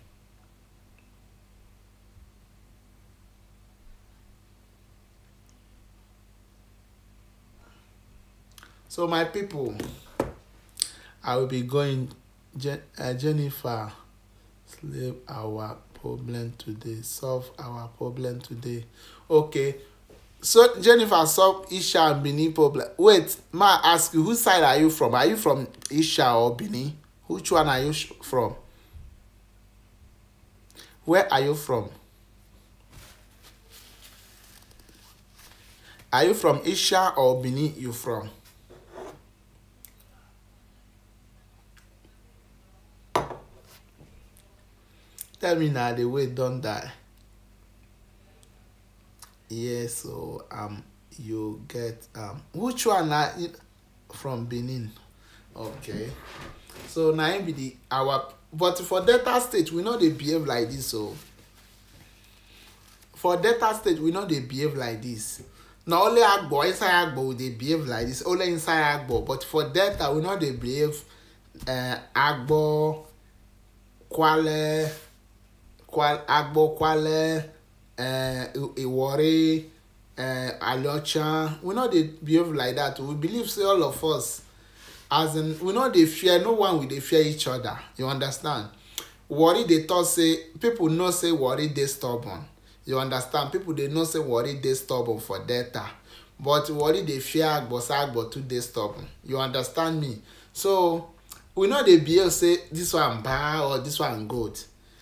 So my people, I will be going Je- uh, Jennifer, solve our problem today. Solve our problem today. Okay. So Jennifer solve Isha and Bini problem. Wait, ma ask you, whose side are you from? Are you from Isha or Bini? Which one are you from? Where are you from? Are you from Isha or Bini you from? tell me now the way don die yes o um, you get um, which one na from benin okay so na im be the our but for delta state we no dey behave like this o for delta state we no dey behave like this na only agbo inside agbo we dey behave like this only inside agbo but for delta we no dey behave uh, agbo kwale agbokwale iwori aliocha we no dey behave like that. we believe say all of us as in we no dey fear no one we dey fear each other you understand worry dey talk say people know say worry dey stubborn you understand people dey know say worry dey stubborn for delta but worry dey fear agbosa agbo too dey stubborn you understand me so we no dey behave say this one bad or this one good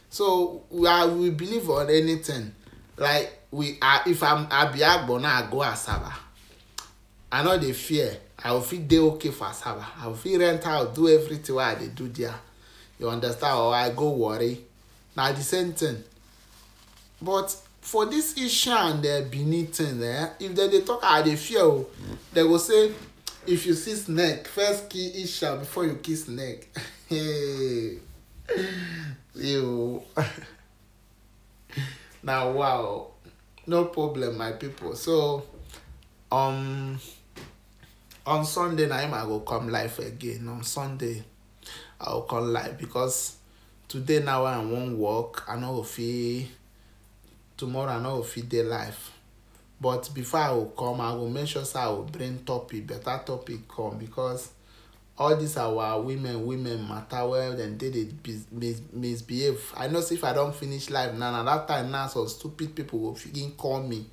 so we are we believe on anything like we are if i'm abiagbo now i go asaba i no dey fear i go fit dey okay for asaba i go fit rent out do everything wey i dey do there you understand or i go worry na the same thing but for this isha and uh, benin thing eh if dem dey talk i dey fear o dem go say if you see snake first kill isha before you kill snake you now wow no problem my people so um on sunday na him i go come live again on sunday i go come live because today now i wan work i no go fit tomorrow i no go fit dey live but before i go come i go make sure say i go bring topic better topic come because all dis our women women matter well dem dey dey mis misbehave i know say if i don finish live now na that time now some stupid people go begin call me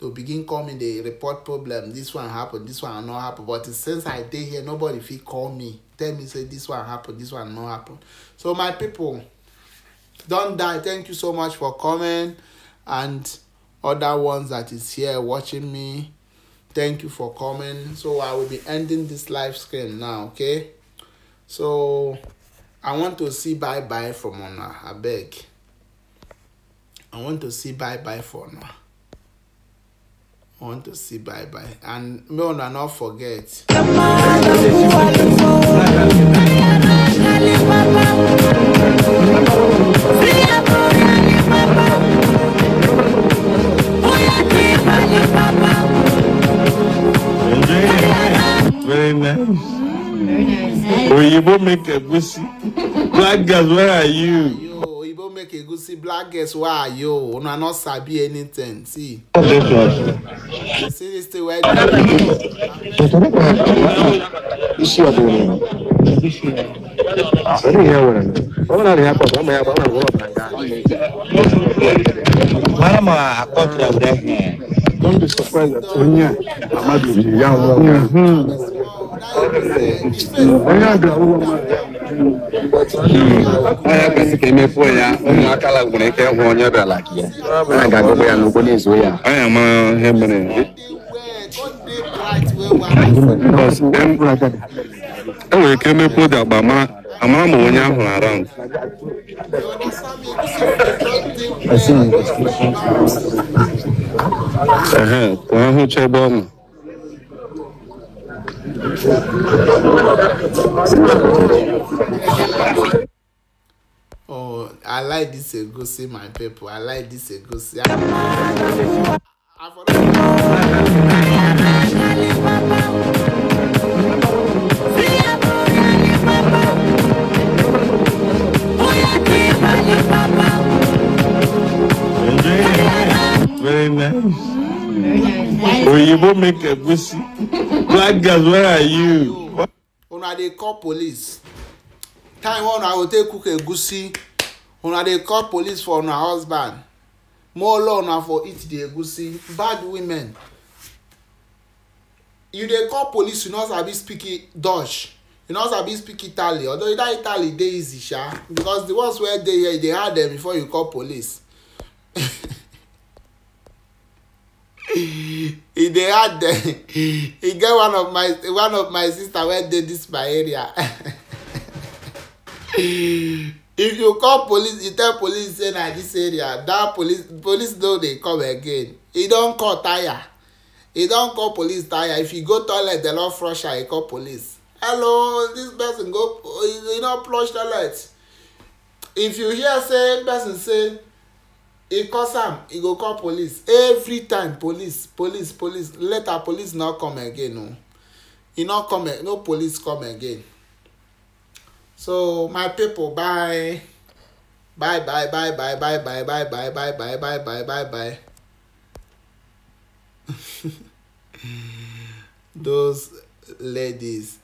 to begin call me dey report problem This one happen This one no happen but since i dey here nobody fit call me tell me say this one happen This one no happen so my people don die thank you so much for coming and other ones that is here watching me thank you for coming so i will be ending this live stream now okay so i want to see bye bye from una beg. i want to see bye bye for una i want to see bye bye and may una not forget. Thank you. very nice. Very nice. Oyibo make egusi. Black girls, where are you? Yo, Oyibo make egusi. Black girls, where are you? Una no sabi anything. See. See this thing where. You see what doing? Very here, one. One are here, one are here, one are here. One are here don't be surprised that onye amadu ji ya nwa mhm. onye agara ụlọ onye kwesị ka emefuo ya ụmụaka nwere ike ịhụ onye bịara gị ya a ga-agụkwa ya n'ụkwụ na-ezo ya onye ma ihe mere enwere ike emepe ụdị agba mara ama ama onye ahụ na-ara nkụ ehe ka ahụ chebe ọnụ Oh, I like this egusi, my people. I like this egusi. I... I Very nice. Very nice. Oyibo make egusi. Black girls, where are you? Una dey call police. Time one I go take cook egusi. Una dey call police for una husband. More law na for eat the egusi. Bad women. You dey call police, you no sabi speak Dutch you know sabi speak italy although that italy dey easy sha because the ones wey dey here you dey hard dem before you call police e dey hard dem e get one of my one of my sister wey dey this my area if you call police you tell police say na this area that police police no dey come again e don call tire e don call police tire if you go toilet dem don flush am e call police hello this person go you know flush toilet if you hear say person say e cause am e go call police every time police police police later police no come again o e no come no police come again so my pipo bye bye bye bye bye bye bye bye bye bye bye bye bye bye bye those ladies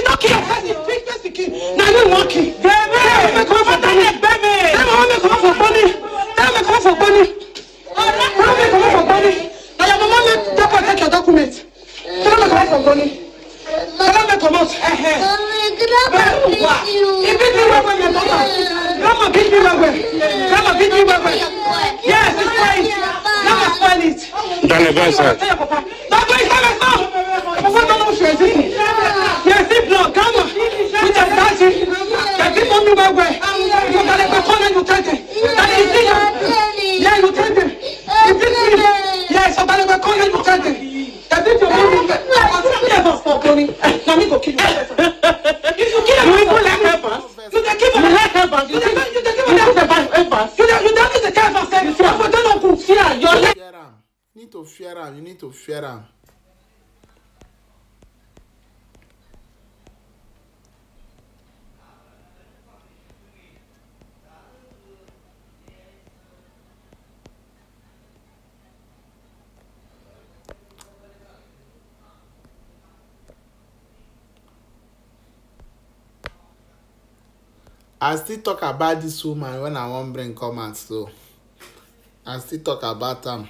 you no kill your person treat person kill na you wan kill. ẹ̀mí ẹ̀mí kò fọ́ tani ẹ̀gbẹ́ mi. ẹ̀mí ọmọ mi kò fọ́ gbọ́ni ẹ̀mí mi kò fọ́ gbọ́ni ọmọ mi kò fọ́ gbọ́ni ọ̀yà mama mi don protect your document ọmọ mi kò fọ́ gbọ́ni ọmọ mi comot. bẹ́ẹ̀ wà ibi tí wọ́n wọ̀ yẹn lọ́wọ́ grandma beat me well well grandma beat me well well yes it's fine grandma spoil it. dani bẹ́ẹ̀ sẹ́. bàbá ìsàlẹ̀ sọ. bàbá ìsàlẹ̀ sọ your karma with the dancing the people who were where you got it before you take it that is it yeah you take it you take it yeah so that is before you take it the people who you if you kill like ever you dey give me like ever you dey you dey like ever you dey you dey give me the kind you for don know you need to fear am you need to fear am. i still talk about this woman when i want bring come out so i still talk about am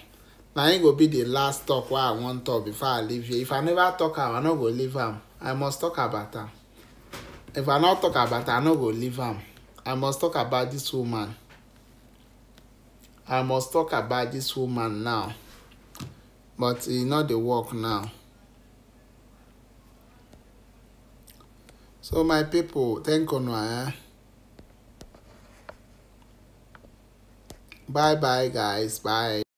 Now it go be the last talk wey i wan talk before i leave here if i never talk am i no go leave her. i must talk about her. if i not talk about am i no go leave her. i must talk about this woman i must talk about this woman now but e not the work now so my people, thank una eh Bye bye, guys. Bye.